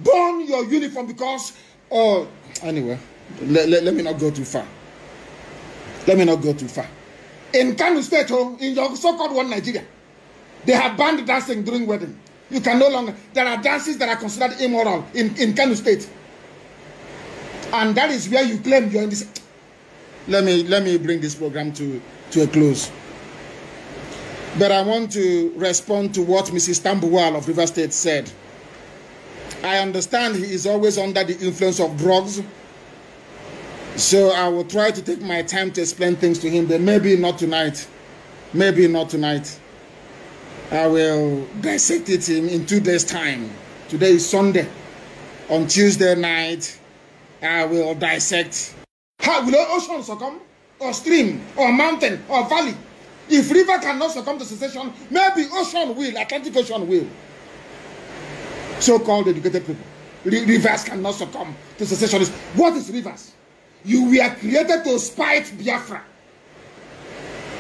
Burn your uniform because oh anyway, let, let, let me not go too far. Let me not go too far. In Kano State, oh, in your so-called one Nigeria, they have banned dancing during wedding. You can no longer. There are dances that are considered immoral in, in Kano State. and that is where you claim you're in this. Let me let me bring this program to to a close. But I want to respond to what Mrs. Tambuwal of River State said. I understand he is always under the influence of drugs. So I will try to take my time to explain things to him, but maybe not tonight. Maybe not tonight. I will dissect it in, in two days' time. Today is Sunday. On Tuesday night, I will dissect. How will ocean succumb? Or stream? Or mountain? Or valley? If river cannot succumb to secession, maybe ocean will, Atlantic Ocean will. So-called educated people. Rivers cannot succumb to secessionists. What is rivers? You were created to spite Biafra.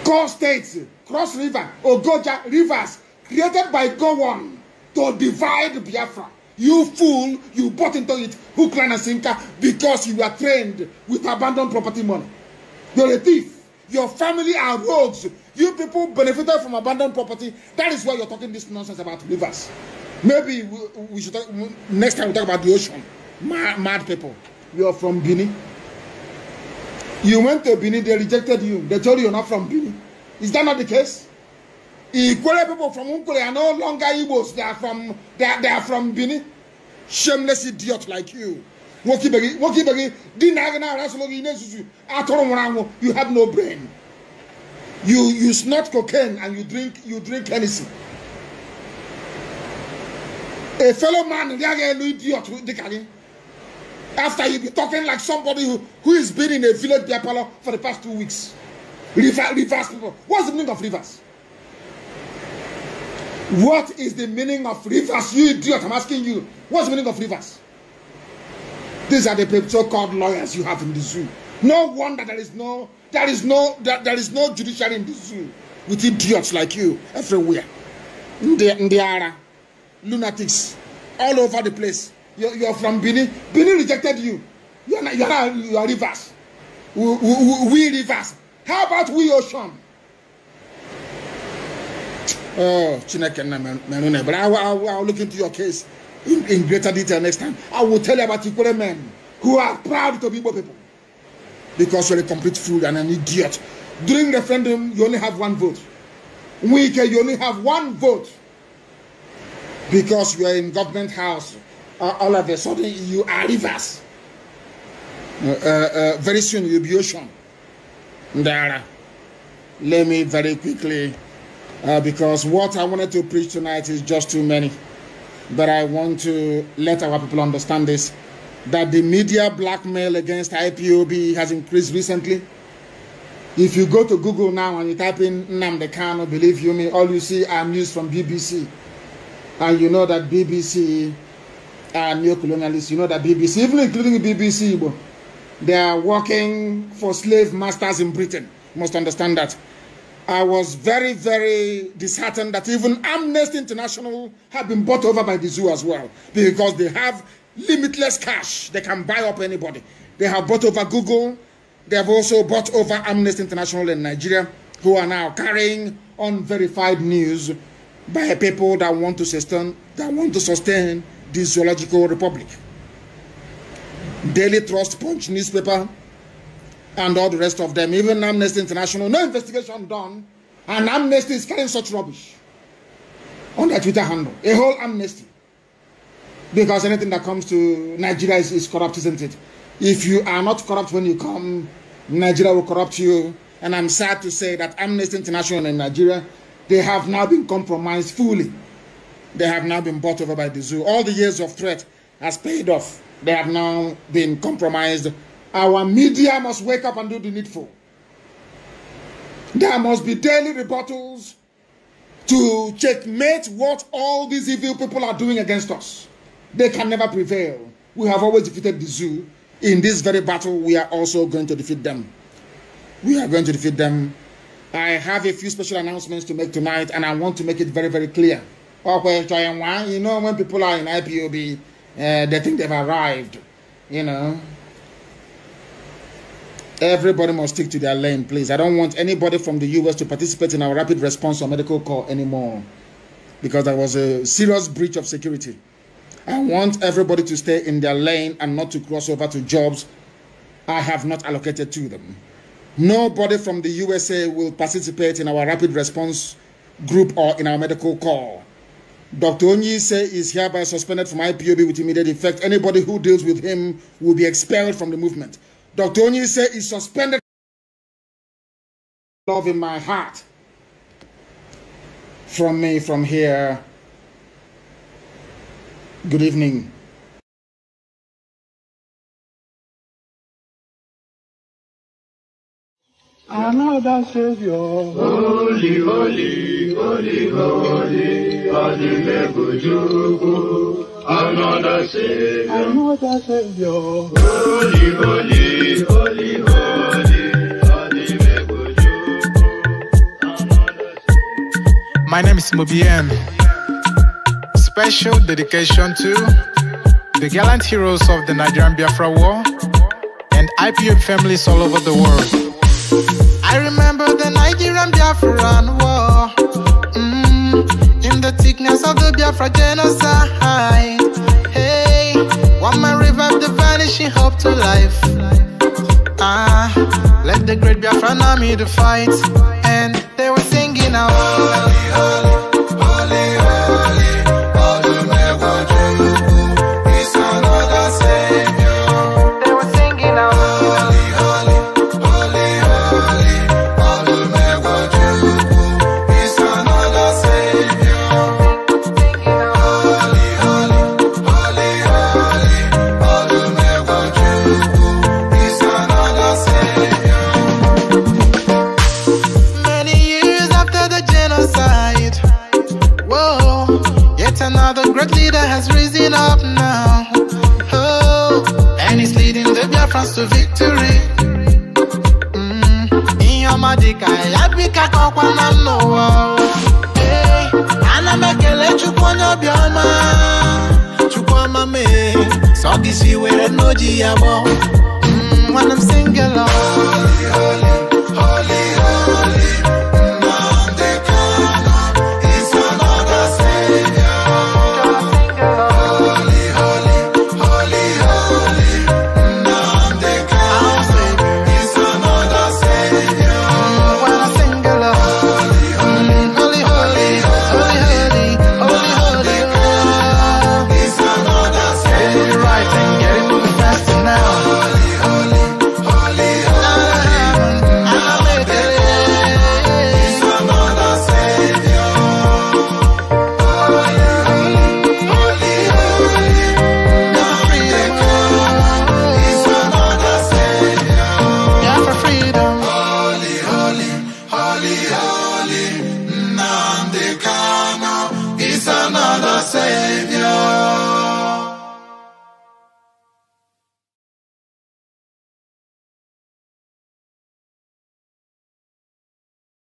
Core states, Cross River, Ogoja, rivers created by Gowon to divide Biafra. You fool, you bought into it, hook, line, and sinker, because you were trained with abandoned property money. You're a thief. Your family are rogues. You people benefited from abandoned property. That is why you're talking this nonsense about rivers. Maybe we, we should talk, next time we talk about the ocean. Mad, mad people. You're from Guinea. You went to Benin, they rejected you. They told you you're not from Benin. Is that not the case? Ikwere people from Nkwere are no longer Igbos. They are from they are, they are from Bini. Shameless idiot like you. Wokibegi, Wokibegi, Dinagana Rasologi Nesusu, Atoromorango, you have no brain. You you snort cocaine and you drink you drink Hennessy. A fellow man, they are idiot, Dikani. After you be talking like somebody who, who is been in a village beer parlor for the past two weeks. Reverse, reverse people. What's the meaning of reverse? What is the meaning of rivers? You idiot, I'm asking you. What's the meaning of rivers? These are the so called lawyers you have in the zoo. No wonder there is no there is no there, there is no judiciary in the zoo with idiots like you everywhere. Ndiara, lunatics, all over the place. You're, you're from Benin. Benin rejected you. You're not, you're not you're rivers. We, we, we rivers. How about we ocean? Oh, Chineke man, But I, will, I will look into your case in, in greater detail next time. I will tell you about Ikwere men who are proud to be Igbo people. Because you're a complete fool and an idiot. During referendum, you only have one vote. Nwike, you only have one vote. Because you are in government house. Uh, all of a sudden, you are rivers. Uh, uh, very soon, you'll be ocean. Ndara. Let me very quickly uh, because what I wanted to preach tonight is just too many. But I want to let our people understand this that the media blackmail against IPOB has increased recently. If you go to Google now and you type in Nnamdi Kano, believe you me, all you see are news from BBC. And you know that BBC are neo-colonialists. You know that BBC, even including BBC, they are working for slave masters in Britain. You must understand that. I was very, very disheartened that even Amnesty International have been bought over by the zoo as well because they have limitless cash. They can buy up anybody. They have bought over Google. They have also bought over Amnesty International in Nigeria, who are now carrying unverified news by people that want to sustain that want to sustain this zoological republic. Daily Trust Punch newspaper and all the rest of them, even Amnesty International, no investigation done, and Amnesty is carrying such rubbish on their Twitter handle. A whole amnesty. Because anything that comes to Nigeria is, is corrupt, isn't it? If you are not corrupt when you come, Nigeria will corrupt you. And I'm sad to say that Amnesty International in Nigeria, they have now been compromised fully. They have now been bought over by the zoo. All the years of threat has paid off. They have now been compromised our media must wake up and do the needful. There must be daily rebuttals to checkmate what all these evil people are doing against us. They can never prevail. We have always defeated the zoo. In this very battle, we are also going to defeat them. We are going to defeat them. I have a few special announcements to make tonight, and I want to make it very, very clear. You know, when people are in IPOB, uh, they think they've arrived. You know, Everybody must stick to their lane, please. I don't want anybody from the US to participate in our rapid response or medical call anymore because that was a serious breach of security. I want everybody to stay in their lane and not to cross over to jobs I have not allocated to them. Nobody from the USA will participate in our rapid response group or in our medical call. Dr. Onyise is hereby suspended from IPOB with immediate effect. Anybody who deals with him will be expelled from the movement. Dr. Onye said is suspended love in my heart from me from here. Good evening. Another Savior. Holy, holy, holy, holy, Adimebujuku another Savior, another Savior. Holy, holy, holy, holy. My name is Mobien. Special dedication to the gallant heroes of the Nigerian Biafra War and IPM families all over the world. I remember the Nigerian Biafran War mm, in the thickness of the Biafra genocide. Want my revive the vanishing hope to life. Ah, let the great be of me to fight. And they were singing out. giving up now. Oh, and he's leading the Biafrans to victory. I Mm. Mm-hmm. Iyomadika, yabika kwa na noa. Hey, I ana You go obioma. Chukwoma me, so this you were no jiabo. Mm, when I'm single, oh. holy, holy, holy.